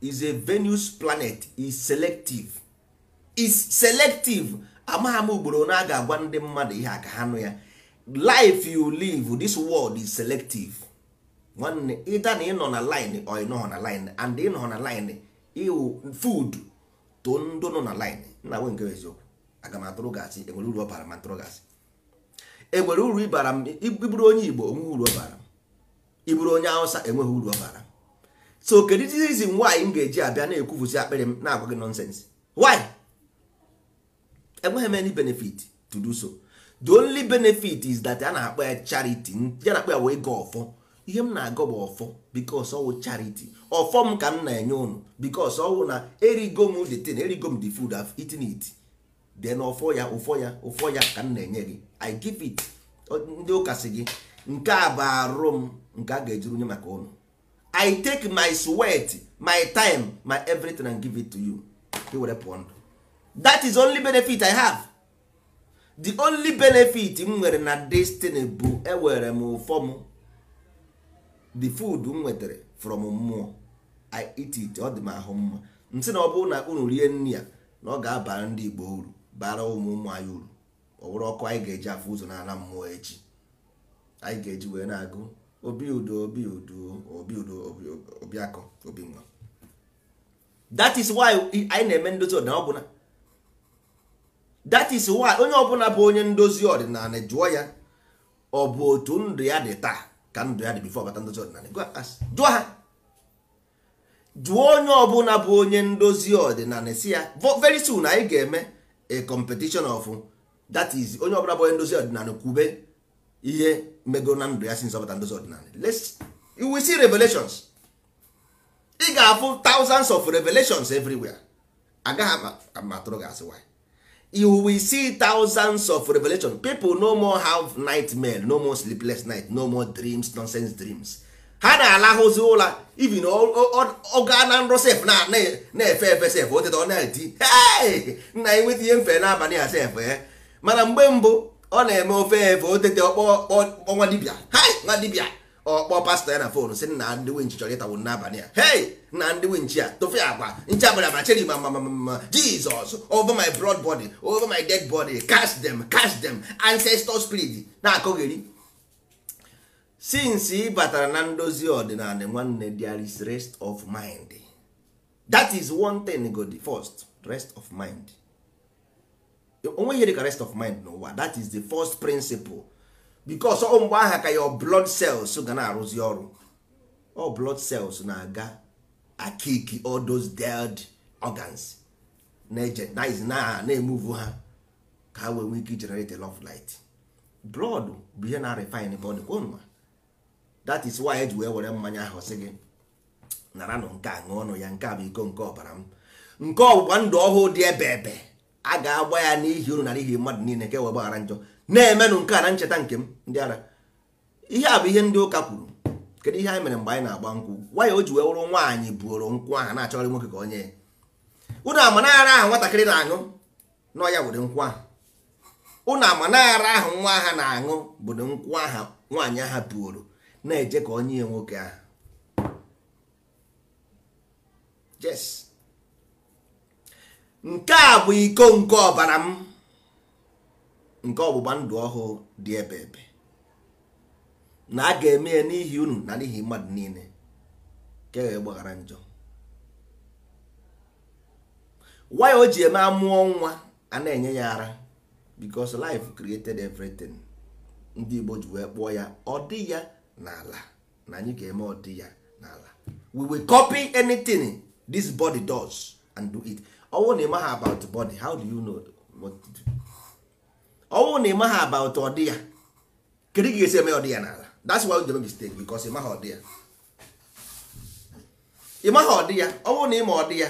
is a venus planet is selective is selective amagha m ugboro na aga agwa ndị mmadụ ihe aka ha nụ ya life you live this world is selective nwanne ịda na ịnọ na line or ịnọghọ na line and ịnọghọ na line iwu food too ndị nọ na line na nwe nke eziokwu aga m atụrụ gasị enwere uru ọ bara ma atụrụ gasị enwere uru ịbara m ibụrụ onye igbo enweghị uru ọ bara m iburu onye awụsa enweghị uru ọ bara m so kedu reason nwaanyị m ga-eji abịa na-ekwufusi akpịrị m na-agwa gị nonsense why enweghị m any benefit to do so the only benefit is that a na-akpọ ya charity ya na-akpọ ya wee ga ọfọ ihe m na-agọ bụ ọfọ bikos ọwụ chariti ọfọ m ka m na-enye ụnụ bikos ọwụ na erigo m the thing erigo m the food I've eaten it then ọfọ ya ụfọ ya ụfọ ya ka m na-enye gị I give it ndị ụka si gị nke a bụ arụ m nke a ga-ejuru nye maka ụnụ I take my sweat my time my everything and give it to you were pụọ ndụ that is only benefit I have the only benefit m nwere na destiny bụ ewere m ụfọ m the food m nwetara from mmụọ i eat it ọ dị m ahụ mma m na ọ bụrụ na unu rie nri ya na ọ ga-abara ndị Igbo uru bara ụmụ ụmụ anyị uru ọ bụrụ ọkụ anyị ga-eji afọ ụzọ n'ala mmụọ echi anyị ga-eji wee na-agụ obi udo obi udo obi udo obiakọ obi nwa that is why anyị na-eme ndozi ọdịnala ọbụla that is why onye ọbụla bụ onye ndozi ọdịnala jụọ ya ọ bụ otu ndụ ya dị taa ka ndụ ya dị bifo bata ndozi ọdịnala jụọ ha jụọ onye ọbụla bụ onye ndozi ọdịnala si ya very soon anyị ga-eme a competition of that is onye ọbụla bụ onye ndozi ọdịnala kwube ihe mego na ndụ ya si nzọpụta ndozi ọdịnala you will see revelations ị ga-afụ thousands of revelations everywhere agaghị ama atụrụ gị asị why you will see thousands of revelation people no more have nightmare no more sleepless night no more dreams nonsense dreams ha na-alahụzi ụra even ọga na nrọ sef na-efe efe sef oteta ọ na-eti nna ya nweta ihe mfe n'abalị a sef eh. mana mgbe mbụ ọ na-eme ofe efe otete ọkpọ nwa dibịa hai nwa ọkpọ pastọ ya na fon si nna ndị winchi chọrọ ịtawo n'abalị a hey nna ndị winchi a tofe agwa nche abalị agba cheri ma ma ma jizọs over my blood body over my dead body cast them cast them ancestor spirit na-akọgheri since ị batara na ndozi ọdịnala nwanne there is rest of mind that is one thing go the first rest of mind onweghị dịka rest of mind n'ụwa that is the first principle because ọ mgbe aha ka your blood cells ga na-arụzi ọrụ ọ blood cells na-aga akiki all those dead organs na-ejenize na na-emuvu ha ka ha wee nwee ike generate a of light blood bụ ihe na-refine body kwonwa that is why eji wee were mmanya ahụ sị gị nara nụ nke a ṅụọ ọnụ ya nke a bụ iko nke ọbara m nke ọgbụgba ndụ ọhụụ dị ebe ebe a ga-agba ya n'ihi uru na ihe mmadụ niile nke wee gbaghara njọ na-emenụ nke a na ncheta nke m ndị ara ihe a bụ ihe ndị ụka kwuru kedu ihe anyị mere mgbe anyị na-agba nkwụ nwanyị o ji wee wụrụ nwaanyị buoro nkwụ ahụ na-achọrọ nwoke ka onye ya ụnụ na-aṅụ ahụ ụnụ nwa ha na-aṅụ bụ nkwụ aha nwaanyị aha buoro na-eje ka onye ya nwoke ahụ nke a bụ iko nke ọbara m nke ọgbụgba ndụ ọhụụ dị ebe ebe na a ga-eme ya n'ihi unu na n'ihi mmadụ niile ka e gbaghara njọ Why o ji eme amụọ nwa a na-enye ya ara because life created everything ndị Igbo ji wee kpụọ ya ọ dị ya n'ala na anyị ga-eme ọ dị ya n'ala we will copy anything this body does and do it bụrụ na about body how do you know do? ọnwụ na ịmaghị aba ụtụ ọdị ya kedu ka esi eme ọdị ya n'ala that's why you mistake because ịmaghị ọdị ya ịmaghị ọdị ya ọnwụ na ịma ọdị ya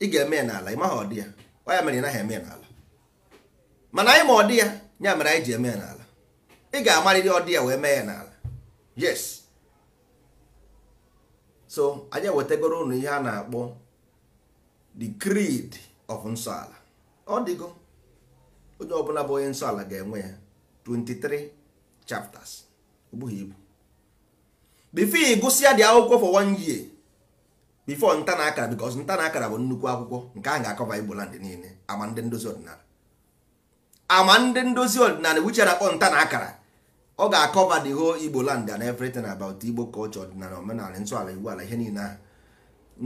ị ga-eme n'ala ịmaghị ọdị ya ọ ya mere ị naghị eme n'ala mana anyị ma ọdị ya ya mere anyị ji eme n'ala ị ga-amarịrị ọdị ya wee mee ya n'ala yes so anya ewetagoro ụnụ ihe a na-akpọ the creed of nsọ ala ọ dịgo onye ọbụla bụ onye nsọ ala ga-enwe ya 23 chapters ogbughị ibu bifo ịgụsịa dị akwụkwọ for one year bifo nta na akara because nta na akara bụ nnukwu akwụkwọ nke ahụ ga-akọva igbo land niile ama ndị ndozi ọdịnala ama ndị ndozi ọdịnala wiche na-akpọ nta na akara ọ ga-akọva the whole igbo land and everything about igbo culture ọdịnala omenala nsọ ala igbo ala ihe niile ahụ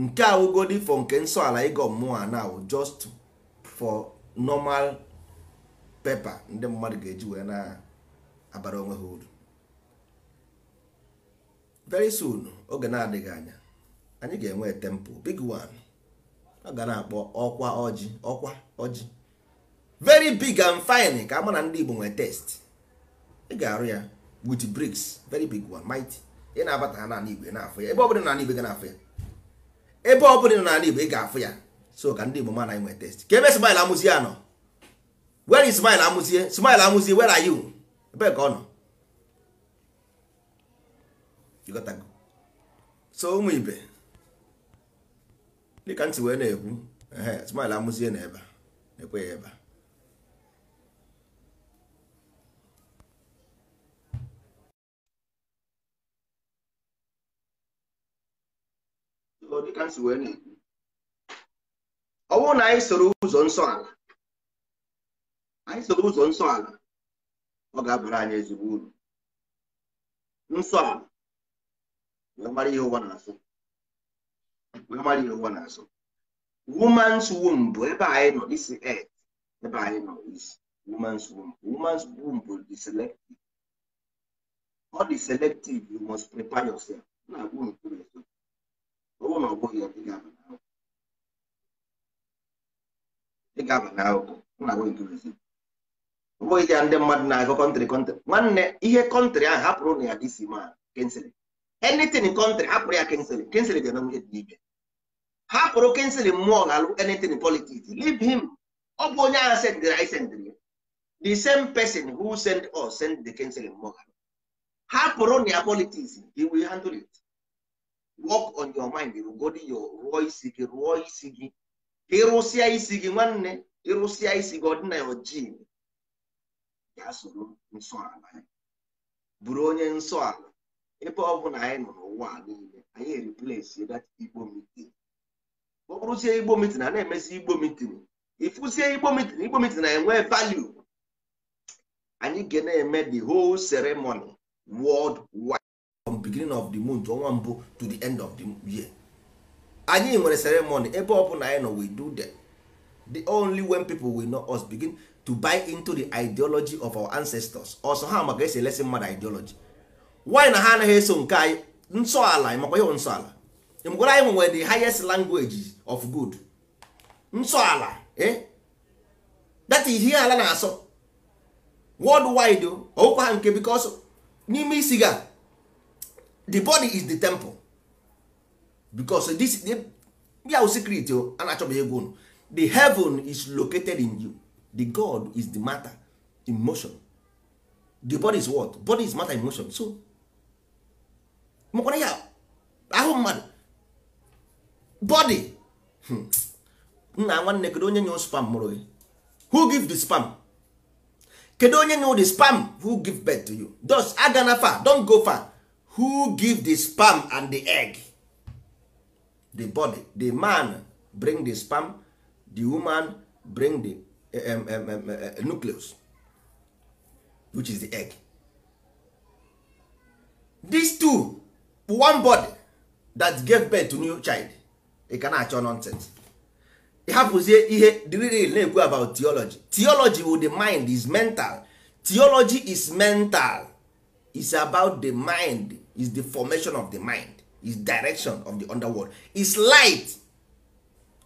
nke awụgodi for nke nsọ ala ịgọ mmụọ a now just for normal pepa ndị mmadụ ga-eji wee na-abara onwe ha uru very soon oge na-adịghị anya anyị ga-enwe tempo big one ọ ga na-akpọ ọkwa ọjị ọkwa ọjị very big and fine ka ama na ndị Igbo nwee test ị ga-arụ ya with bricks very big one mighty ị na-abata ha n'ala Igbo na-afụ ya ebe ọbụla n'ala Igbo ga na-afụ ya ebe ọbụla n'ala Igbo ị ga-afụ ya so ka ndị Igbo ma na anyị nwee test ka ebe smile amụzi ya where is smile amụzie smile amụzie where are you ebe ka ọ nọ ịghọtago so ụmụ ibe dịka ntị wee na-ekwu ehe smile amụzie na ebe na-ekwe ya ebe ọ bụrụ na anyị soro ụzọ nsọ ala anyị so ụzọ nsọ ala ọ ga-abara anyị ezigbo uru nsọ ala wee mara ihe ụwa na-asụ wee mara ihe ụwa na-asụ woman's womb bụ ebe anyị nọ isi et ebe anyị nọ isi woman's womb woman's womb bụ the selective ọ dị selective you must prepare yourself na-agwụ nkwuru ezo ọ bụrụ na ọ bụghị ya dị gaba n'ahụ dị gaba n'ahụ na-agwụ nkwuru ezo bụghị ya ndị mmadụ na-agụ kọntrị kọntrị nwanne ihe kọntrị ahụ hapụrụ na ya dị isi ma kensilin enitin kọntrị hapụrụ ya kensilin kensilin ga-eme nwunye dị ibe hapụrụ kensilin mmụọ ga-alụ enitin politiks leave him ọ bụ onye agha sendịrị anyị sendịrị ya the same person who send us send the kensilin mmụọ ga hapụrụ na ya politiks he will handle it work on your mind rugodi yo rụọ isi gị rụọ isi gị ịrụsịa isi gị nwanne ịrụsịa isi gị ọ dị na ojii ya soro nsọ ala ya bụrụ onye nsọ ala ebe ọ bụla anyị nọ n'ụwa niile anyị eriplesi dat igbo mitin ọ bụrụzie igbo mitin a na-emesi igbo mitin ịfụzie igbo mitin igbo mitin enwe value anyị ga na-eme the whole ceremony world wide from beginning of the month ọnwa mbụ to the end of the year anyị nwere ceremony ebe ọ bụla anyị nọ we do that the only when people will know us begin to buy into the ideology of our ancestors ọsọ ha maka esi elesi mmadụ ideology why na ha anaghị eso nke anyị nsọala makwa ihe nsọala mgwara anyị nwere the highest language of good nsọala eh that is ihe ala na-asọ worldwide ọwụkwa ha nke because n'ime isi ga the body is the temple because this ya secret a na-achọbeghị egwu unu the heaven is located in you the god is the matter in motion the body is what body is matter in motion so makwara ya ahụ mmadụ body hmm. nna nwanne kedu onye nye spam mụrụ gị who give the spam kedu onye nye the spam who give birth to you thus agana far don't go far who give the spam and the egg the body the man bring the spam the woman bring the Um, um, um, uh, uh, nucleus which is the egg these two one body that gave birth to new child ị ka na-achọ nonsense ị hapụzie ihe dril na-ekwu about theology theology with the mind is mental theology is mental is about the mind is the formation of the mind is direction of the underworld is light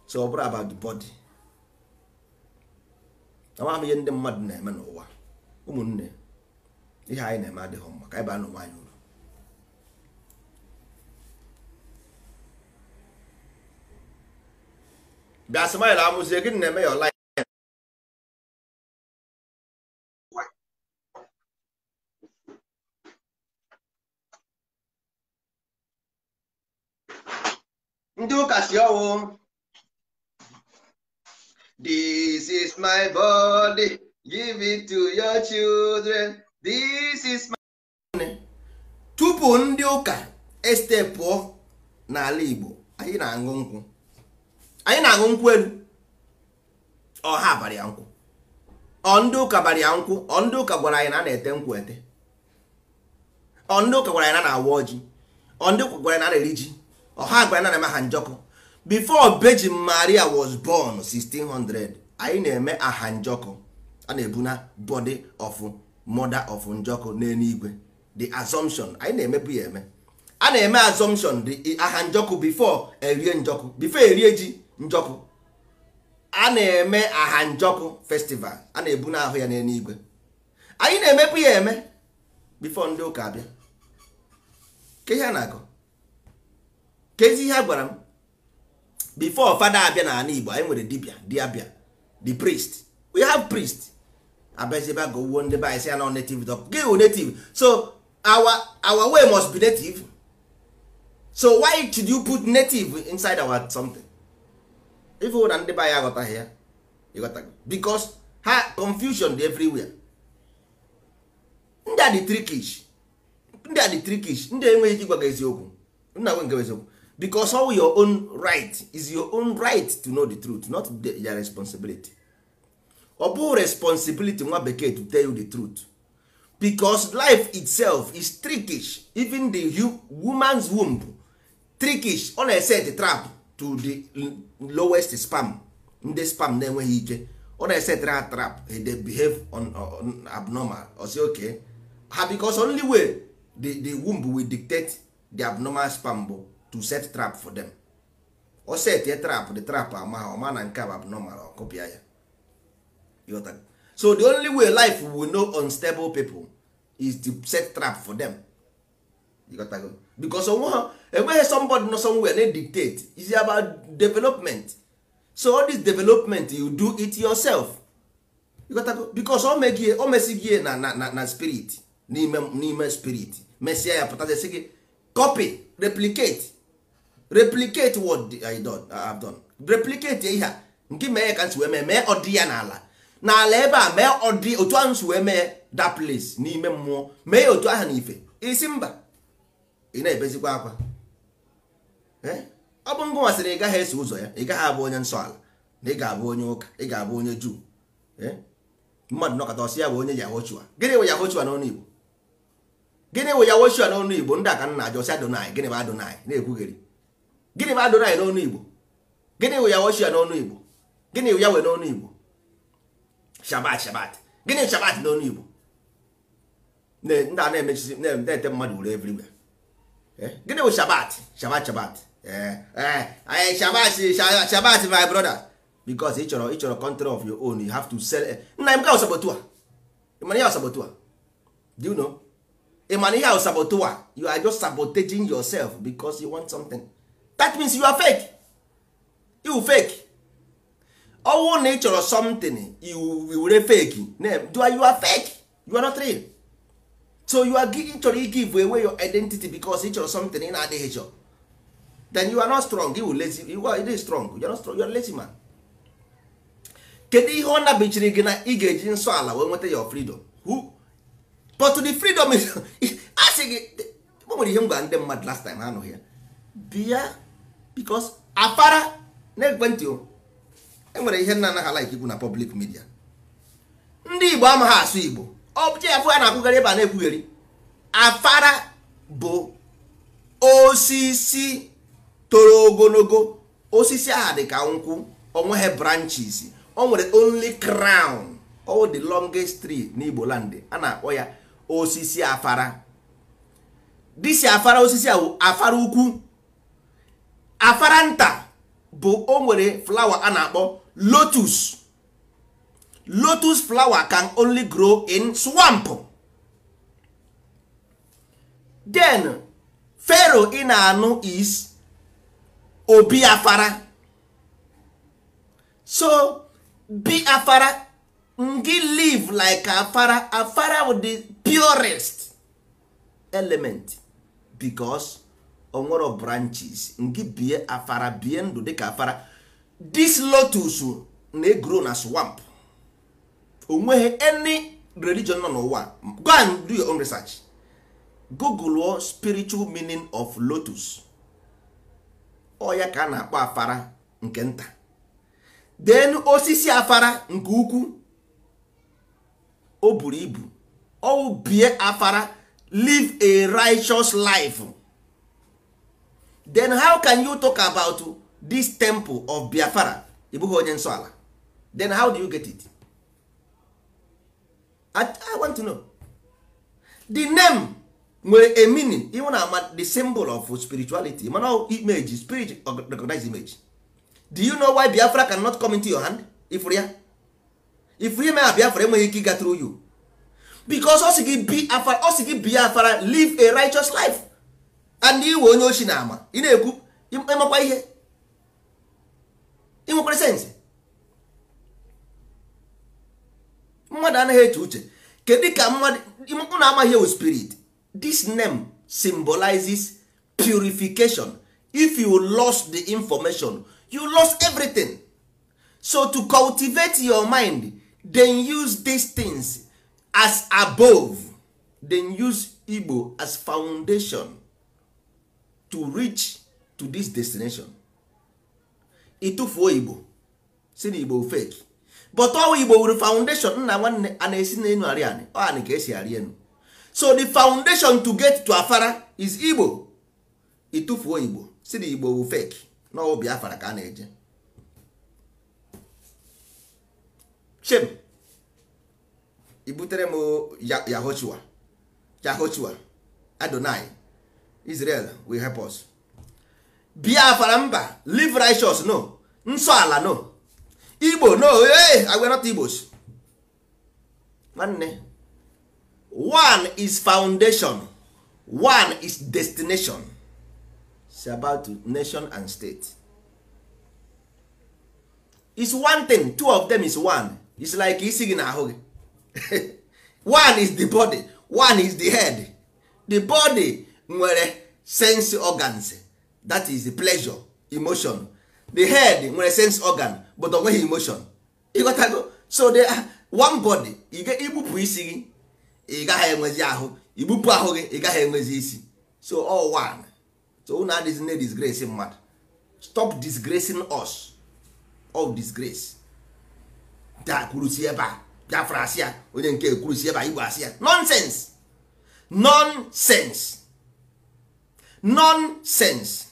so ọ bụrụ about the body amaghị m ihe ndị mmadụ na-eme n'ụwa ụmụnne ihe anyị na-eme adịghị mma ka anyị baa n'ụwa anyị uru bịa smile amụzie gịnị na-eme ya ọla ndị ụka si ọnwụ. This is my body, give it to your children. This is my. Tupu ndị ụka pụọ n'ala Igbo, anyị na-aṅụ nkwụ. Anyị na-aṅụ nkwụ elu. ọhaa ha ya nkwụ. Ọ ndị ụka bari ya nkwụ. Ọ ndị ụka gwara anyị na na-ete nkwụ ete. Ọ ndị ụka gwara anyị na na-awa ọjị. Ọ ndị ụka gwara anyị na a na-eri ji. Ọ gwara anyị na na-eme ha njọkọ. before Virgin Maria was born 1600 anyị na-eme aha njọkụ a na-ebu na body of mother of njọkụ n'eluigwe the assumption anyị na-emebu ya eme a na-eme assumption the aha njọkụ before erie njọkụ before erie ji njọkụ a na-eme aha njọkụ festival a na-ebu na ahụ ya n'eluigwe anyị na-emebu ya eme before ndị ụka abịa ke ihe a na-agụ kezi ihe a gwara m before fada abịa na ala igbo anyị nwere dibia diabia the priest we have priest abịazibe aga owuo ndị be anyị si ya native dog gị wụ native so our our way must be native so why should you put native inside our something ife na ndị be anyị aghọtaghị ya ịghọtaghị because ha confusion dị everywhere ndị a dị trikish ndị a dị trikish ndị enweghị ike ịgwa gị eziokwu nna nwe nke eziokwu because all your own right is your own right to know the truth not their responsibility ọ bụ responsibility nwa bekee to tell you the truth because life itself is trickish even the woman's womb trickish ọ na-eset trap to the lowest spam ndị spam na-enweghị ike ọ na-esetara ha trap eh, they behave on, on abnormal or say ha because only way the, the womb will dictate the abnormal spam bụ to set trap for them o set trap the trap ama ha ọma na nke a bụ abnormal ọkụpịa ya so the only way life will know unstable people is to set trap for them because onwe ha enweghị somebody nọ somewhere na dictate is about development so all this development you do it yourself because o megie o mesigie na na na spirit n'ime n'ime spirit mesịa ya pụtazie sị gị copy replicate replicate what I done, I have done replicate ihe a nke mee ka nsi wee mee mee ọdị ya n'ala n'ala ebe a mee ọdị otu ahụ nsi wee mee that place n'ime mmụọ mee ya otu ahụ n'ife isi mba ị na-ebezikwa akwa ọ bụ ngụ masịrị ị gaghị eso ụzọ ya ị gaghị abụ onye nsọ ala na ị ga-abụ onye ụka ị ga-abụ onye juu mmadụ nọkọta ọsị ya bụ onye yahochua gịnị bụ yahochua n'ọnụ igbo gịnị bụ yahochua n'ọnụ igbo ndị aka nna ajọ ọsị adonai gịnị bụ adonai na-ekwugheri gịnị bụ adonai n'ọnụ igbo gịnị wụ ya woshia n'ọnụ igbo gịnị wụ ya wee n'ọnụ igbo shabat shabat gịnị shabat n'ọnụ igbo ndị a na-emechizi na-ete mmadụ wuru evriwe eh? gịnị bụ shabat shabat shabat shabat eh, eh, shabat my brother because ị chọrọ ị chọrọ control of your own you have to sell nna m ga ọsabotu a ịmana ihe ọsabotu a do you know ịmana ihe ọsabotu a you are just sabotaging yourself because you want something that means you are fake you fake ọnwụ na ị chọrọ something you were fake you are, you are fake you are not real so you are ị chọrọ i give away your identity because ị chọrọ something ị na-adịghị chọ then you are not strong you lazy you are not strong you are not strong you are lazy man kedu ihe ọ nabichiri gị na ị ga-eji nsọ ala wee nweta your freedom who but the freedom is asị (laughs) gị o nwere ihe m gwara ndị mmadụ last time ha anụghị ya bia. because afara na ekwentị enwere ihe nna anaghị ala ikwu na public midia ndị igbo amaghị asụ igbo ọbụcha ya a na-akwụgharị ebe a na-ekwugheri afara bụ osisi toro ogologo osisi aha dị ka nkwụ onweghị branches o nwere only crown all the longest tree n'igbo land a na-akpọ ya osisi afara disi afara osisi ahụ afara ukwu afaranta bụ o nwere flawa a na-akpọ lotus lotus flawa can only grow in swamp den fero ị na-anụ is obi afara so bi afara ngị live like afara afara with the purest element because onwere branches nke bie afara bie ndụ dịka afara this lotus na-egro na swamp onweghị any religion nọ n'ụwa go and do your own research google spiritual meaning of lotus ọ ya ka a na-akpọ afara nke nta then osisi afara nke ukwuu o buru ibu ọ bie afara live a righteous life then how can you talk about this temple of biafra ịbụghị onye nsọ ala then how do you get it I, i want to know the name nwere a meaning even ama the symbol of spirituality mana image spirit recognize image do you know why biafra cannot come into your hand if ya ifụrụ ya a biafra enweghị ike ịga through you because ọ sị gị biafra live a righteous life and iwe onye ochi na-ama ị na-ekwu ịmakwa ihe ịnwekwara sensị mmadụ anaghị eche uche kedu ka mmadụ na-amaghị ewu spirit this name symbolizes purification if you lost the information you lost everything so to cultivate your mind then use these things as above then use Igbo as foundation to reach to this destination ịtụfuo igbo si na igbo fake but ọwụ igbo wuru foundation nna nwanne a na-esi n'elu arị anị ọanị ka esi arị enu so the foundation to get to afara is igbo ịtụfuo igbo si na igbo wu fake na ọwụ biafra ka a na-eje shem ibutere m yahochua yahochua adonai Israel will help us. Biafra mba live righteous no nsọ ala no Igbo no hey, I not Igbos. Nwanne one is foundation one is destination It's about nation and state. It's one thing two of them is one It's like isi gị na ahụ gị (laughs) one is the body one is the head the body nwere sense organs that is the pleasure emotion the head nwere sense organ but ọ nweghị emotion ịghọtago so they are ah, one body igbupụ isi gị ị gaghị enwezi ahụ igbupụ ahụ gị ị gaghị enwezi isi so all one so unu adịghị na disgrace mmadụ stop disgracing us all disgrace da kwurusi ebe a biafra asị ya onye nke kwurusi ebe a igbo asị ya nonsense nonsense nonsense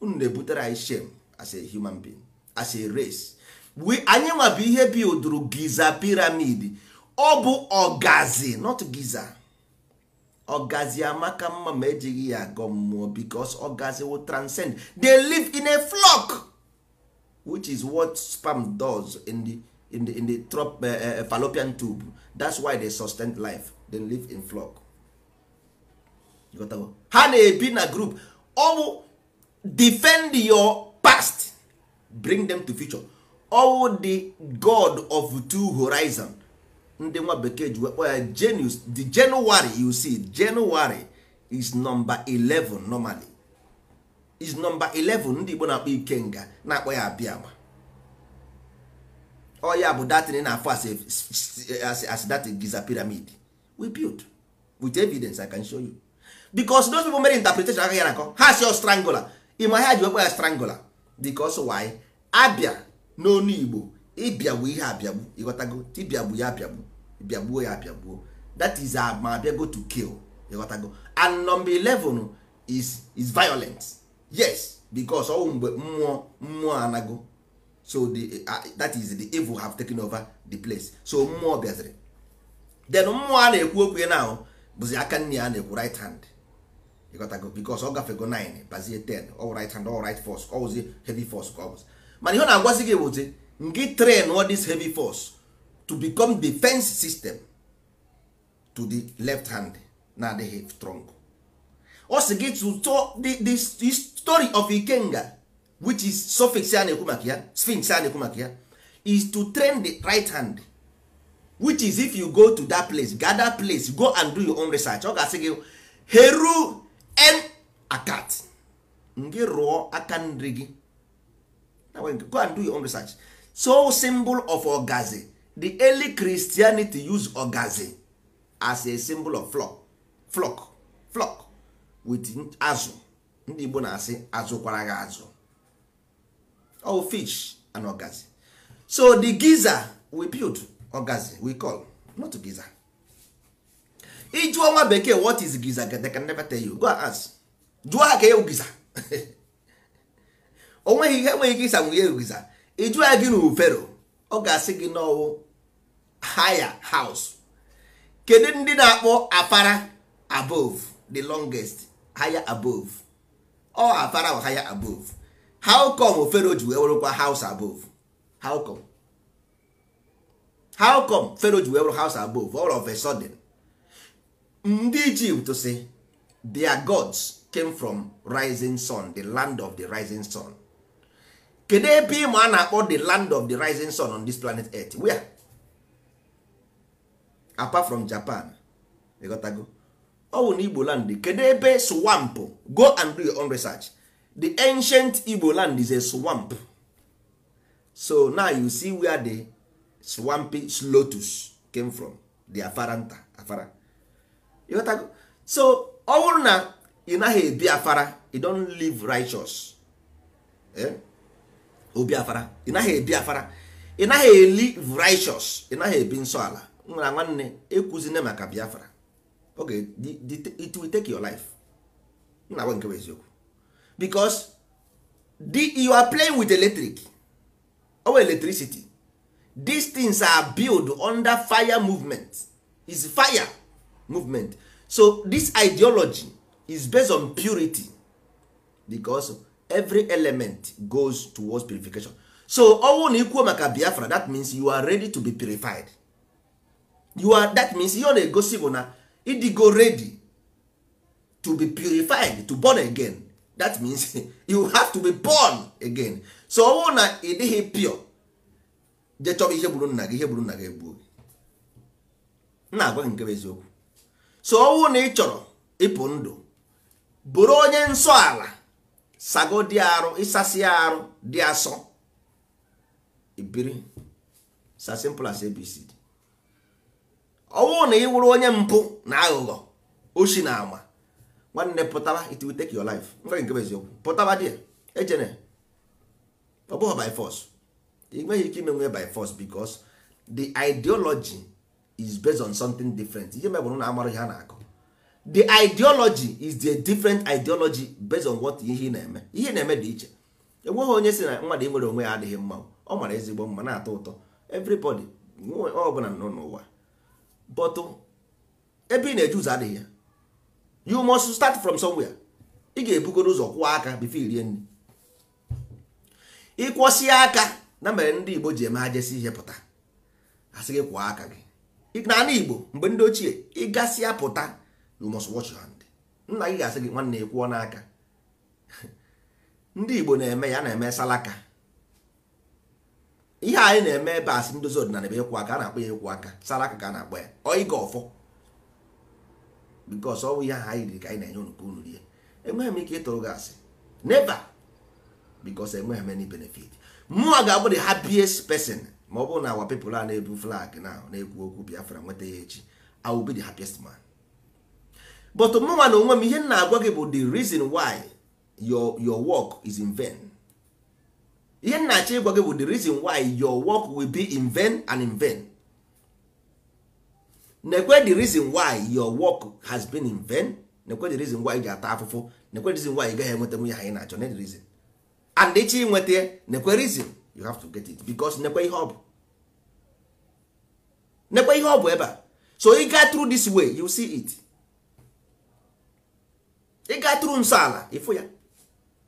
unu na-ebutere anyị shame as a human being as a race we anyị nwa bụ ihe bilduru giza piramid ọ bụ ọgazi not giza ọgazi amaka mma ma ejighị ya agọ mmụọ because ọgazi will transcend they live in a flock which is what sperm does in the, in the, in the trop, uh, fallopian tube that's why they sustain life they live in flock ha na-ebi na group ọwụ defend your past bring them to future ọwụ the god of two horizon ndị nwa bekee ji wekpọ ya genius the january you see january is number 11 normally is number 11 ndị igbo na-akpọ ikenga na-akpọ ya abịama ọ ya bụ datin na-afọ as that giza pyramid we build with evidence i can show you. because dos people mere interpretation agaghị anakọ ha si strangular ịma ha ji wekwa ya strangular because why abịa n'onu igbo ịbịagbu ihe abịagbu ịghọtago tibịagbu ya abịagbu bịagbuo ya abịagbuo that is ma bịago to kill ịghọtago and number 11 is is violent yes because ọnwụ mgbe mmụọ mmụọ anago so the uh, that is the evil have taken over the place so mmụọ bịaziri then mmụọ a na-ekwu okwu ya na bụzi aka nne ya na-ekwu right hand ịghọtago because ọ gafego 9 bazie 10 all right hand all right force ọwụzi heavy force ka ọ bụzi mana ihe ọ na-agwazi gị bụzi ngị train all dis heavy force to become defense system to the left hand na-adịghị strong ọ to gị to the story of ikenga which is suffix a na-ekwu maka ya sphinx a na-ekwu maka ya is to train the right hand which is if you go to that place gather place go and do your own research ọ ga-asị gị heru end akat gị rụọ aka nri gị go and do your own research so symbol of ọgazị the early christianity use ọgazị as a symbol of flock flock flock with azụ ndị igbo na-asị azụkwara gị azụ oh fish and ọgazị so the giza we build ọgazị we call not giza ijụọ nwa bekee what is giza they can never tell you go ask jụọ ha ka ewu giza (laughs) o nweghị ihe enweghị ike ịsa nwunye e giza ijụọ ya gị na ufero ọ ga-asị gị n'ọwụ haya house kedu ndị na-akpọ apara above the longest haya above ọ apara or higher above how come ofero ji wee werekwa house above how come how come fero ji wee house above all of a sudden ndị ijipt si their gods came from rising sun the land of the rising sun kedu ebe ịma a na-akpọ the land of the rising sun on this planet earth where apart from japan ịghọtago ọ bụ na igbo land kedu ebe swamp go and do your own research the ancient igbo land is a swamp so now you see where the swampy lotus came from the afaranta afara so ọ bụrụ na ị naghị ebi afara you don't live righteous eh? obi afara ị naghị ebi afara ị naghị eli righteous ị naghị ebi nsọ ala nwere nwanne ekwuzine maka biafra oge it will take your life nna gwa nke bụ eziokwu because you are playing with electric or electricity these things are built under fire movement is fire movement so this ideology is based on purity because every element goes towards purification so ọnwụ na ikwuo maka biafra that means you are ready to be purified you are that means ihe ọ na-egosi bụ na ịdịgo ready to be purified to born again that means (laughs) you have to be born again so ọnwụ na ị dịghị pure je ihe gburu nna gị ihe gburu nna gị egbuo na agwa gị nke bụ eziokwu so ọnwụ na ị chọrọ ịpụ ndụ bụrụ onye nsọ ala sago dị arụ ịsasị arụ dị asọ ibiri sa simple as abc ọnwụ na ị wụrụ onye mpụ na aghụghọ oshi na ama nwanne pụtara it will take your life nwere nke eziokwu pụtara dị ejene ọ bụghị by force ị nweghị ike ime nwe by force because the ideology is based on something different ihe mebụrụ na amara ihe a na-akọ the ideology is the different ideology based on what ihe na-eme ihe na-eme dị iche enweghị onye si na mmadụ nwere onwe ya adịghị mma ọ mara ezigbo mma na-atọ ụtọ everybody ọbụla nọ n'ụwa but ebe ị na-eje ụzọ adịghị ya you must start from somewhere ị ga-ebugoro ụzọ kwụọ aka bifo irie nri ịkwọsie aka na mere ndị Igbo ji eme ha jesi ihe pụta asị gị kwụọ aka gị n'ala Igbo mgbe ndị ochie ịgasịa pụta you must wash your hand nna gị ga-asị gị nwanne ekwuo n'aka ndị Igbo na-eme ya na-eme salaka ihe anyị na-eme ebe asị ndozi ọdịnala ebe ekwu aka a na-akpọ ya ekwu aka salaka ka a na-akpọ ya oiga ọfọ ọ ọnwụ ihe ahụ anyị riri ka anyị na-enye unu ka unu rie enweghị m ike ịtụrụ gị asị never because enweghị m any benefit mụnwa ga-abụ the happiest person ma ọ bụrụ na awa pepụl a na-ebu flag na na-ekwu okwu biafra nweta ya echi I will be the happiest man but mụnwa na onwe m ihe m na-agwa gị bụ the reason why your your work is in vain ihe m na-achọ ịgwa gị bụ the reason why your work will be in vain and in vain nekwe the reason why your work has been in vain nekwe the reason why ị ji ata afụfụ nekwe the reason why ị gaghị enweta nwunye ha ị na-achọ na the reason and ị inweta nekwe reason you have to get it because nekwe ihe ọ bụ nekwe ihe ọ bụ ebe a so ị gaa tru this way you see it ị gaa tru nsọ ala ịfụ ya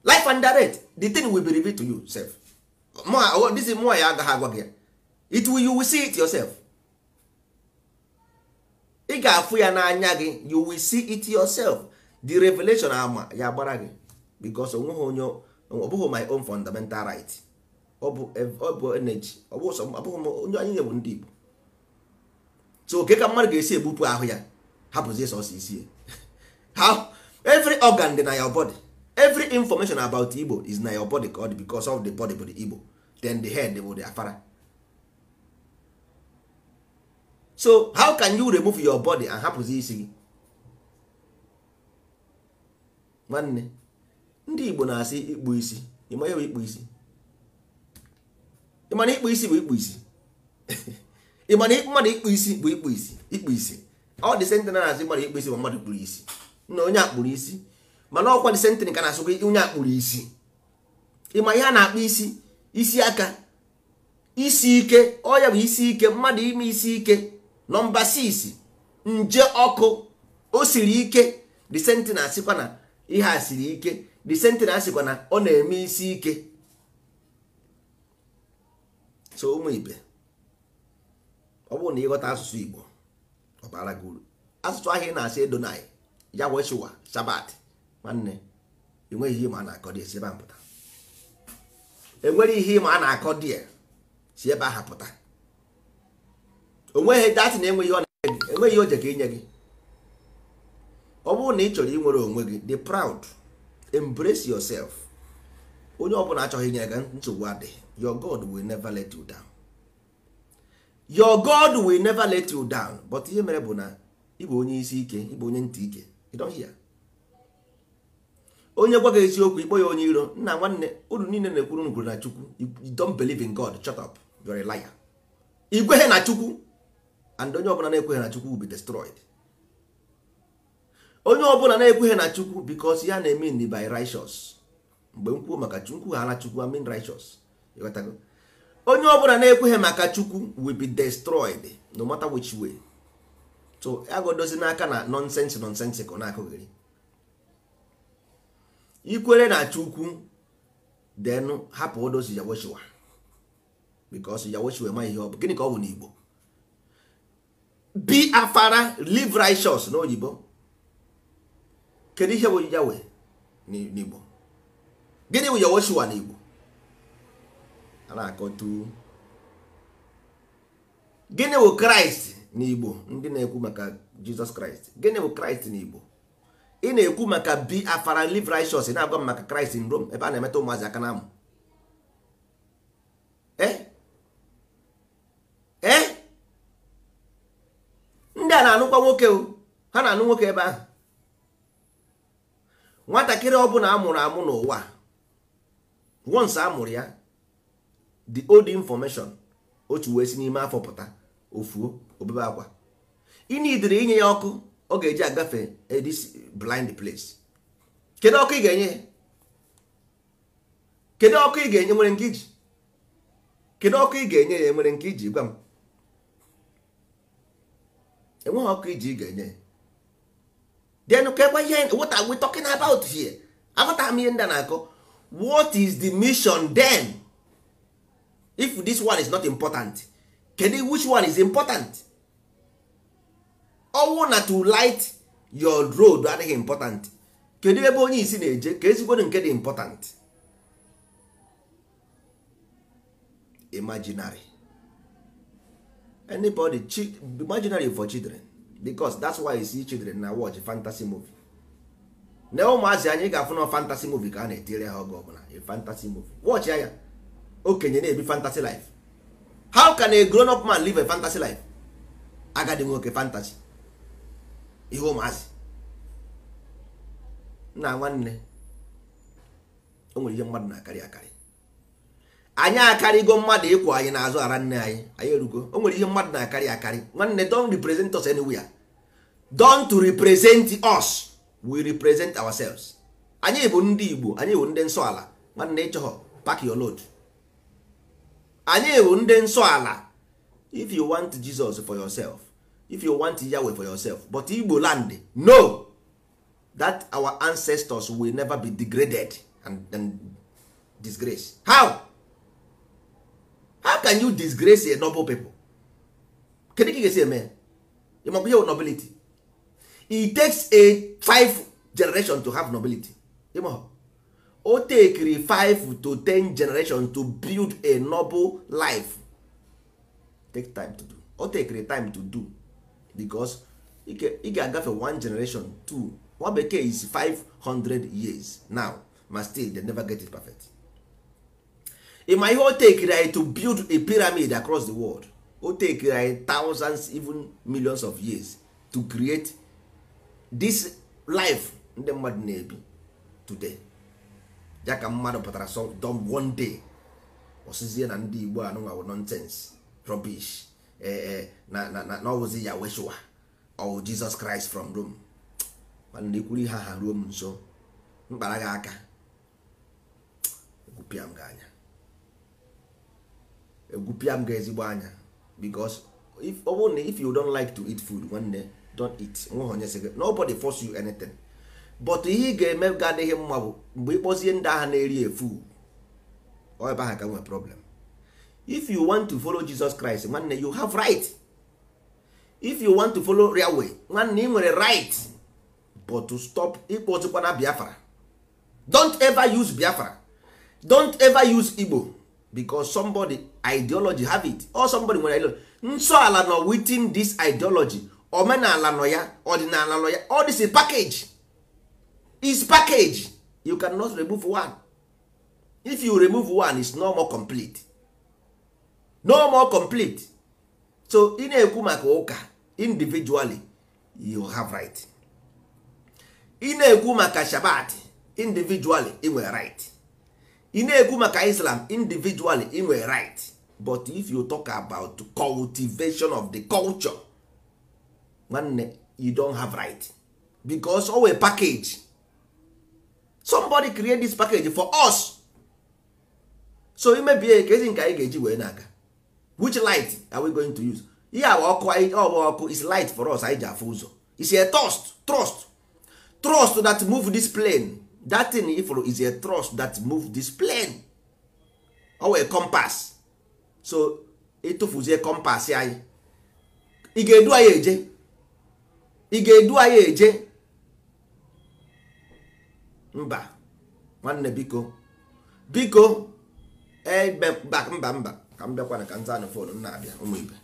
life and direct the thing will be revealed to you self this is more ya agaghị agwa gị ya it will you will see it yourself ị ga-afụ ya n'anya gị you will see it yourself the revelation ama ya gbara gị because onweghị onye ọ bụghị my own fundamental right ọ bụ energy onye anyị nyewu ndị Igbo so oke ka mmadụ ga-esi ebupụ ahụ ya hapụzie sọsọ isi ya every organ dị na your body every information about Igbo is na your body ka ọ because of the body bụ the Igbo then the head bụ the afara so how can you remove your body and hapụzi isi gị nwanne ndị Igbo na-asị ikpu isi ịma ya ikpu isi ịmana ikpu isi bụ ikpu isi (laughs) ịmana mmadụ ikpu isi bụ ikpu isi ikpu isi ọ dị sentịn na-azụ mmadụ ikpu isi bụ mmadụ kpuru isi na onye akpụrụ isi mana ọkwa dị sentịn ka na-asụkwa onye akpụrụ isi ịma ihe a na-akpụ isi isi aka isi ike ọya bụ isi ike mmadụ ime isi ike nọmba 6 nje ọkụ o siri ike dị na-asịkwa na ihe a siri ike dị na-asịkwa na ọ na-eme isi ike so ụmụ ibe ọ bụrụ na ịghọta asụsụ igbo ọ bara gị uru asụsụ ahịa ị na-asị edonai ya wechụwa shabat nwanne enweghị ihe ma a na-akọ dị si ebe a pụta enwere ihe ma a na-akọ dị si ebe ahụ pụta onweghị datị na enweghị ọ na-enye gị enweghị oje ka inye gị ọ bụrụ na ị chọrọ inwere onwe gị dị proud embrace yourself onye ọbụla achọghị inye gị nsogbu adị your god will never let you down your god will never let you down but ihe mere bụ na ịbụ onye isi ike ịbụ onye ntị ike you don't hear onye gwa gị eziokwu ịkpọ ya onye iro nna nwanne unu niile na-ekwuru ngwuru na chukwu you don't believe in god shut up you're a liar igweghị na chukwu and onye ọbụla na-ekweghị na chukwu will be destroyed onye ọbụla na-ekweghị na chukwu because ya na-eme by righteous mgbe m kwuo maka chukwu ala chukwu amin righteous ịghọtago onye ọbụla na-ekweghị maka chukwu will be destroyed no matter which way so agodozi n'aka na nonsense nonsense ka ọ na-akụghịrị ikwere na chukwu then hapụ odozi yawochiwa because yawochiwa ema ihe ọ bụ gịnị ka ọ bụ n'Igbo be afara live righteous n'oyibo kedu ihe bụ yawe n'Igbo gịnị bụ Yehoshua n'Igbo a na-akọtu gịnị bụ kraịst Igbo ndị na-ekwu maka jizọs kraịst gịnị bụ kraịst Igbo ị na-ekwu maka bi afara live righteous na-agwa m maka kraịst in Rome ebe a na-emeta ụmụazị aka na-amụ e? e? ndị a na-anụkwa nwoke ha na-anụ nwoke ebe ahụ nwatakịrị ọ bụla amụrụ amụ n'ụwa once a mụrụ ya the old information otu wee si n'ime afọ pụta ofuo obebe akwa ị nidiri inye ya ọkụ ọ ga-eji agafe this blind place kedu ọkụ ị ga-enye kedu ọkụ ị ga-enye nwere nke iji kedu ọkụ ị ga-enye ya nwere nke iji gwa m enweghị ọkụ iji ị ga-enye ya then kekwa ihe what are we talking about here aghọtara m ihe ndị a na akụ what is the mission then if this one is not important kedu which one is important ọnwụ na to light your road adịghị important kedu ebe onye isi na-eje ka ezigbodo nke dị important imaginary anybody imaginary for children bicos that's why you see children na watch fantasy movie na ụmụazị anyị ga-afụ na fantasy movie ka a na-etiri ha oge ọbụla fantasy movie watch ya okenye na-ebi fantasy life how can a grown up man live a fantasy life agadi nwoke fantasy ihe ụmụazị nna nwanne o nwere ihe mmadụ na-akarị akarị anyị akarịgo mmadụ ịkwụ anyị n'azụ ara nne anyị anyị erugo o nwere ihe mmadụ na-akarị akarị nwanne don't represent us anywhere don't represent us we represent ourselves anyị bụ ndị igbo anyị bụ ndị nsọ ala nwanne ịchọghọ pack your load anyị bụ ndị nsọ ala if you want jesus for yourself if you want yahweh for yourself but igbo land no that our ancestors will never be degraded and, and disgrace how how can you disgrace a noble people kedu ka ị ga-esi eme ya ihe nobility it takes a five generation to have nobility o tekiri 5 to 10 generation to build a noble life take time to do o tekiri time to do because ị ga-agafe one generation two nwa bekee is 500 years now ma still they never get it perfect ịma ihe o tekiri anyị to build a pyramid across the world o tekiri anyị thousands even millions of years to create this life ndị mmadụ na-ebi today ya ka mmadụ pụtara so don one day osizie na ndị igbo anụnwawo nonsense rubbish ee eh, eh, na na ọwụzi ya weshua ọwụ oh, jizọs kraịst from rome mana na ihe ha ha ruo m nso mkpara gị aka egwupịa m gị anya egwupịa m gị ezigbo anya because ọ bụrụ na if you don't like to eat food nwanne don't eat nweghị onye sị nobody force you anything but ihe ị ga-eme ga adịghị mma bụ mgbe ịkpọzie ndị agha na-eri efu ọ ebe aha ka nwee problem if you want to follow Jesus Christ nwanne you have right if you want to follow real way nwanne ị nwere right but to stop ịkpọtụkwana Biafra don't ever use Biafra don't ever use Igbo because somebody ideology have it or somebody nwere ideology nsọ ala nọ within this ideology omenala nọ ya ọdịnala nọ ya all package is package you can not remove one if you remove one is no more complete no more complete so ị na-ekwu maka ụka individually you have right ị na-ekwu maka shabat individually ị were right ị na-ekwu maka islam individually ị were right but if you talk about cultivation of the culture nwanne you don't have right because owe package somebody create this package for us so imebie ka ezi nke anyị ga-eji wee na-aga which light are we going to use ihe awa ọkụ ọgba ọkụ is light for us anyị ji afụ ụzọ is a trust trust trust that move this plane that thing ifụrụ is a trust that move this plane owe a compass so ịtụfuzie compass anyị ị ga-edu anyị eje ị ga-edu anyị eje mba nwanne biko biko eh, mba mba ka m bịakwana ka nza anụ fon m na-abịa ụmụibe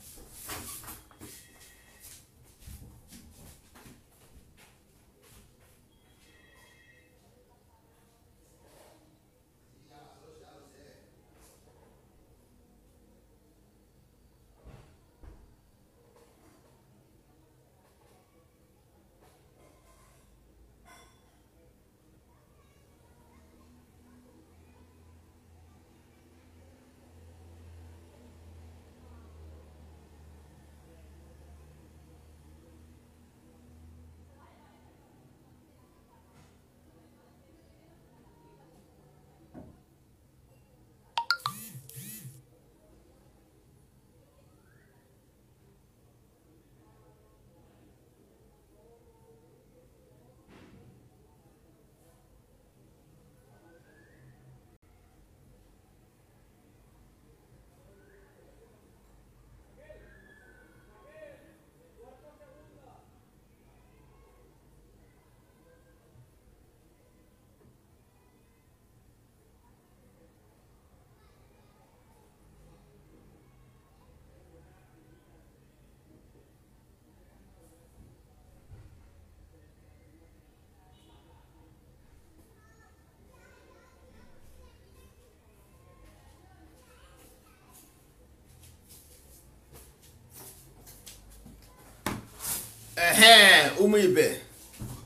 ee ụmụ ibe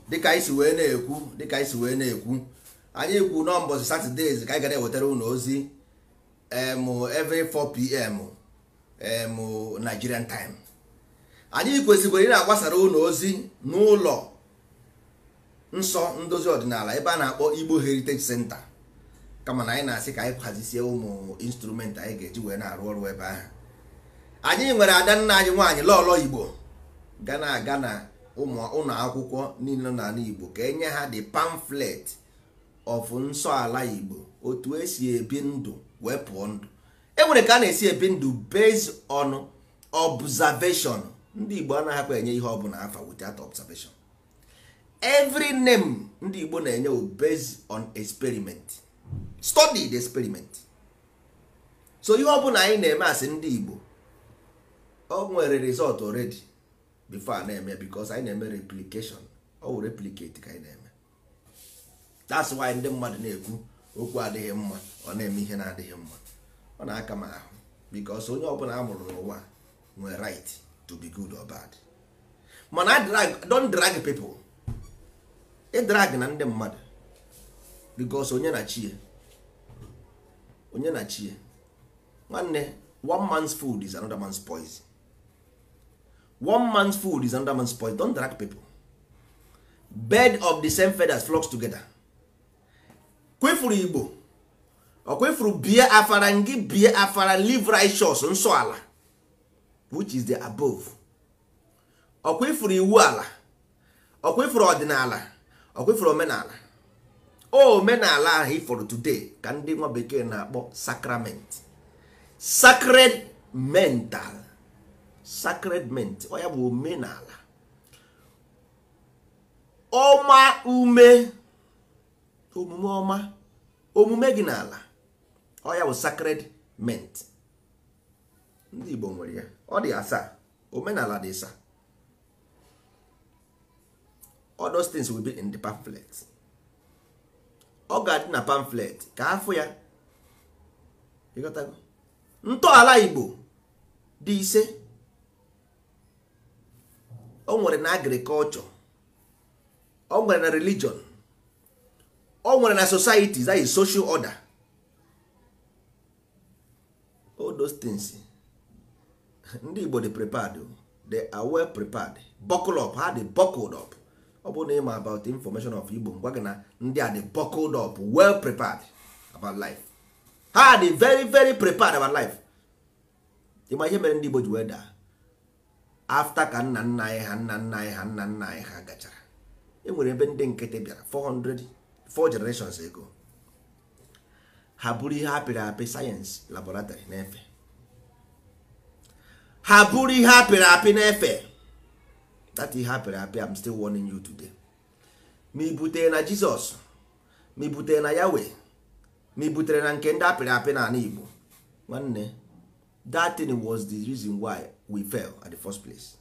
dịka anyị si wee na-ekwu dịka anyị si wee na-ekwu anyị kwu n'ụbọchị satọdee ka anyị gara ewetara unu ozi every 4pm em Nigerian time anyị kwesịkwara ị na-agbasara ụlọ ozi n'ụlọ nsọ ndozi ọdịnala ebe a na-akpọ Igbo Heritage Center kama na anyị na-asị ka anyị kwazisie ụmụ instrument anyị ga-eji wee na-arụ ọrụ ebe ahụ anyị nwere ada nna anyị nwaanyị lọlọ Igbo ga na-aga na ụlọ akwụkwọ niile n'ala Igbo ka enye ha the pamphlet of nsọala Igbo otu esi ebi ndụ wee pụọ ndụ enwere ka a na-esi ebi ndụ based on observation ndị Igbo anaghị akpa enye ihe ọbụla afa without observation every name ndị Igbo na-enye based on experiment study the experiment so ihe ọbụla anyị na-eme asị ndị Igbo o nwere result already bifo a na-eme bikos anyị na-eme replikeshon ọwụ wụ ka anyị na-eme that's why ndị mmadụ na-ekwu okwu adịghị mma ọ na-eme ihe na-adịghị mma ọ na-aka m ahụ bikos onye ọbụla a mụrụ n'ụwa nwere right to be good or bad mana don drag people ịdrag na ndị mmadụ bikos onye na chie onye na chie nwanne one man's food is another man's poison one man's food is another man's poison don't drag people bird of the same feathers flocks together kwefuru igbo ọ bie afara ngị bie afara live righteous nsọ ala which is the above ọ iwu ala ọ ọdịnala ọ omenala oh, omenala ahụ ifọrọ today ka ndị nwa bekee na-akpọ sacrament sacred mental sacredment ọ ya bụ omenala ọma ume omume ọma omume gị n'ala ọ ya bụ sacredment ndị Igbo nwere ya ọ dị asaa omenala dị asaa all things will be in the pamphlet ọ ga-adị na pamphlet ka afọ ya ịghọtago ntọala Igbo dị ise o nwere na agrikọlchọ o nwere na religion o nwere na society that is social order all those things (laughs) ndị Igbo dị prepared oh. they are well prepared buckle up ha dị buckled up ọ bụrụ na ịma about information of Igbo ngwa gị na ndị a dị buckled up well prepared about life ha dị very very prepared about life ịma ihe mere ndị Igbo ji wee daa afta ka nna nna anyị ha nna nna anyị ha nna nna anyị ha gachara enwere ebe ndị nkịtị bịara 400 4 generations ago ha bụrụ ihe apịrị apị sayensị laboratory na-efe ha bụrụ ihe apịrị apị na-efe that ihe apịrị apị am still warning you today ma i butere na Jizọs ma i butere na Yahweh ma i butere na nke ndị apịrị apị na Igbo nwanne that was the reason why we fail at the first place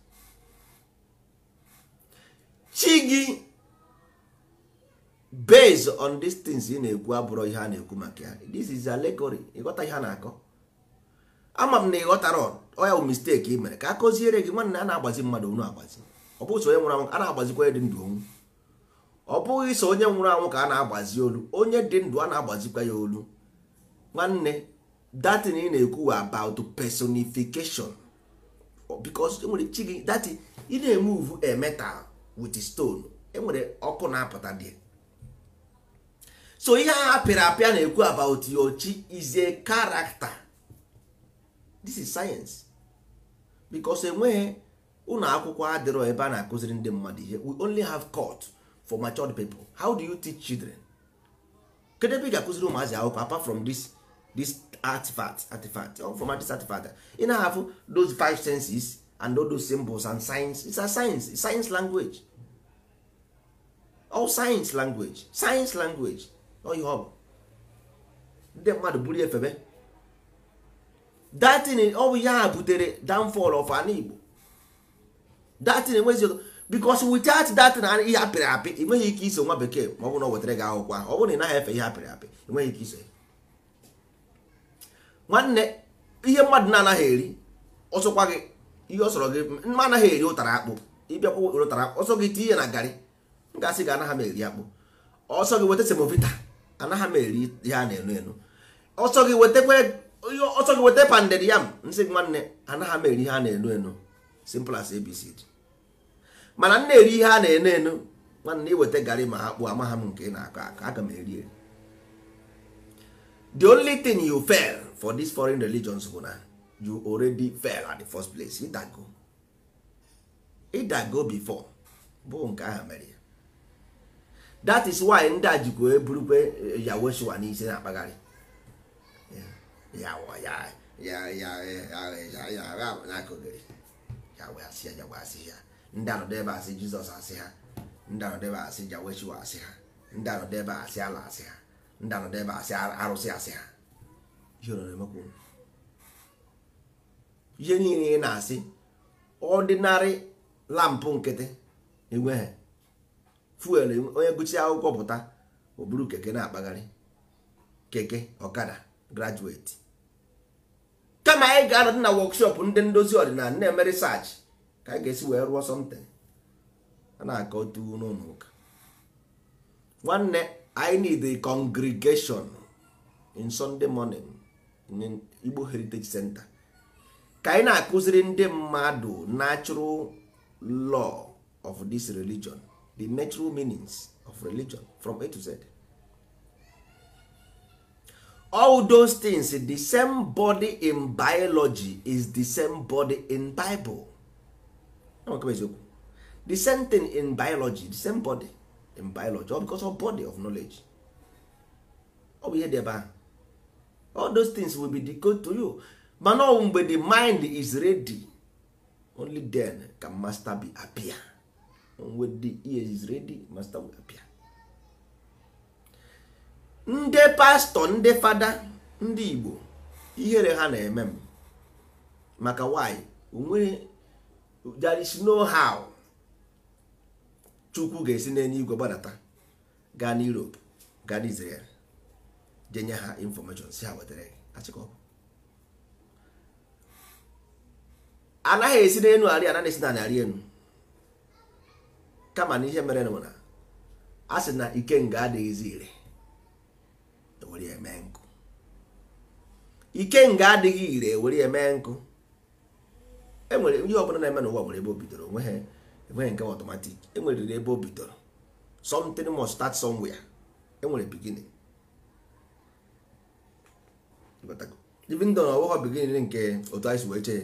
chi gị based on these things ị na-ekwu abụrụ ihe a na-ekwu maka ya this is allegory ịghọta ihe a na-akọ ama m na ịghọtara ọya bụ mistake ị mere ka a kụziere gị nwanne a na-agbazi mmadụ onu agbazi ọ bụghị onye nwụrụ anwụ a na-agbazikwa ya dị ndụ onwu ọ bụghị so onye nwụrụ anwụ ka a na-agbazi olu onye dị ndụ a na-agbazikwa ya olu nwanne datin ị na-ekwu about personification because enwere chi gị that ị na-emuvu a metal with stone enwere ọkụ na-apụta dị so ihe a pịrị apịa na-ekwu about your chi is a character this is science because enweghị ụlọ akwụkwọ adịrọ ebe a na-akụziri ndị mmadụ ihe we only have court for matured people how do you teach children kedu ebe ị ga-akụziri ụmụazị akwụkwọ apart from this this artifact artifact informatics artifact ị na-ahafụ those five senses and all those symbols and science it's a science it's science language all science language science language ọ ihe ọ ndị mmadụ buru efebe datin ọ bụ ya butere downfall of an Igbo datin enwezi ụtọ because without datin ihe apịrị apị enweghị ike iso nwa bekee ma ọ bụ na ọ wetara gị akwụkwọ ọ bụrụ na ị naghị efe ihe apịrị apị enweghị ike iso ya nwanne ihe mmadụ na-anaghị eri ọsọkwa gị ihe ọsọrọ gị mma anaghị eri ụtara akpụ ịbịakwa ụtara akpụ ọsọ gị tinye ihe na garị m gị anaghị m eri akpụ ọsọ gị weta semovita anaghị m eri ihe a na-enu enu ọsọ gị weta ọsọ gị weta panded yam nsị gị nwanne anaghị m eri ihe a na-enu enu simple as abc mana m na-eri ihe a na-enu enu nwanne iweta garị ma akpụ amagha m nke ị na-akọ aka aga m eri eri the only thing you fail for this foreign religions bụ na you already fell at the first place ịdago ịdago before bụ nke ahụ mere ya that is why ndị a jikwa eburukwe yawoshua n'isi na-akpagharị ndị anọdụ ebe asị jizọs asị ha ndị anọdụ asị jaweshua asị ha ndị anọdụ asị ala asị ha ndị anọdụ asị arụsị asị ha ihe niile ị na-asị ọdịnarị lampụ nkịtị enweghị fuel onye gụchi akwụkwọ pụta oburu keke na-akpagharị keke ọkada graduate kama anyị ga-anọdụ na workshop ndị ndozi ọdịnala na-eme ka anyị ga-esi wee rụọ something a na aka otu n'ụlọ nwanne I need a congregation in Sunday morning igbo heritage center ka anyị na-akụziri ndị mmadụ natural law of this religion the natural meanings of religion from a to z all those things the same body in biology is the same body in bible the same thing in biology the same body in biology all because of body of knowledge ọ bụ ihe dị ebe ahụ all those things will be decoded to you mana ọ mgbe the mind is ready only then can master be appear when the ear is ready master will appear ndị pastọ ndị fada ndị igbo ihere ha na-eme m maka why onwere there is no how chukwu ga-esi n'enye igwe gbadata gaa n'europe gaa n'israel je nye ha infọmeshọn si ha wetara gị anaghị esi n'elu arị anaghị esi na arị elu kama na ihe mere nụ na a sị na ikenga adịghịzi ire ewere ya mee nkụ nga adịghị ire ewere ya mee nkụ enwere ihe ọbụla na-eme na n'ụwa nwere ebe o bidoro enweghị e nke ọtọmatik enweriri ebe o bidoro something must start somewhere enwere beginning ibindụ na ọwụghọ bigin nke otu anyị si wee chee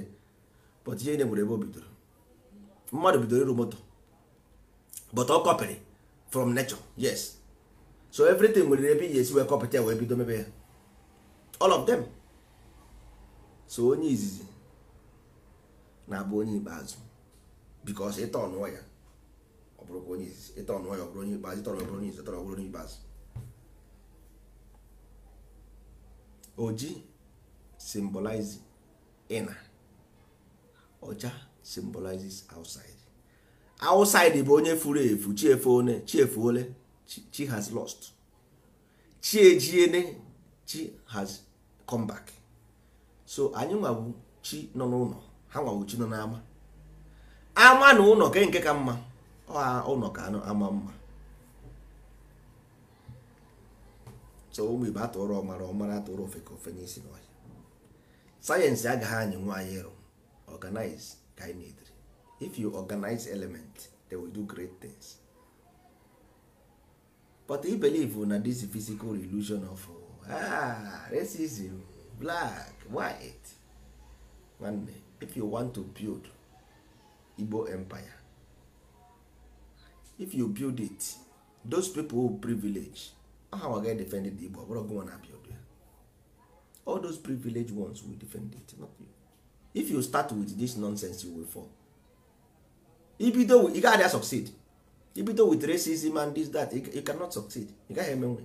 but ihe nyebụrụ ebe o bidoro mmadụ bidoro iru moto but ọ kọpịrị from nature yes so everything nwere ebe iji esi wee kọpịta wee bido mebe ya all of them so onye izizi na-abụ onye ikpeazụ because ịtọ ọnụọ ya ọ bụrụkwa onye izizi ịtọ ọnụọ ya ọ bụrụ onye ikpeazụ ịtọrọ ọ bụrụ onye izizi ọ bụrụ onye ikpeazụ oji symbolizes inner ọcha symbolizes outside outside bụ onye furu efu chiefuone chiefuole chi has lost chi ejiene chi has come back so anyị nwabụ chi nọ n'ụlọ ha nwabụ chi nọ n'ama ama na ụlọ ke nke ka mma ụlọ ka ama mma so ụmụ igbo atụrụ ọmara ọmara atụrụ ofe ka ofe n'isi n'ọhịa sayensị agaghị anyị nwa anyị ịrụ organize ka anyị na if you organize element they will do great things but i believe na this physical illusion of ah, racism black white nwanne if you want to build Igbo empire if you build it those people who privilege aha nwa ga defend the Igbo ọbụrụ gụnwa na-abịa obi all those privileged ones will defend it not you if you start with this nonsense you will fall ibido ị gaghị a succeed ibido with racism and this that you cannot succeed ị gaghị emenwe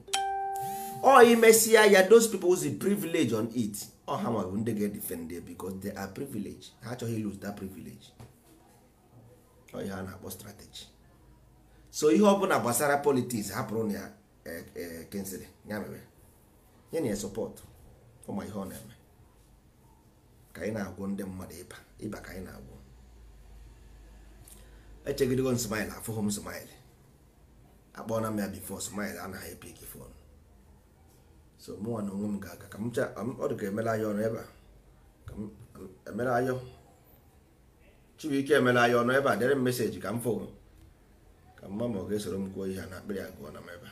ọ imesia ya those people who see privilege on it ọ ha nwa bụ ndị ga-edefend because they are privileged ha achọghị lose that privilege ọ ihe a na-akpọ strategy so ihe ọ na gbasara politics hapụrụ na ya Kingsley ya mere nye na ya sọpọtụ ụmụ ihe ọ na-eme ka anyị na agwụ ndị mmadụ ịba ịba ka anyị na-agwọ echegidego m smile afụghị m smile akpọọ na m ya bifo smile anaghị epik fon so mụnwa na onwe m ga-aga ka m cha ọ dị ka emela anya ọnụ ebe a ka m emela anya Chibuike emela anya ọnụ ebe a dere m meseji ka m fụ ka mma ma ọ ga-esoro m kwuo ihe a na akpịrị agụọ na m ebe a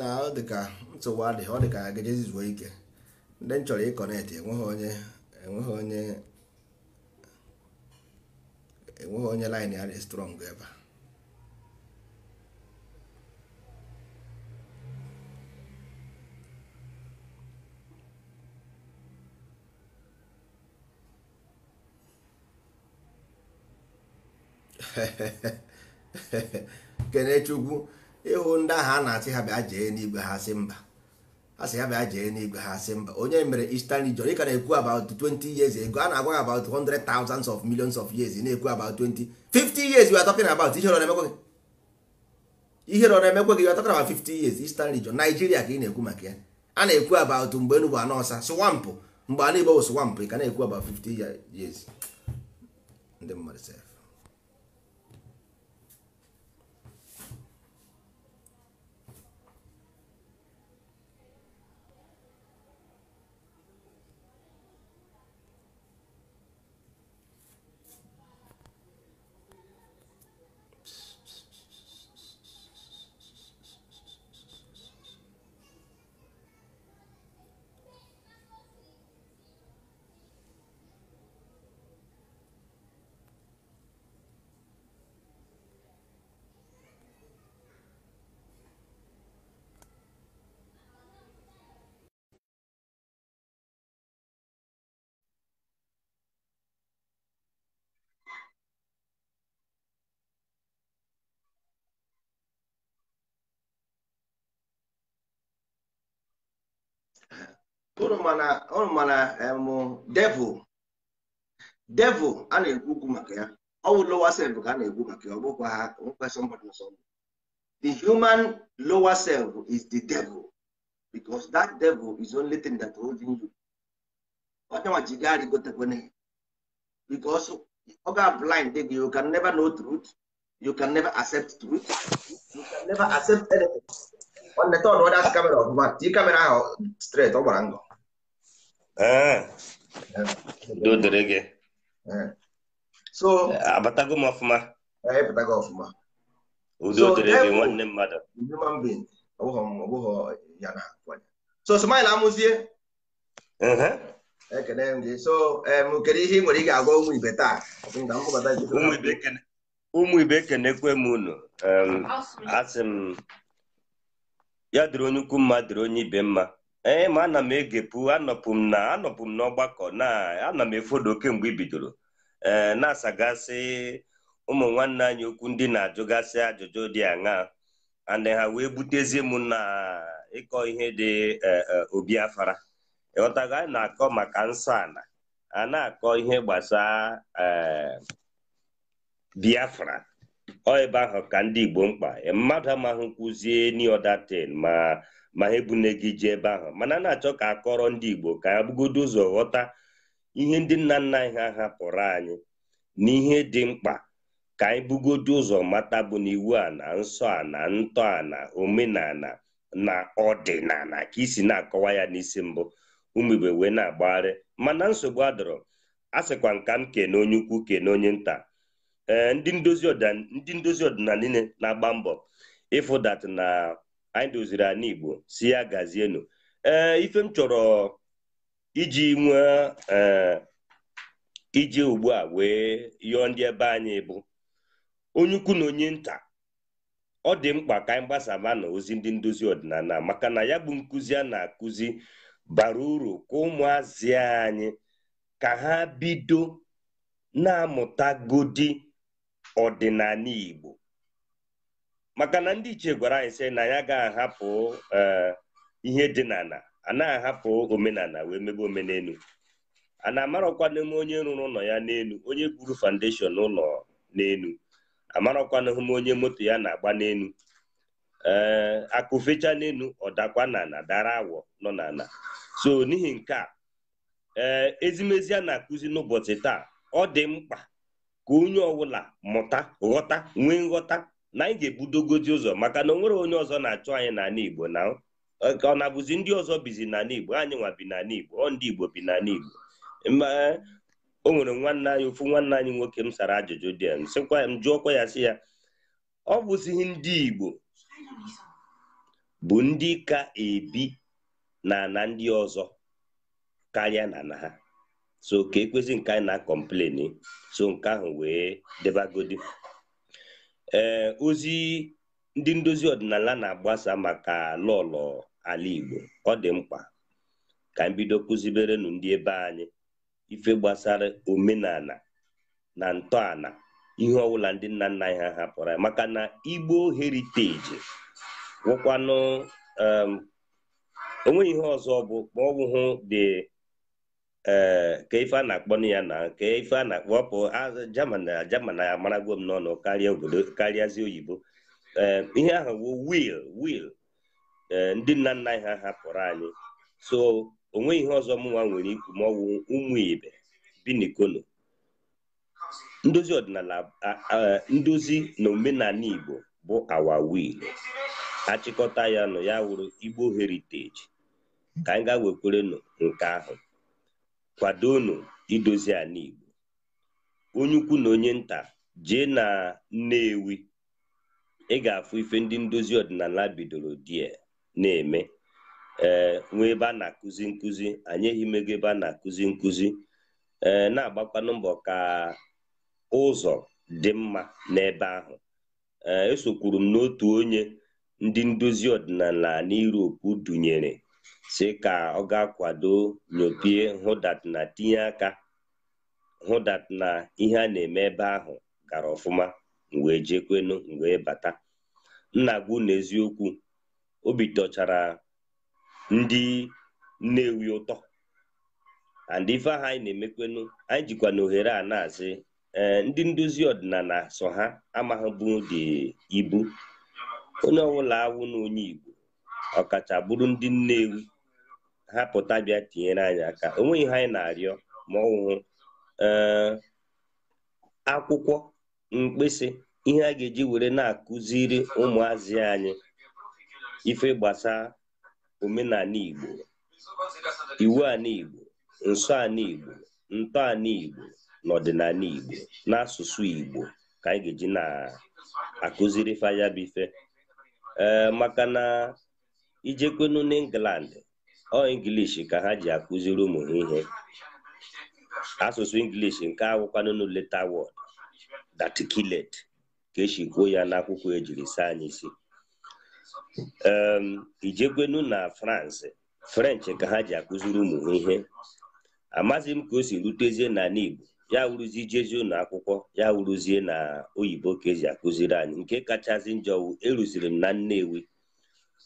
na ọ dịka nsogbu adịghị ọ dị dịka gejezi zuo ike ndị m chọrọ ịkọnetị enweghị onye enweghị onye enweghị onye line ya dị strong ebe a (laughs) kene chukwu ịhụ ndị ahụ a na-asị ha bịa jee n'igwe ha sị mba ha ha bịa jee n'igwe ha sị mba onye mere Eastern region ka na-ekwu about 20 years ego a na-agwa about 100 thousands of millions of years na-ekwu about 20 50 years we are talking about ihe rọrọ emekwe ihe rọrọ gị we 50 years Eastern region Nigeria ka ị na-ekwu maka ya a na-ekwu about mgbe Enugu anọsa swampụ mgbe a na swamp ị ka na-ekwu about 50 years unu mana devil devil a na-ekwu okwu maka ya ọ bụ lower self ka a na-ekwu maka ya ọ bụkwa ha nkwesị mmadụ nsọ the human lower self is the devil because that devil is only thing that holding you onyenwa ji gari gotekwane because ọ ga blind gị you can never know truth you can never accept truth you can never accept anything ọ neta ọnụ ọdasị kamera ọbụma tii kamera ahụ straight ọ gbara ngọ Ee, udo gị. So, abatago ah, m ọfụma. Ee, ịpụtago ọfụma. Udo dịrị gị nwanne mmadụ. Human being, ọbụghọ uh-huh. eh, eh, um, ọbụghọ um, ya na akwanye. So, smile amụzie. Ekene m gị. So, um, kedu ihe ị nwere ị ga-agwa ụmụ ibe taa? ibe unu. Asị m ya onye ukwu mma onye ibe mma. ee ma ana m egepụ anọpụ m na anọpụ m n'ọgbakọ na ana m efodo kemgbe ibidoro bidoro ee na-asagasị ụmụ nwanne anyị okwu ndị na-ajụgasị ajụjụ dị aṅaa ana ha wee butezie m na ịkọ ihe dị e, e, obi afara ịghọtago anyị na-akọ maka nsọ ala a na-akọ ihe gbasaa e, biafra ọ ebe ahụ ka ndị igbo mkpa mmadụ amaghị kwuzie niodatin ma ma ha ebune gị ji ebe ahụ mana a na-achọ ka akọrọ ndị Igbo ka ha bugodo ụzọ ghọta ihe ndị nna nna anyị ha hapụrụ anyị na ihe dị mkpa ka anyị bugodo ụzọ mata bụ na iwu a na nsọ a na ntọ a na omenala na ọdịnala ka isi na-akọwa ya n'isi mbụ ụmụ wee na-agbagharị mana nsogbu adọrọ a sịkwa nka m kene onye ukwu kene onye nta eh, ndị ndozi ọdịnala niile na-agba mbọ ịfụdat na anyị doziri anyị Igbo si ya gazienu ee ife m chọrọ iji nwee iji ugbu a wee yọọ ndị ebe anyị bụ onye ukwu na onye nta ọ dị mkpa ka anyị gbasaba na ozi ndị ndozi ọdịnala maka na ya bụ nkụzi a na-akụzi bara uru ka ụmụazị anyị ka ha bido na-amụtagodi ọdịnala Igbo maka na ndị ichie gwara anyị sị na ya ga-ahapụ e, ihe dị n'ala ana ahapụ omenala wee mebe omenelu a na-amarakwa n'ime onye rụrụ ụlọ ya n'elu onye gwuru foundation ụlọ n'elu amarakwanahụ m onye moto ya na-agba n'elu ee akụfecha n'elu ọdakwa n'ala dara awọ nọ n'ala so n'ihi nke a ee ezimezi a na-akụzi n'ụbọchị taa ọ dị mkpa ka onye ọbụla mụta ghọta nwee nghọta na anyị ga ebudogozi ụzọ maka na onwere onye ọzọ na-achụ anyị n'ala Igbo na ọ na-abụzi ndị ọzọ bizi n'ala Igbo anyị nwa bi n'ala Igbo ọ ndị Igbo bi n'ala Igbo o nwere nwanne anyị ofu nwanne anyị nwoke m sara ajụjụ dị ya m sịkwa m jụọkwa ya sị ya ọ bụzighị ndị Igbo bụ ndị ka ebi na na ndị ọzọ karịa na na ha so ka ekwezi nke anyị na-akọmpleni so nke ahụ wee debagodi ee eh, ozi ndị ndozi ọdịnala na-agbasa maka lọlọ ala Igbo ọ dị mkpa ka m bido kụziberenu ndị ebe anyị ife gbasara omenala na ntọala ihe ọbụla ndị nna nna anyị ha hapụrụ maka na Igbo heriteji wụkwanụ onweghị ihe ọzọ bụ ma dị ee ka ife na-akpọ ya na ka ife a na akpọpụ ọpụ jaman na jaman na amaragwo n'ọnụ karịa obodo karịazi oyibo ee ihe ahụ bụ wil wil ndị nna nna anyị ha hapụrụ anyị so onweghị ihe ọzọ mụnwa nwere ikwu ma ọ bụ ụmụ ibe bi ndozi ọdịnala ndozi na omenala igbo bụ awa wil achịkọta ya nụ ya wụrụ igbo heriteji ka anyị ga-wekwerenụ nke ahụ kwadonu idozi ala Igbo onye ukwu na onye nta jee na Nnewi ị ga-afụ ife ndị ndozi ọdịnala bidoro die eh, na-eme ee eh, nwee ebe a na-akụzi nkụzi anyị mego ebe a na-akụzi nkụzi ee eh, na-agbakwanụ mbọ ka ụzọ dị mma n'ebe ahụ ee esokwuru m n'otu onye ndị ndozi ọdịnala na Europe dunyere si ka ọ ga-akwado nyopie hụdat na tinye aka hụdat na ihe a na-eme ebe ahụ gara ọfụma wee jekwenu mgbe bata nna gwu n'eziokwu obi tọchara ndị nnewi ụtọ and ife ahụ anyị na-emekwenu anyị jikwa na ohere a na-asị ndị ndozi ọdịnala so ha amaghịbụ dị ibu onye ọbụla awụ na onye igbo ọkacha bụrụ ndị Nnewi ha pụta bịa tinyere anyị aka onweghị ihe anyị na-arịọ ma ọwụhụ eh, akwụkwọ mkpịsị ihe a ga-eji were na-akụziri ụmụazị anyị ife gbasaa omenala Igbo iwu ala Igbo nsọ ala Igbo ntọ ala Igbo na ọdịnala Igbo n'asụsụ Igbo ka anyị ga-eji na-akụziri faya ee eh, maka na ijekwenu n'England ọ ingilishi ka ha ji akụziri ụmụ ha ihe asụsụ ingilishi nke awụkwanụnụ leta wọd datkilet ka esi kwuo ya n'akwụkwọ ejiri saa anyị isi ijekwenu na France french ka ha ji akụziri ụmụ ha ihe amaghị m ka o si rutezie na Igbo ya wuruzie jezie ụlọ akwụkwọ ya wuruzie na oyibo ka eji akụziri anyị nke kachasị njọ e eruziri m na Nnewi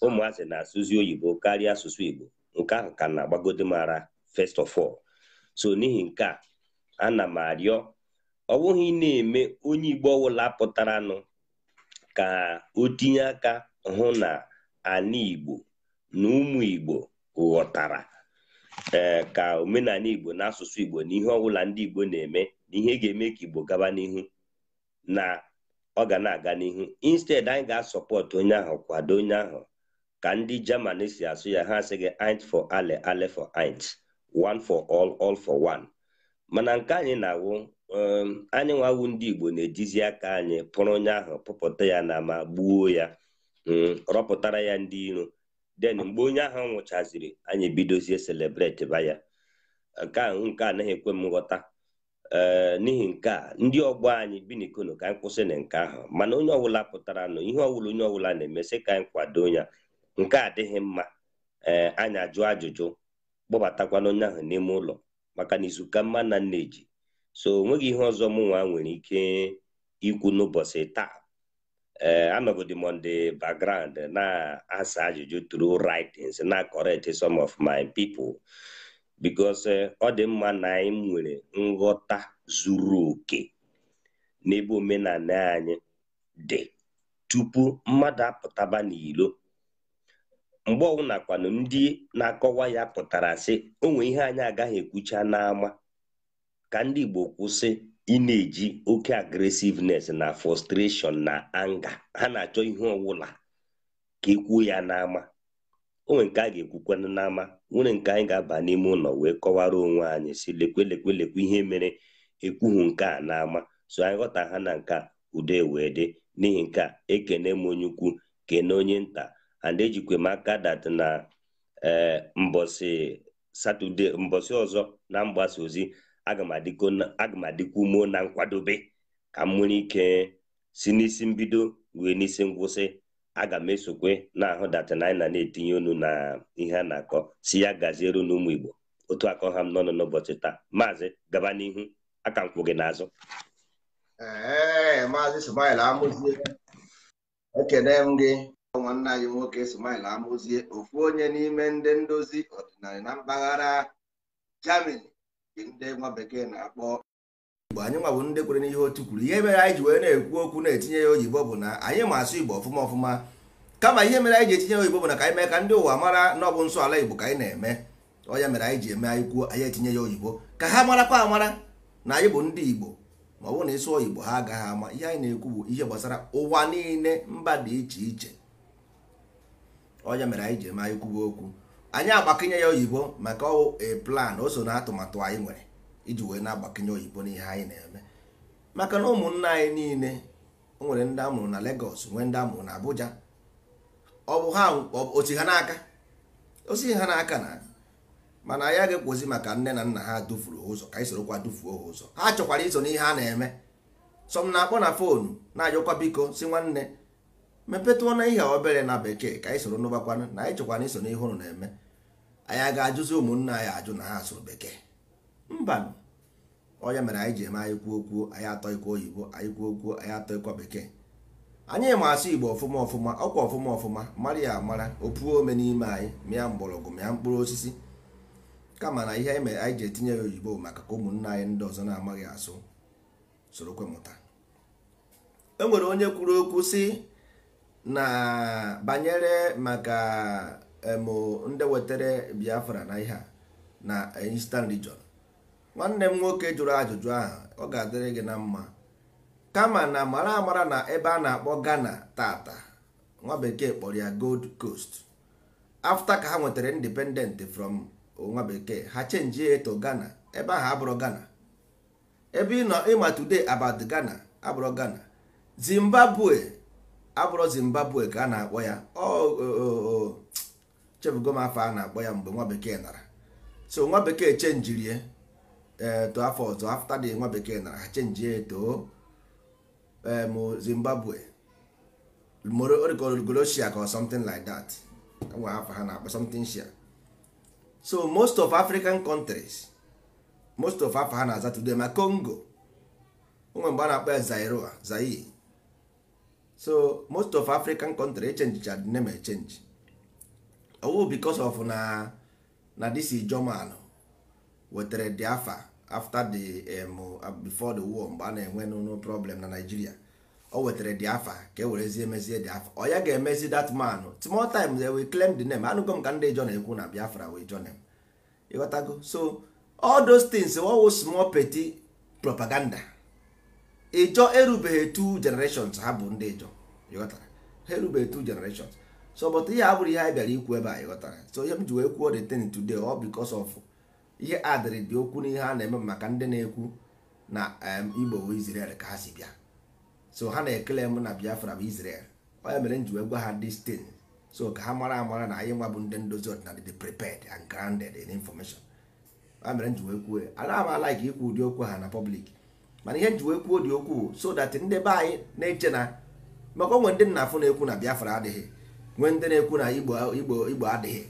ụmụazị na-asụzi oyibo karịa asụsụ igbo nke ahụ ka na agbagode mara first of all so n'ihi nke a ana m arịọ ọ bụghị na-eme onye igbo ọwụla pụtaranụ ka o tinye aka hụ na ana igbo na ụmụ igbo ghọtara ee eh, ka omenala igbo na asụsụ igbo na ihe ọbụla ndị igbo na-eme na ihe ga-eme ka igbo gaba n'ihu na ọ ga na-aga n'ihu instead anyị ga-asọpọtụ onye ahụ kwado onye ahụ ka ndị Germany si asụ ya ha asịghị int fọ ale ale for int one for all all for one mana nke anyị na-awụ um, anyị nwawu ndị Igbo na-ejizi aka anyị pụrụ onye ahụ pụpụta ya na ma gbuo ya um, rọpụtara ya ndị iro den mgbe onye ahụ nwụchaziri anyị ebidozie selebreti ba ya nke ahụ nke anaghị ekwe m nghọta um, n'ihi nke a ndị ọgbọ anyị bi n'ikono ka anyị kwụsị na nke ahụ mana onye ọbụla pụtara nụ ihe ọbụla onye ọbụla na-emesị ka anyị kwado ya nke a adịghị mma ee eh, anyị ajụ ajụjụ kpọbatakwana onye ahụ n'ime ụlọ maka na izuka mma na nna eji so onweghị ihe ọzọ mụnwa nwa nwere ike ikwu n'ụbọchị taa ee eh, anọgodi Monde on na-asa ajụjụ tru writings na correct some of my people because eh, ọ dị mma na anyị nwere nghọta zuru oke n'ebe omenala anyị dị tupu mmadụ apụtaba n'ilo mgbe ọbụla kwanụ ndị na-akọwa ya pụtara sị onwe ihe anyị agaghị ekwucha n'ama ka ndị Igbo kwụsị ị na-eji oke agresiveness na frustration na anga ha na-achọ ihe ọwụla ka ekwuo ya n'ama onwe nke a ga-ekwukwanụ n'ama nwere nke anyị ga-aba n'ime ụlọ wee kọwara onwe anyị si lekwe lekwe lekwe ihe mere ekwuhu nke a n'ama so anyị ghọta ha na nke ude wee dị n'ihi nke a ekene m onye ukwu kene onye nta and ejikwa m aka dat na satọde mbọsị ọzọ na mgbasa ozi aga m adịkwa ume na nkwadobe ka m nwere ike si n'isi mbido wee n'isi ngwụsị aga m esokwe na-ahụ datana anyị na na-etinye na ihe a na-akọ si ya gaziere n'ụmụ Igbo otu akọ ha m n'ọnụ n'ụbọchị taa maazị gaba n'ihu aka m gị n'azụ ee maazị amụzie m gị nwanne anyị nwoke Ismail amụzie ofu onye n'ime ndị ndozi ọdịnala na mpaghara Germany ndị nwa bekee na-akpọ igbo anyị nwa bụ ndị kwere n'ihe otu kwuru ihe mere anyị ji wee na-ekwu okwu na-etinye ya oyibo bụ na anyị ma asụ igbo ọfụma ọfụma kama ihe mere anyị ji etinye ya oyibo bụ na ka anyị mee ka ndị ụwa mara na ọ bụ nsọ ala igbo ka anyị na-eme ọya mere anyị ji eme anyị kwuo anyị etinye ya oyibo ka ha marakwa amara na anyị bụ ndị igbo ma ọ bụrụ na ịsụ oyibo ha agaghị ama ihe anyị na-ekwu bụ ihe gbasara ụwa niile mba dị iche iche onye mere anyị ji ma anyị kwuba okwu anyị agbakinye ya oyibo maka e plan o so na atụmatụ anyị nwere iji wee na-agbakinye oyibo n'ihe anyị na-eme maka na ụmụnna anyị niile nwere ndị amụrụ na Lagos nwee ndị amụrụ na Abuja ọ bụ ha osi ha n'aka osi ha n'aka na mana anyị ga ekwozi maka nne na nna ha dufuru ụzọ ka anyị sorokwa dufuo ha ụzọ ha chọkwara iso n'ihe a na-eme sọm na-akpọ na fonu na-ajụkwa biko si nwanne mepetụọ na ihe obere na bekee ka anyị soro n'ụgbakwanụ na anyị chọkwana iso n'ihe ụnụ na-eme anyị ga-ajụzi ụmụnna anyị ajụ na ha asụrụ bekee mba onye mere anyị ji eme anyị kwuo kwuo anyị atọ ikwu oyibo anyị kwuo kwuo anyị atọ bekee anyị ma asụ igbo ọfụma ọfụma ọkwa ọfụma ọfụma mara ya amara opuo ome n'ime anyị mịa mgbọrọgwụ mịa mkpụrụ osisi kama na ihe anyị mere anyị ji etinye ya oyibo maka ka ụmụnna anyị ndị ọzọ na-amaghị asụ sorokwe mụta e nwere onye kwuru okwu si na banyere maka emo ndị wetere biafra na ihe a na eastern region nwanne m nwoke jụrụ ajụjụ ahụ ọ ga-adịrị gị na mma kama na mara amara na ebe a na-akpọ ghana tata nwa bekee kpọrọ ya gold coast afta ka ha nwetara independent from nwa bekee ha chenji eto ghana ebe ahụ abụrụ ghana ebe ị nọ ịma today about ghana abụrụ ghana zimbabwe abụrụ zimbabwe ka a na-akpọ ya chefugo m afọ a na-akpọ ya mgbe nwa bekee nara so nwa bekee chenjirie eto afọ ọzọ afta dị nwa bekee nara ha chenjie eto em zimbabwe origolosia ka something like that e nwa afọ ha na-akpọ something shia so most of african countries most of afọ ha na-aza today ma congo onwe mgbe a na-akpọ ya zairoa zaire so most of african country echenjicha the name change owu oh, bicos of na na this is german wetere the afa after the um, uh, before the war mgbe a na-enwe no problem na nigeria o oh, wetere the afa ka e werezie emezie the afa ọ oh, ya ga-emezi that man small time they will claim the name anụgo ka ndị jon ekwu na biafra wee jon ịghọtago so all those things wo small petty propaganda ịjọ erubeghị two generations ha bụ ndị ịjọ ịghọtara ha erubeghị generations so but ihe a bụrụ ihe anyị bịara ikwu ebe a ịghọtara so ihe m ji wee kwuo the thing today ọ because of ihe adịrị dị okwu n'ihe a na-eme maka ndị na-ekwu na Igbo Izrel ka ha si bịa so ha na-ekele m na Biafra bụ Izrel onye mere m ji wee gwa ha this so ka ha mara amara na anyị nwa bụ ndị ndozi ọdịnala dị prepared and grounded in information onye mere m ji wee kwuo anaghị m like ikwu ụdị okwu ha na public mana ihe nji wee kwuo dị okwu so that ndị be anyị na-eche na maka onwe ndị nna afụ na-ekwu na Biafra adịghị nwee ndị na-ekwu na Igbo Igbo Igbo adịghị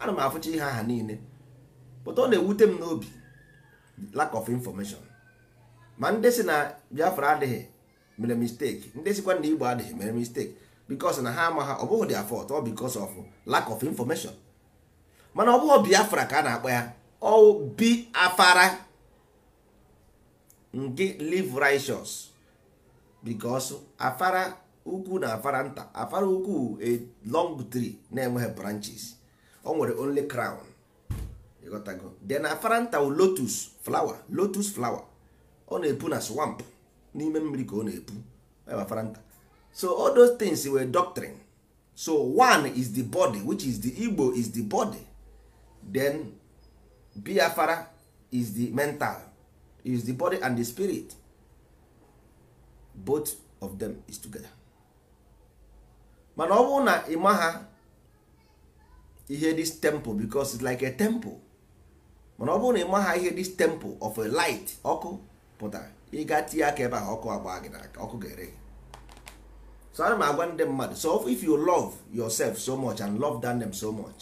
ana m afụcha ihe aha niile pụta ọ na-ewute m n'obi lack of information ma ndị si na Biafra adịghị mere mistake ndị sikwa na Igbo adịghị mere mistake because na ha ama ha ọ bụghị their fault ọ because of lack of information mana ọ bụghị Biafra ka a na-akpọ ya ọ Biafara nke live righteous because afara ukwu na afara nta afara ukwu a long tree na-enweghị branches o nwere only crown ịghọtago then afara nta wu lotus flower lotus flower ọ na-epu na swamp n'ime mmiri ka ọ na-epu afara nta so all those things were doctrine so one is the body which is the Igbo is the body then biafara is the mental is the body and the spirit both of them is together mana ọ bụrụ na ịma ha ihe this temple because it's like a temple mana ọ bụrụ na ịma ha ihe this temple of a light ọkụ pụtara ịga tinye aka ebe ahụ ọkụ agba gị n'aka ọkụ ga-ere so ana m agwa ndị mmadụ so if you love yourself so much and love them so much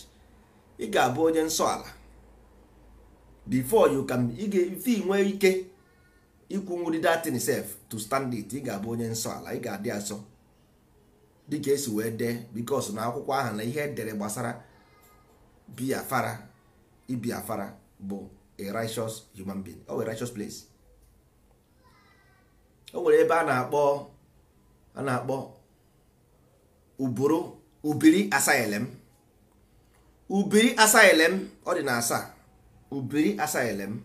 ị ga-abụ onye nsọ ala before you can ife nwee ike ikwunwuri datin sef to stand it ị ga-abụ onye nsọ ala ị ga-adị asọ dịka esi wee dee bikos na akwụkwọ ahụ na ihe edere gbasara biafara ibiafara bụ a righteous human being o a righteous place o nwere ebe a na-akpọ a na-akpọ ubiri ubiri asylum ọ dị na asaa ubiri asaelem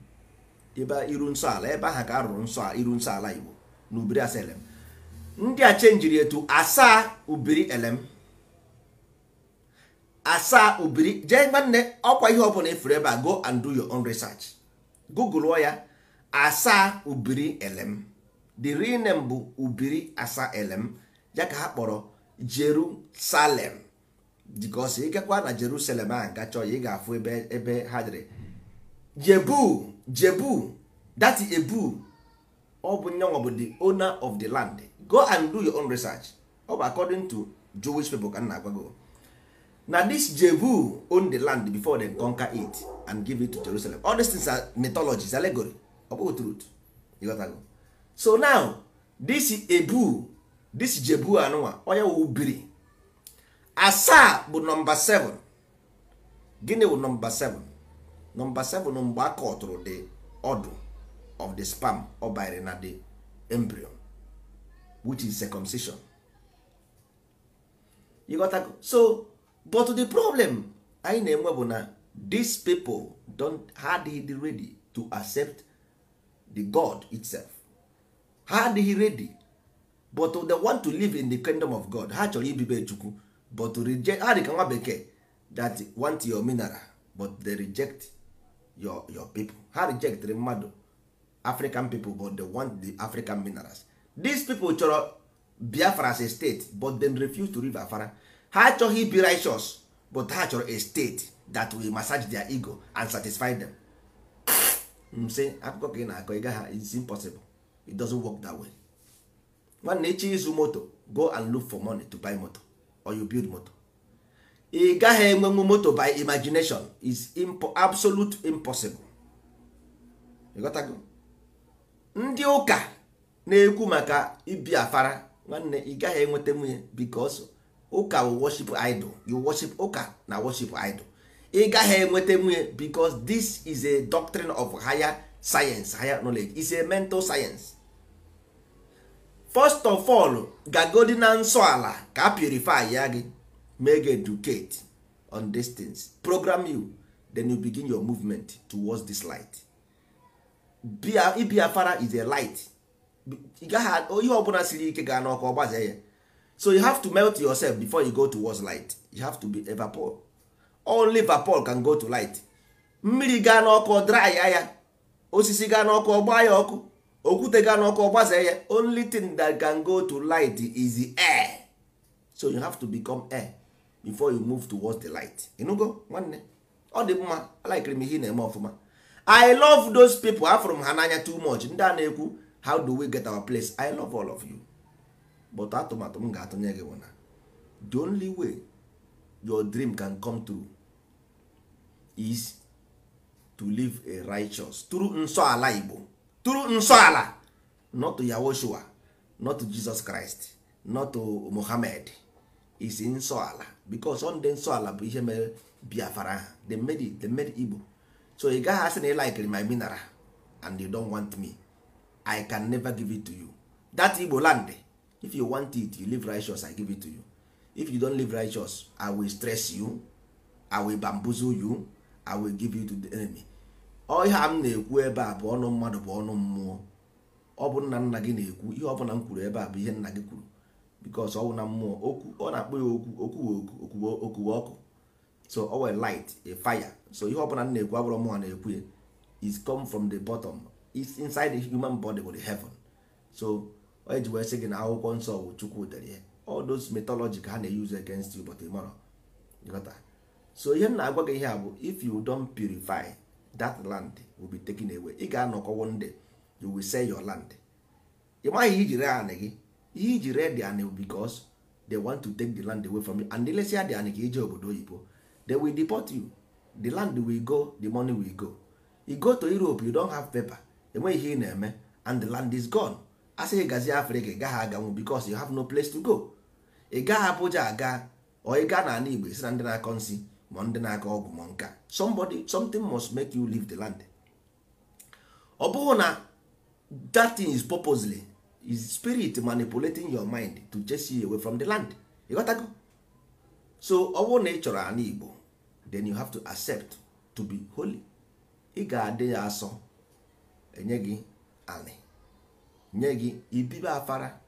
ebe iru nsọ ala ebe ahụ ka arụrụ nsọ iru nsọ ala igbo na ubiri asaelem ndị a chenjiri etu asaa ubiri elem asaa ubiri jee nwanne ọkwa ihe ọbụla ifuru ebe a go and do your own research google ya asaa ubiri elem the real name bụ ubiri asa elem ya ka ha kpọrọ jerusalem dịka because ịgakwa na jerusalem a gachọ ya ị ga-afụ ebe ebe ha dịrị jebu jebu that ebu ọ bụ nyanwa bụ the owner of the land go and do your own research ọ bụ according to jewish people ka m na-agwago na this jebu own the land before they conquer it and give it to jerusalem all these things are mythologies allegory ọ bụghị truth ịghọtago so now this ebu this jebu anụnwa onye wụ biri asaa bụ nọmba 7 gịnị bụ nọmba 7 nọmba 7 mgbe a kọtụrụ the ọdụ of the spam ọ banyere na the embryo which is circumcision you got to, so but the problem anyị na-enwe bụ na these people don't ha adịghị ready to accept the god itself ha adịghị ready but they want to live in the kingdom of god ha chọrọ ibibe chukwu but to reject ha dị ka nwa bekee that want your mineral but they reject your your people ha rejectịrị mmadụ african people but they want the african minerals these people chọrọ biafra as a state but dem refuse to leave afara ha achọghị ibi righteous but ha chọrọ a state that will massage their ego and satisfy them msị akụkọ ka ị na-akọ ịga ha is impossible it doesn't work that way nwanne echi izu moto go and look for money to buy moto or you build moto ị gaghị enwenwu moto by imagination is impo absolute impossible ịghọtago ndị ụka na-ekwu maka ibi afara nwanne ị gaghị enweta nwunye because ụka worship idol you worship ụka na worship idol ị gaghị enweta nwunye because this is a doctrine of higher science higher knowledge is a mental science first of all gagodi na nsọ ala ka purify ya gị make educate on distance things program you then you begin your movement towards this light Fara is a light ihe ọbụla siri ike gaa n'ọkụ ọgbaze ya so you have to melt yourself before you go towards light you have to be a only vapor can go to light mmiri gaa n'ọkụ dry ya osisi gaa n'ọkụ ọgba ya ọkụ okwute gaa n'ọkụ ọgbaze ya only thing that can go to light is the air so you have to become air before you move towards the light ịnụgo nwanne ọ dị mma alikiri m ihe na-eme ọfụma i love those people afụrụ m ha n'anya too much ndị a na-ekwu how do we get our place i love all of you but atụmatụ m ga-atụnye gị bụ na the only way your dream can come true is to live a righteous through nsọala igbo through nsọala not to yahoshua not to jesus christ not to mohammed is nsọala. because ọ ndị nsọ ala bụ ihe mere biafara ha they made igbo so ị gaghị asị na ị likere my mineral and you don't want me i can never give it to you that igbo land if you want it you live righteous i give it to you if you don't live righteous i will stress you i will bamboozle you i will give you to the enemy ọ ihe m na-ekwu ebe a bụ ọnụ mmadụ bụ ọnụ mmụọ ọ bụ nna nna gị na-ekwu ihe ọ bụla m kwuru ebe a bụ ihe nna gị kwuru because ọwụ na mmụọ okwu ọ na-akpọ ya okwu okwuwe okwuwe ọkụ so ọ were light a fire so ihe ọbụla m na-ekwu abụrụ mụọ na-ekwu ya is come from the bottom is inside the human body with heaven so onye eji wee sị gị na akwụkwọ nsọ bụ chukwu dere ihe all those mythology ka ha na-use against you but tomorrow ịghọta so ihe m na-agwa gị ihe a bụ if you don purify that land will be taken away ị ga-anọkọ one day you will sell your land ị maghị ijiri anị gị iji ree the anị because they want to take the land away from you and ilesia the anị ka ije obodo oyibo they will deport you the land will go the money will go you go to Europe you don't have paper enweghị ihe ị na-eme and the land is gone asị gị gazie africa ị gaghị aganwu because you have no place to go ị gaghị Abuja aga or ị gaa na n'ala Igbo isi na ndị na-akọ nsị ma ndị na-aka ọgwụ ma nka somebody something must make you leave the land ọ bụghị na that thing is purposely is spirit manipulating your mind to chase you away from the land ịghọtago so ọ bụrụ na ị chọrọ ana igbo then you have to accept to be holy ị ga-adị ya asọ enye gị anị nye gị ibibe afara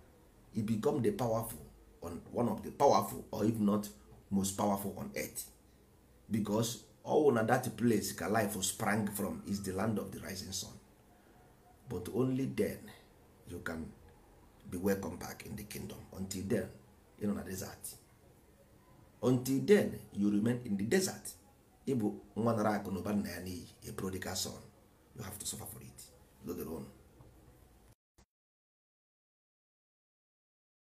you become the powerful on one of the powerful or if not most powerful on earth because all na that place ka life sprang from is the land of the rising sun but only then you can be welcome back in the kingdom until then you know na desert until then you remain in the desert ịbụ nwa nara akụ na ụba nna ya n'iyi a prodigal son you have to suffer for it load your own